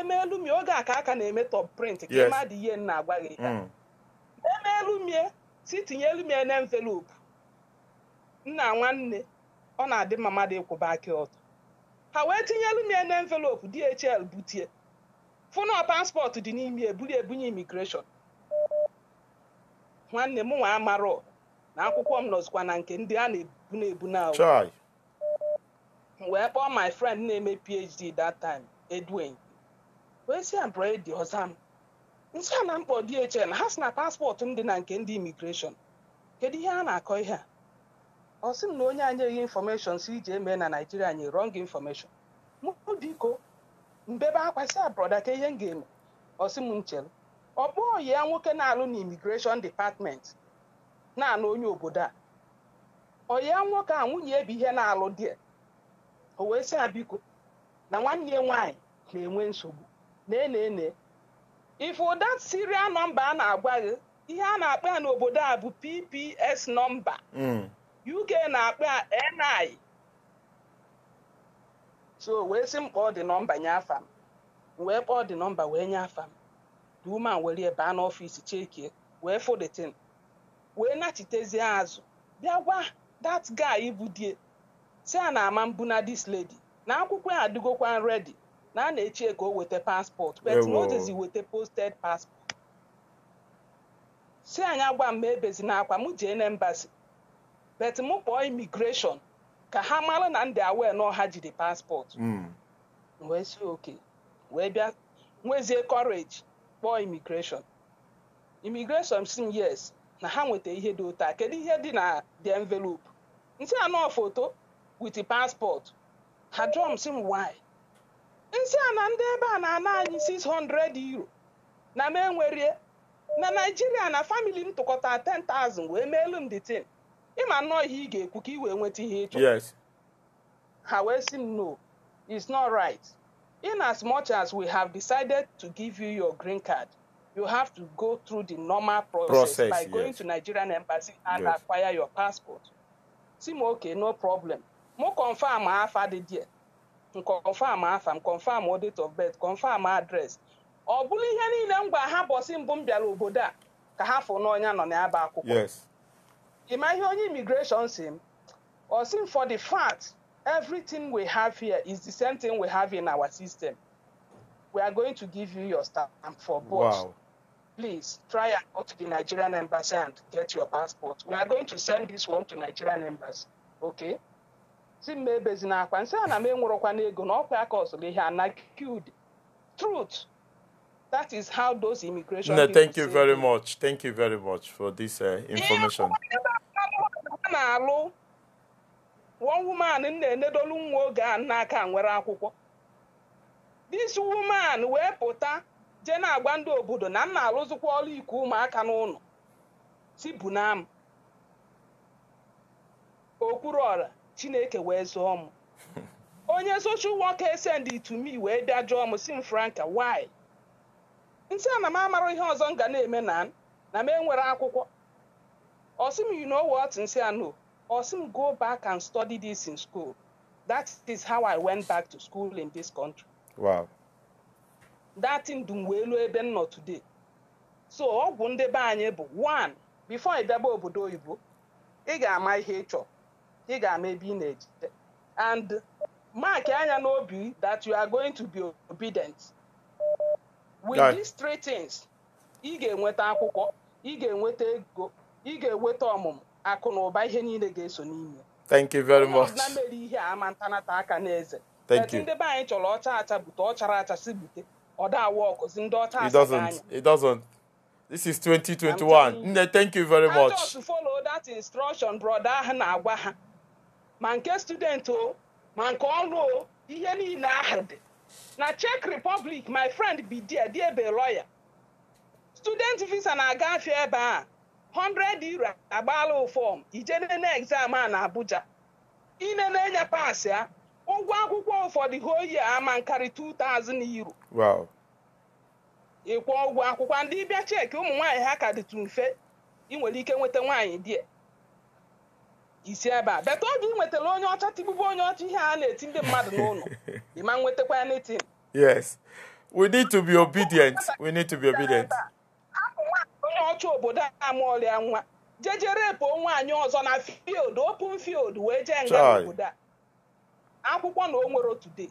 emeelumie oge a ka aka na-eme top print ka ị ihe nna agwa gị mm. emeelumie si tinye elumie na envelopu nna nwanne ọ na-adị mma mmadụ ịkwụba aka ọtọ ha wee tinye elumie na envelopu DHL butie fụnọ paspọtụ dị n'ime ebuli ebunye imigreshọn nwanne m nwa amarọ na akwụkwọ m nọzikwa na nke ndị a na-ebu na-ebu na wee kpọọ my friend na-eme PhD that time Edwin wee si ya mprọ dị ọzọ m nsị a na mkpọ DHL ha si na paspọtụ m dị na nke ndị imigreshọn kedu ihe a na-akọ ihe a ọ sị m na onye anyị eghe infọmeshọn si iji eme na naijiria anyị rọng infọmeshọn mụ biko mbebe akwa si abroda ka ihe m ga-eme ọsị sị m nchere ọ ya nwoke na-alụ na imigreshọn dipatmenti na-anụ onye obodo a ọ nwoke a nwunye ebe ihe na-alụ di o wee sị biko na nwanne nwanyị nwaanyị na-enwe nsogbu na-ene if that serial number a na-agwa gị ihe a na-akpa ya n'obodo a bụ PPS nọmba hmm. UK na-akpa NI so wee sị m kpọọ dị nọmba nye afa m wee kpọọ dị nọmba wee nye afa m the woman ebe a n'ọfịs chekie wee fụdetin wee nachitezie azụ bịa gwa that guy bụ die si a na ama mbụ na this lady na akwụkwọ ya adịgokwa ready na a na-eche ka o weta paspọtụ but weta posted paspọtụ si anyị agba m ebezi n'akwa m jee na embasi but m kpọọ imigreshọn ka ha mara na ndị awee na ọha jide paspọtụ hmm. wee si oke wee bịa nwezie kọreji kpọọ imigreshọn imigreshọn si m yes na ha nweta ihe dị otu kedu ihe dị na the envelope nsị anọ foto with paspọtụ ha drum si m why 600 euro na na na m tụkọta 10,000 wee meelu m ịma nnọọ ihe ị ga-ekwu ka ị wee nweta ihe ha wee sị m no it's not right in as much as we have decided to give you your green card you have to go through the normal process, process by yes. going to nigerian embassy and yes. acquire your passport si m okay no problem mụ confam afa ah, dị there confirm afa m confirm date of birth confirm address ọ bụrụ ihe niile m gwa ha bọsị mbụ m bịara obodo a ka ha fụ n'ọnya nọ n'aba akwụkwọ ịma ihe onye immigration si m ọ sị m for the fact everything we have here is the same thing we have in our system we are going to give you your stamp for both wow. please try and go to the nigerian embassy and get your passport we are going to send this one to nigerian embassy okay si mma na akwa nsị a na m enwerọkwana n'ego na ọkwa aka ọsụrụ ihe anakid truth that is how those immigration no, thank you very much thank you very much for this uh, information na-alụ one woman na nwa oge a n'aka nwere akwụkwọ this woman wee pụta jee na-agba ndị obodo na m na-alụzikwa ọrụ iku ụmụaka n'ụlọ si bunam okwuru ọra chineke wee zụọ m onye social worker send to wee bịa jụọ m si m franka why nsị a na m amarụ ihe ọzọ m ga na-eme na m na m enwere akwụkwọ ọsị m you know what nsị a no ọsị go back and study this in school that is how I went back to school in this country wow datin dum wee ebe m today so ọgwụ ndebe anyị bụ one before ịbịaba obodo oyibo ị ga-ama ihe ị ị ga-ama ebe ị na ejide and mark anya n'obi that you are going to be obedient with these three things ị ga-enweta akwụkwọ ị ga-enweta ego ị ga-enweta ọmụmụ akụ na ụba ihe niile ga-eso n'ime thank you very much na mere ihe a ama ntanata aka n'eze ndị be anyị chọrọ ọcha acha bute ọ acha si bute ndị ọcha anya it doesn't this is 2021 nne thank you very much I just follow that instruction brother ahụ na-agwa ha ma nke student o ma nke ọrụ o ihe niile ahụ dị na chek Republic my friend bidia dị ebe lawyer student visa na-agafe ebe a 100 euro agbaala fọm ije nene exam a na Abuja inene nya paasị a ụgwọ akwụkwọ ụfọdụ hoyi ama nkari 2000 euro ịkwụ ụgwọ akwụkwọ ndị bịa cheki ụmụ nwaanyị ha ka dịtụ mfe ị nwere ike nweta nwaanyị die isi ebe a beta oge ị nwetara onye ọcha tigbubu onye ọcha ihe a na-eti ndị mmadụ n'ụlọ ịma nwetakwa ya n'eti yes we need to be obedient we need to be obedient onye ọcha obodo a mụọla ya nwa jejere bụ nwaanyị ọzọ na field open field wee jee nga obodo a akwụkwọ na o nwere otu day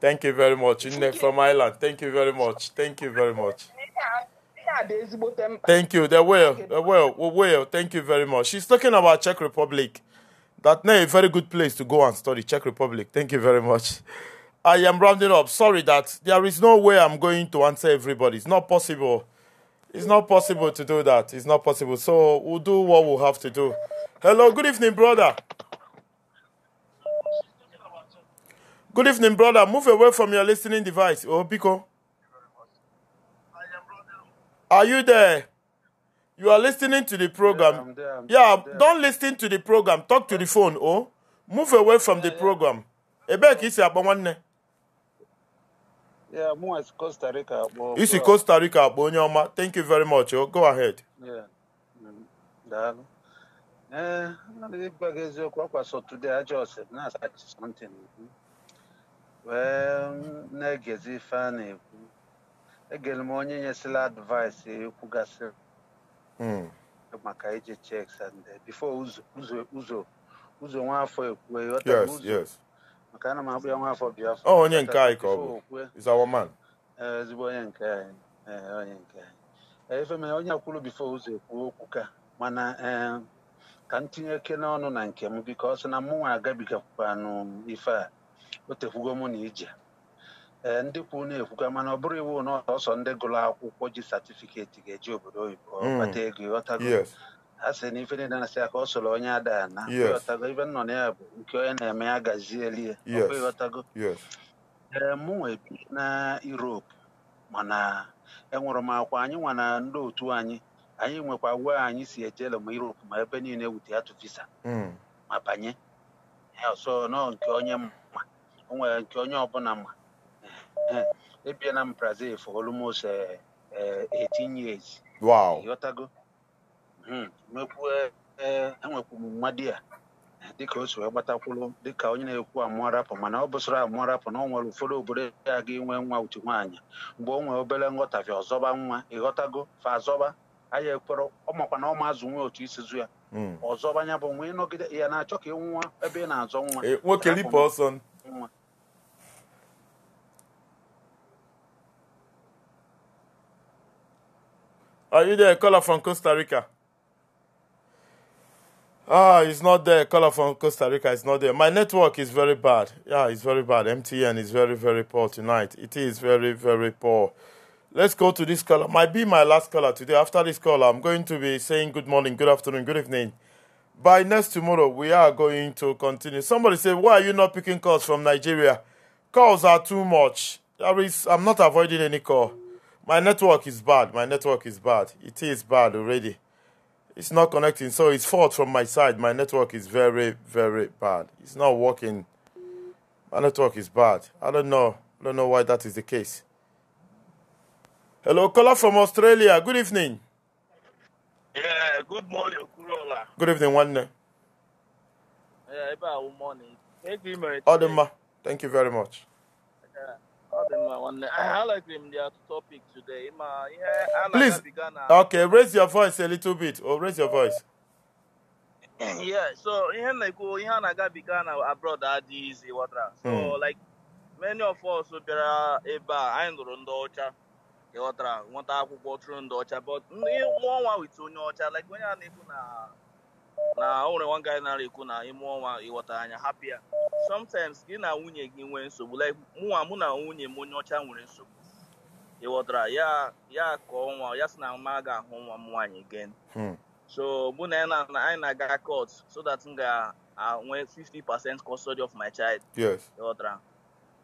Thank you very much, Nne from island Thank you very much. Thank you very much. Thank you. They will. They will. We will. Thank you very much. She's talking about Czech Republic. That a very good place to go and study Czech Republic. Thank you very much. I am rounding up. Sorry that there is no way I'm going to answer everybody. It's not possible. It's not possible to do that. It's not possible. So we'll do what we'll have to do. Hello. Good evening, brother. Good evening, brother. Move away from your listening device. Oh, Pico. Are you there? You are listening to the program. Yeah, I'm there, I'm yeah there. don't listen to the program. Talk to the phone, oh. Move away from yeah, the program. ebe ka isi akpọ Yeah, isi Costa Rica akpọ. Isi Costa Rica akpọ onye ọma. Thank you very much. Oh. Go ahead. Yeah. Daalụ. Eh, something. egere m onye nyesịla advaịsị ekwugasị hmm. maka iji checks and bifo ụzọ ụzọ nwafọ ekwue maka ana m akpụ ya nwafọ biafọ onye nke anyị ka ọ bụ ezigbo onye nke anyị onye nke anyị efe mere onye akwụrụ bifo ụzọ ekwuo okwu ka mana ka m tinye eke n'ọnụ na nke m biko ọ sị na mụnwa agabigakwukwanụ ife a o tekwugo mụ na ije ee eh, ndị kwu na-ekwuga mana ọ bụrụ iwu na ọsọ ndị gụrụ akwụkwọ ji satifiketi ga-eji obodo oyibo ọbata hmm. ego ịghọtago a sị na ife niile na-asị ya ka ọ onye ada na ịghọtago ibe nnọ na ya bụ nke onye na-eme ya gazieli ya ọkwa ịghọtago ee eh, mụ nwe na Europe mana enwere m akwa anyị nwa na ndị otu anyị anyị nwekwa uwe anyị si ejele ma Europe ma ebe niile wute atụ visa hmm. ma banye ya ọsọ nọ nke onye ma o nwere nke onye ọbụla ma Eh, ebiela m brazil for almost 18 eh, eh, years wow ịghọtago enwekwu m nwa di ya dịka o si wee gbatakwụrụ dịka onye na-ekwu amụọ mana ọ bụsara amụọ na ọ nwere ụfọdụ obodo ya ga inwe nwa utu nwaanyị mgbe o nwee obere nghọtafi ọzọba nwa ịghọtago fa azọba anyị ekpere ọ makwa na ọ ma azụ nwee otu isi zu ya hmm. ọzọba nya bụ nwa ịnọgide ya na-achọ ka nwa ebe ị na-azọ nwa nwoke ripụ ọsọ nwa Are you there? Caller from Costa Rica. Ah, it's not there. Caller from Costa Rica It's not there. My network is very bad. Yeah, it's very bad. MTN is very, very poor tonight. It is very, very poor. Let's go to this caller. Might be my last caller today. After this caller, I'm going to be saying good morning, good afternoon, good evening. By next tomorrow, we are going to continue. Somebody said, Why are you not picking calls from Nigeria? Calls are too much. There is, I'm not avoiding any call. My network is bad. My network is bad. It is bad already. It's not connecting. So it's fault from my side. My network is very, very bad. It's not working. My network is bad. I don't know. I don't know why that is the case. Hello, caller from Australia. Good evening. Yeah, good morning, Kurola. Good evening, one. Yeah, good morning. Thank you, Thank you very much. Please, okay, raise your voice a little bit, oh raise your voice. yeah, so ihe na-ekwu ihe a na-agabiga na abroad adịghị izi ghọtara so hmm. like many of us bịara ebe a anyị nụrụ ndị ọcha ghọtara nwata akwụkwọ chụrụ ndị ọcha but ndị nwa nwa wit onye ọcha like onye a na-ekwu na na o nwere one guy na-ekwu na ime ọnwa ịghọta anya hapịa sometimes gị na nwunye gị nwee nsogbu like mụnwa mụ na nwunye m onye ọcha nwere nsogbu ịghọtara ya ya ka ọnwa ya si na ma ga-ahụ nwa m nwaanyị again hmm. so mụ na anyị na-aga court so that m ga-enwe 50% custody of my child ịghọtara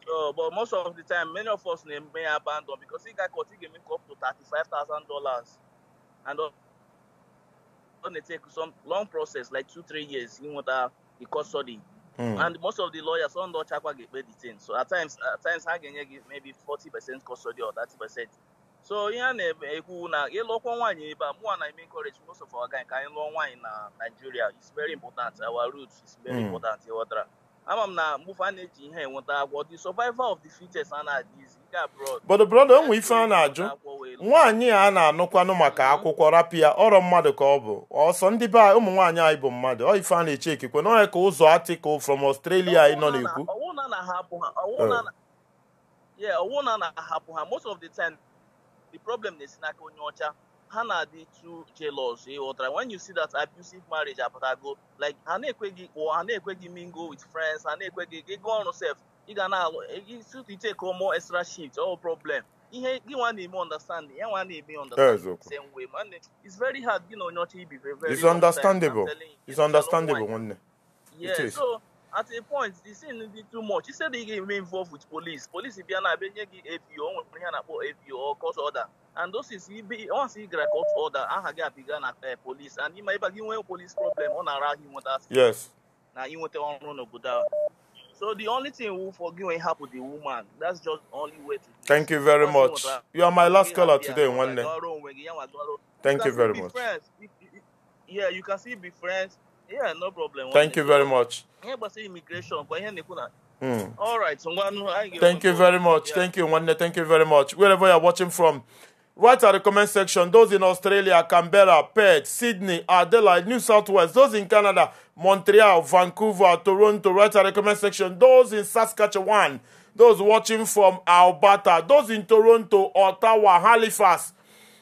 so but most of the time many of us na-eme ya abandon because ị ga court ị ga-eme up to $35,000 and going to take some long process, like two, three years, in order uh, custody. Mm. And most of the lawyers don't know Chakwa get paid the thing. So at times, at times, I give maybe 40% custody or 30%. So yeah, ekwu eh, na ịlụkwọ eh, encourage eh, most of our guy in anyị in Nigeria. It's very important. Our roots is very mm. important. ama m na mgbufe a na-eji ihe enweta agwọ the survival of the fittest a na-adịzi nke abroad but brother onwe ife a na-ajụ nwaanyị a na-anụkwanụ maka akwụkwọ rapịa ọrọ mmadụ ka ọ bụ ọsọ ndị be ụmụ nwaanyị anyị bụ mmadụ ọ ife a na-eche ekikwe n'ọya ka ụzọ atịkụ from Australia anyị nọ na-ekwu ọwụ na na-ahapụ oh. ha most of the time the problem na-esi n'aka onye ọcha Hannah too jealous when you see that abusive marriage go like I na-ekweghị or ha na mingle with friends I na-ekweghị go on myself. You can ga na-alụ take more extra shit, all oh, problem You want to na-eme understand ya nwa na-eme understand same way man it's very hard you know, not to be very it's understandable it's understandable nwanne yeah so at a point the scene be too much he said he get involved with police police bịa na abịa nye gị APO o nwere ihe a na-akpọ APO or court order and those is once he gara court order aha gị apịga na police and ịma ịba gị nwee police problem ọ na-ara ahụ inweta yes na inweta ọrụ n'obodo ahụ so the only thing we forgive and help the woman that's just only way to thank you very much you are my last caller today nwanne thank you very much yeah you can still be friends yeah no problem thank you very much ihe gbasara immigration kwa ihe na-ekwu Mm. All right, so one, thank you very much. Yeah. Thank you, Wanne. Thank you very much. Wherever you're watching from, write at the comment section, those in Australia, Canberra, Perth, Sydney, Adelaide, New South Wales, those in Canada, Montreal, Vancouver, Toronto, Write at the comment section, those in Saskatchewan, those watching from Alberta, those in Toronto, Ottawa, Halifax,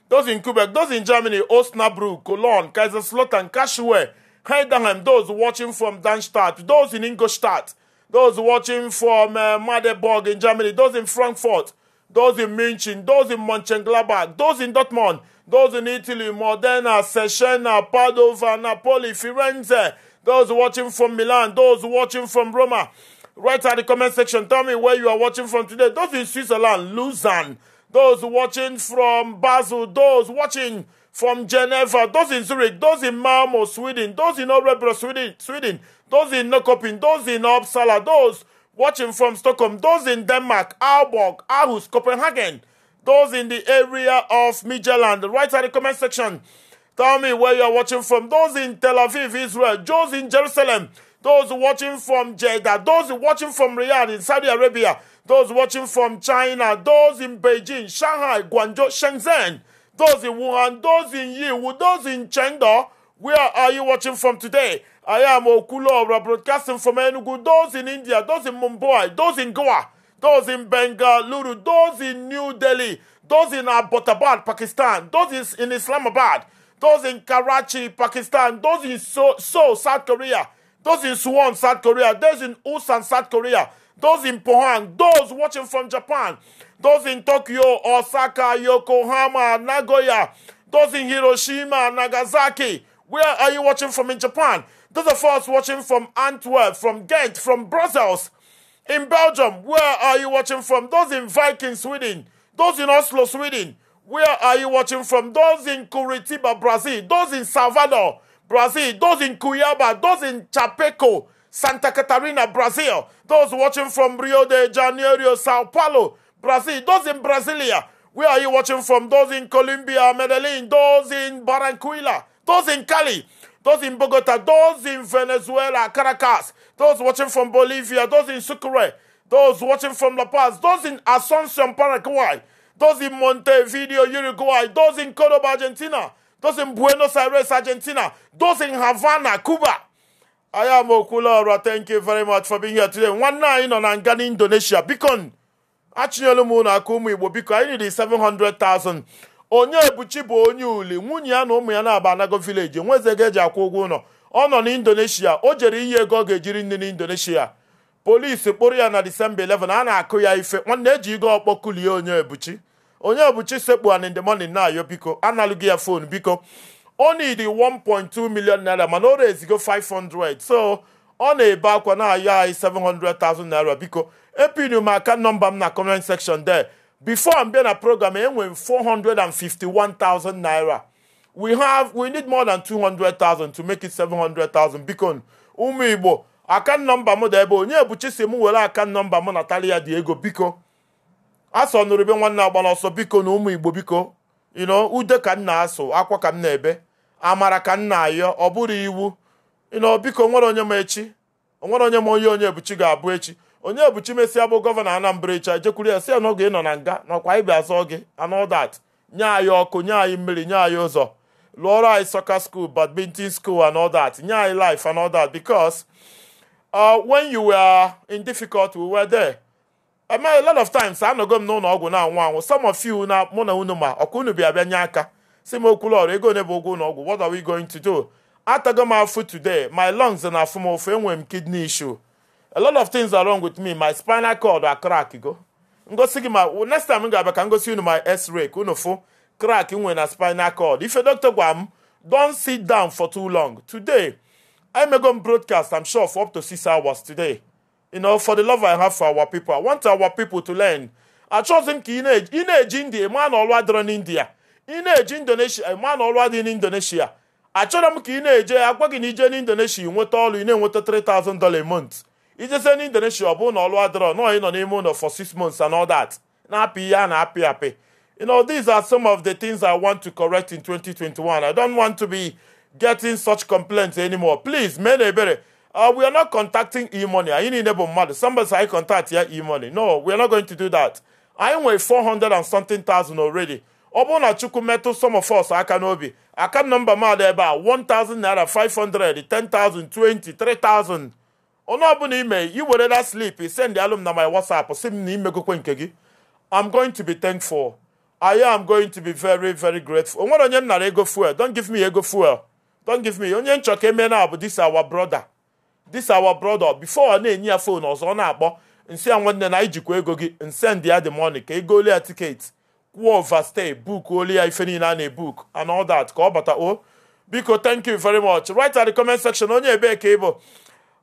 those in Quebec, those in Germany, Osnabrück, Cologne, Kaiserslautern, Kashue, Heidenheim, those watching from Darmstadt, those in Ingolstadt, those watching from uh, in Germany, those in Frankfurt, those in Munich, those in Mönchengladbach, those in Dortmund, those in Italy, Modena, Cesena, Padova, Napoli, Firenze, those watching from Milan, those watching from Roma. Write at the comment section, tell me where you are watching from today. Those in Switzerland, Lausanne, those watching from Basel, those watching from Geneva, those in Zurich, those in Malmo, Sweden, those in Örebro, Sweden, Sweden, those in Nokoping, those in Uppsala, those watching from Stockholm, those in Denmark, Aalborg, Aarhus, Copenhagen, those in the area of Midtjylland, write at the comment section. Tell me where you're watching from. Those in Tel Aviv, Israel, those in Jerusalem, those watching from Jeddah, those watching from Riyadh in Saudi Arabia, those watching from China, those in Beijing, Shanghai, Guangzhou, Shenzhen, those in Wuhan, those in Yiwu, those in Chengdu. Where are you watching from today? I am Okulobra broadcasting from Enugu, those in India, those in Mumbai, those in Goa, those in Bengaluru, those in New Delhi, those in Abbottabad, Pakistan, those in Islamabad, those in Karachi, Pakistan, those in Seoul, South Korea, those in Suwon, South Korea, those in Ulsan, South Korea, those in Pohang, those watching from Japan, those in Tokyo, Osaka, Yokohama, Nagoya, those in Hiroshima, Nagasaki. Where are you watching from in Japan? Those of us watching from Antwerp, from Ghent, from Brussels, in Belgium, where are you watching from? Those in Viking, Sweden, those in Oslo, Sweden, where are you watching from? Those in Curitiba, Brazil, those in Salvador, Brazil, those in Cuiabá, those in Chapeco, Santa Catarina, Brazil, those watching from Rio de Janeiro, Sao Paulo, Brazil, those in Brasilia. Where are you watching from? Those in Colombia, Medellin, those in Barranquilla, those in Cali, those in Bogota, those in Venezuela, Caracas, those watching from Bolivia, those in Sucre, those watching from La Paz, those in Asuncion, Paraguay, those in Montevideo, Uruguay, those in Cordoba, Argentina, those in Buenos Aires, Argentina, those in Havana, Cuba. I am Okulora. Thank you very much for being here today. One nine on Angani, Indonesia. Beacon. achịnyelu m ụlọ aka ụmụ igbo biko anyị riri 700,000 onye ebuchi bụ onye uli nwunye ya na ụmụ ya na-aba anago vileji nweze ga eji akwụ ụgwọ ụlọ ọ nọ na indonesia o jere iyi ego ọ ga-ejiri nne na indonesia polisi kpụrụ ya na disemba 11 a na-akụ ya ife nwanne eji ego ọkpọ kulie onye ebuchi onye ebuchi sekpu an in na biko analụghị ya fon biko ọ nidi 1.2 million naira mana o rezigo 500 so ọ na-ebe akwa na-ayọ anyị 700,000 naira biko epinu m aka nọmba m na comment section there before m bịa na program enwe m 451,000 naira we have we need more than 200,000 to make it 700,000 biko ụmụ igbo aka nọmba m dị ebe onye bụ chisi m were aka nọmba m na talia dị ego biko asọ nụrụ be nwanne agbara ọsọ biko na ụmụ igbo biko ino ude ka m na-asụ akwa ka m na-ebe amara ka m na-ayọ ọ bụrụ iwu ị nọ biko nwere onye m echi onwere onye m onye onye ebuchi ga-abụ echi onye ebuchi mesịa bụ gọvanọ anambra echi jekwuru ya si ya n'oge nọ na nga nakwa anyị bịa zọọ gị anodat nye anyị ọkụ nye anyị mmiri nye anyị ụzọ lụọrọ anyị soccer school badminton school anodat nye anyị life anodat because uh, when you were in difficult were there a lot of times anọgo m n'ụlọ ọgwụ na-anwụ anwụ some of you na mụ na unu ma ọkwa unu bịa bịa nye aka si m okwu ọrụ ego one bụ ụgwọ ụlọ ọgwụ what are we going to do Atago my foot today, my lungs and afumo when kidney issue. A lot of things are wrong with me. My spinal cord are crack go. Ngo sigi ma next time nga back go see you my x-ray kuno fo crack when a spinal cord. If a doctor gwam, don't sit down for too long. Today, I going to broadcast, I'm sure, for up to six hours today. You know, for the love I have for our people. I want our people to learn. I chose him in age, in age India, a man already in India. In age Indonesia, a man already in Indonesia achọrọ m ka ị na-eje agwaghị na ije n'indonesia nweta ọrụ ị na-enweta 3000 dola a month ijezie n'indonesia ọ bụrụ na ọlụ adịrọ nọọ ị nọ n'ime ụlọ for 6 months and all that na-apị ihe a na-apị apị You know, these are some of the things I want to correct in 2021. I don't want to be getting such complaints anymore. Please, men uh, we are not contacting e-money. I need enable mother. Somebody say I contact here yeah, e-money. No, we are not going to do that. I am with 400 and something thousand already. ọ bụrụ na chukwu metụ some of us aka n'obi akant nọmba mmadụ ebe a 1000 naira 500 10000 20 3000 onye ọbụla ime i were that slip send alum na my whatsapp si m na imegokwe nke gị i'm going to be thankful i am going to be very very grateful o nwere onye m nara ego fuel don give me ego fuel Don give me onye nchọ ka eme na bụ this our brother this our brother before ọ na-enye ya fon ọzọ ọ na-akpọ nsi ya nwanne na ijikwa ego gị nsend ya the money ka ego ole ya tiketi kwuo overstay book olu ya ife niile a na-ebook and ka ọ bata o biko thank you very much write at the comment section onye ebee ka ịbụ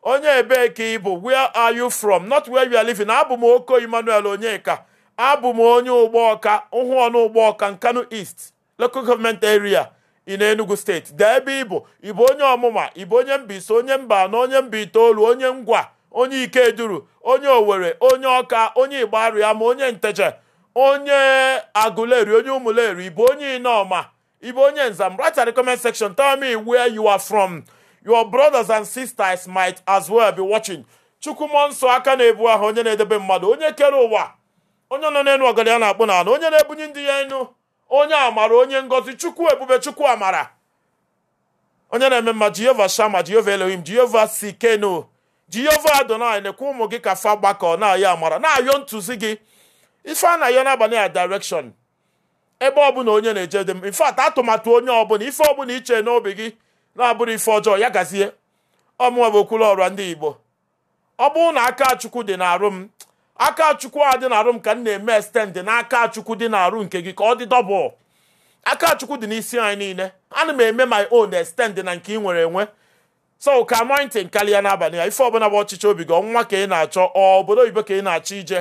onye ebee ka ịbụ where are you from not where you are living abụ m oko emmanuel onyeka abụ m onye ụgbọọka ụhụ ọnụ ụgbọọka nkanu east local government area in enugu state dee ebe ịbụ ịbụ onye ọmụma ịbụ onye mbaise onye mba na onye mba itoolu onye ngwa onye ikeduru onye owere onye ọka onye igbaru ya ma onye nteje onye aguleri onye umuleri ibu onye inoma ibu onye nzam write at the comment section tell me where you are from your brothers and sisters might as well be watching chukwumọ nsọ aka na-ebu ahụ onye na-edebe mmadụ onye kere ụwa onye nọ n'elu ọgada ya na-akpụ n'ala onye na-ebunye ndị ya enu onye amara onye ngozi chukwu ebube chukwu amara onye na-eme mma jehova shama jehova elohim jehova Sikenu jehova adonai na ụmụ gị ka fa gbakọ na-ayọ amara na-ayọ ntụzi gị ife a na-ayọ a direction ebe ọbụla onye na-eje dị m infat atụmatụ onye ọbụla ife ọbụla iche n'obi gị na-abụrụ ife ọjọọ ya gazie ọmụwa bụ okwulu ọrụ ndị igbo ọ bụrụ na aka chukwu dị n'arụ m aka chukwu a dị n'arụ m ka m na-eme extend n'aka chukwu dị n'arụ nke gị ka ọ dị dọbụl aka chukwu dị n'isi anyị niile ana m eme my own extend na nke ị nwere enwe so ka anointing karịa n'abalị a ife ọbụla bụ ọchịchị obi gị ọnwa ka ị na-achọ ọ obodo oyibo ka ị na-achọ ije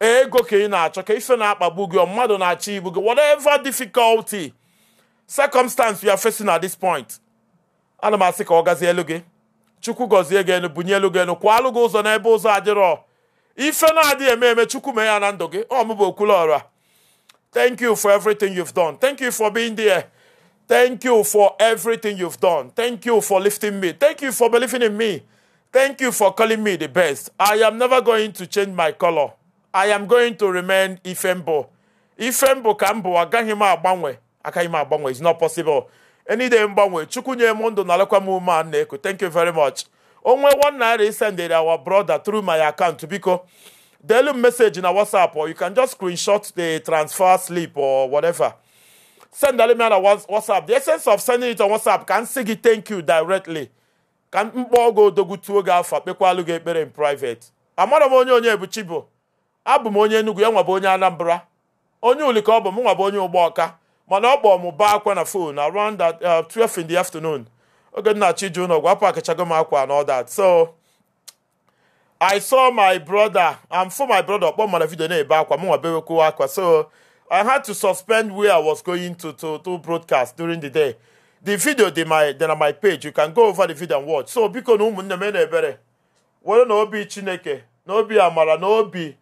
ego ka ị na-achọ ka ife na-akpagbu gị mmadụ na-achọ ibu gị whatever difficulty circumstance you are facing at this point ana m asị ka ọ gazie elu gị chukwu gọzie gị enu bunye elu gị enu kwa alụ gị ụzọ n'ebe ụzọ adịrọ ife na-adịghị eme eme chukwu mee ya na ndụ gị ọ mụbụ okwulu ọra thank you for everything you've done thank you for being there thank you for everything you've done thank you for lifting me thank you for believing in me thank you for calling me the best i am never going to change my color I am going to remain Ifembo. Ifembo ka mbụ agaghị m agbanwe agaghị m agbanwe it's not possible. Enide mgbanwe Chukwu nye m ndụ na alakwa m ume a na-eku thank you very much. Onwe one naira is sended our brother through my account biko. Delu message na WhatsApp or you can just screenshot the transfer slip or whatever. Send me on WhatsApp. The essence of sending it on WhatsApp ka m gị thank you directly. ka mkpọ oge odogwu tuo gị afọ kpekwalu gị ekpere in private. Amara m onye onye bụ abụ m onye Enugu ya nwabụ onye Anambra onye ulike ọ bụ m nwabụ onye ụgbọ ọka mana ọ kpọọ m baa akwa na fon around 12 uh, in the afternoon oge m na-achọ ije ụlọ gwa pakachago m akwa and all so I saw my brother and for my brother ọkpọ mara vidio na-ebe akwa m nwabewekwu akwa so I had to suspend where I was going to to to broadcast during the day the video dị my dị na my page you can go over the video and watch so biko na ụmụnne m na-ebere were na obi Chineke na obi amara na obi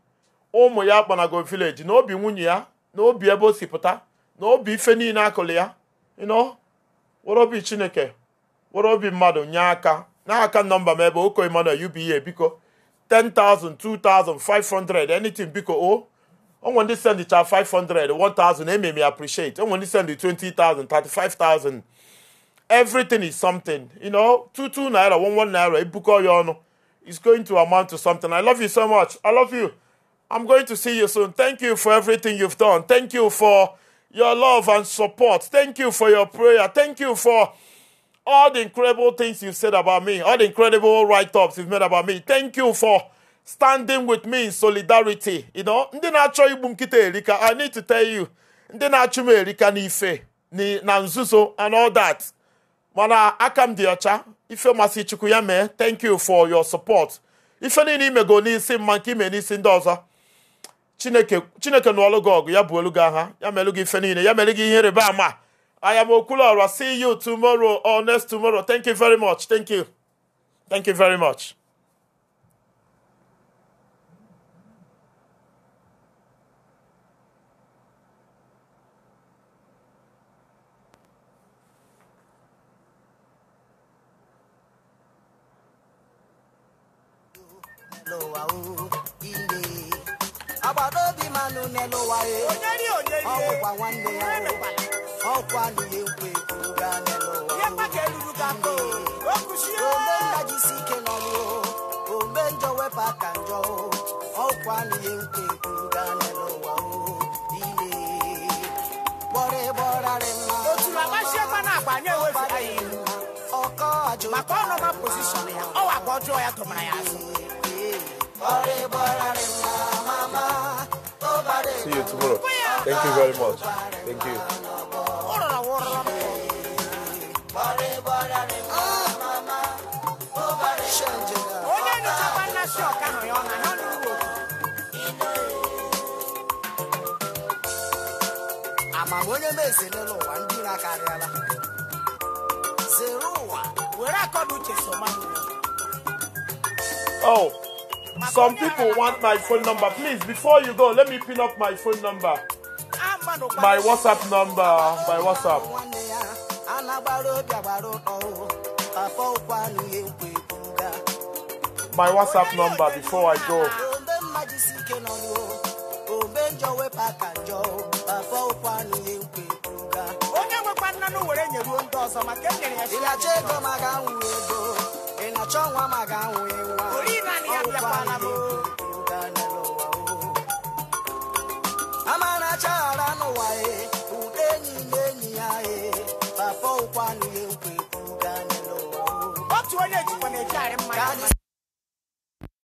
ụmụ ya kpanago vileji na obi nwunye ya na obi ebe o si pụta na obi ife niile akụlụ ya ịnọ were obi chineke were obi mmadụ nye aka n'aka nọmba m ebe oko Emmanuel UBA biko 10,000 2,000 500 anything biko o onwe ndị sendicha 500 1000 ememe appreciate onwe ndị sendi 20,000 35,000 everything is something you know 22 naira 11 naira ibukọ e ya ọnụ is going to amount to something i love you so much i love you I'm going to see you soon. Thank you for everything you've done. Thank you for your love and support. Thank you for your prayer. Thank you for all the incredible things you said about me, all the incredible write ups you've made about me. Thank you for standing with me in solidarity. You know, ndị na-achọ igbu erika, I need to tell you, ndị na-achụ m erika n'ife na nzuzo and all that. Mana aka m dị ọcha, ife masị Chukwu thank you for your support. Ife ni imego n'isi mma nke ime n'isi ndị ọzọ. chineke chineke na gị ọgụ ya bụ olu gị agha ya melụ gị ife niile ya m'elu gị ihe rịba ama m am Okulora. See you tomorrow or next tomorrow. Thank you very much. Thank you. Thank you very much. onye obi manụ n'elụwa ọwụkwa nwanne ya ọkwa nile nkwe ga ome ndajisi ike n'ọrụ ome njọ wepụ aka njọ ọkwa nile nkwe ga n'elụwa ile gbọrọ gbọrarị mma otu agbasiekwa na-agba anya ewefu ya ihu maka ọnọma posishọn ya ọwa ka ọjọọ ya tụmara ya azụ See you tomorrow. Thank you very much. Thank you. Oh. Some people want my phone number. Please, before you go, let me pin up my phone number. My WhatsApp number. My WhatsApp. My WhatsApp number before I go. onye nwekwa nna were nyere ndị ọzọ maka enyere ya ịlacha ego ma ga-anwụ ego na chọnwa ma ga-anwụ nwa amara achaghara n'ụwa e ude enyi na enyi ya e papa ụkwanụ ya ekwe otu onye jikwa na-ejigharị mmadụ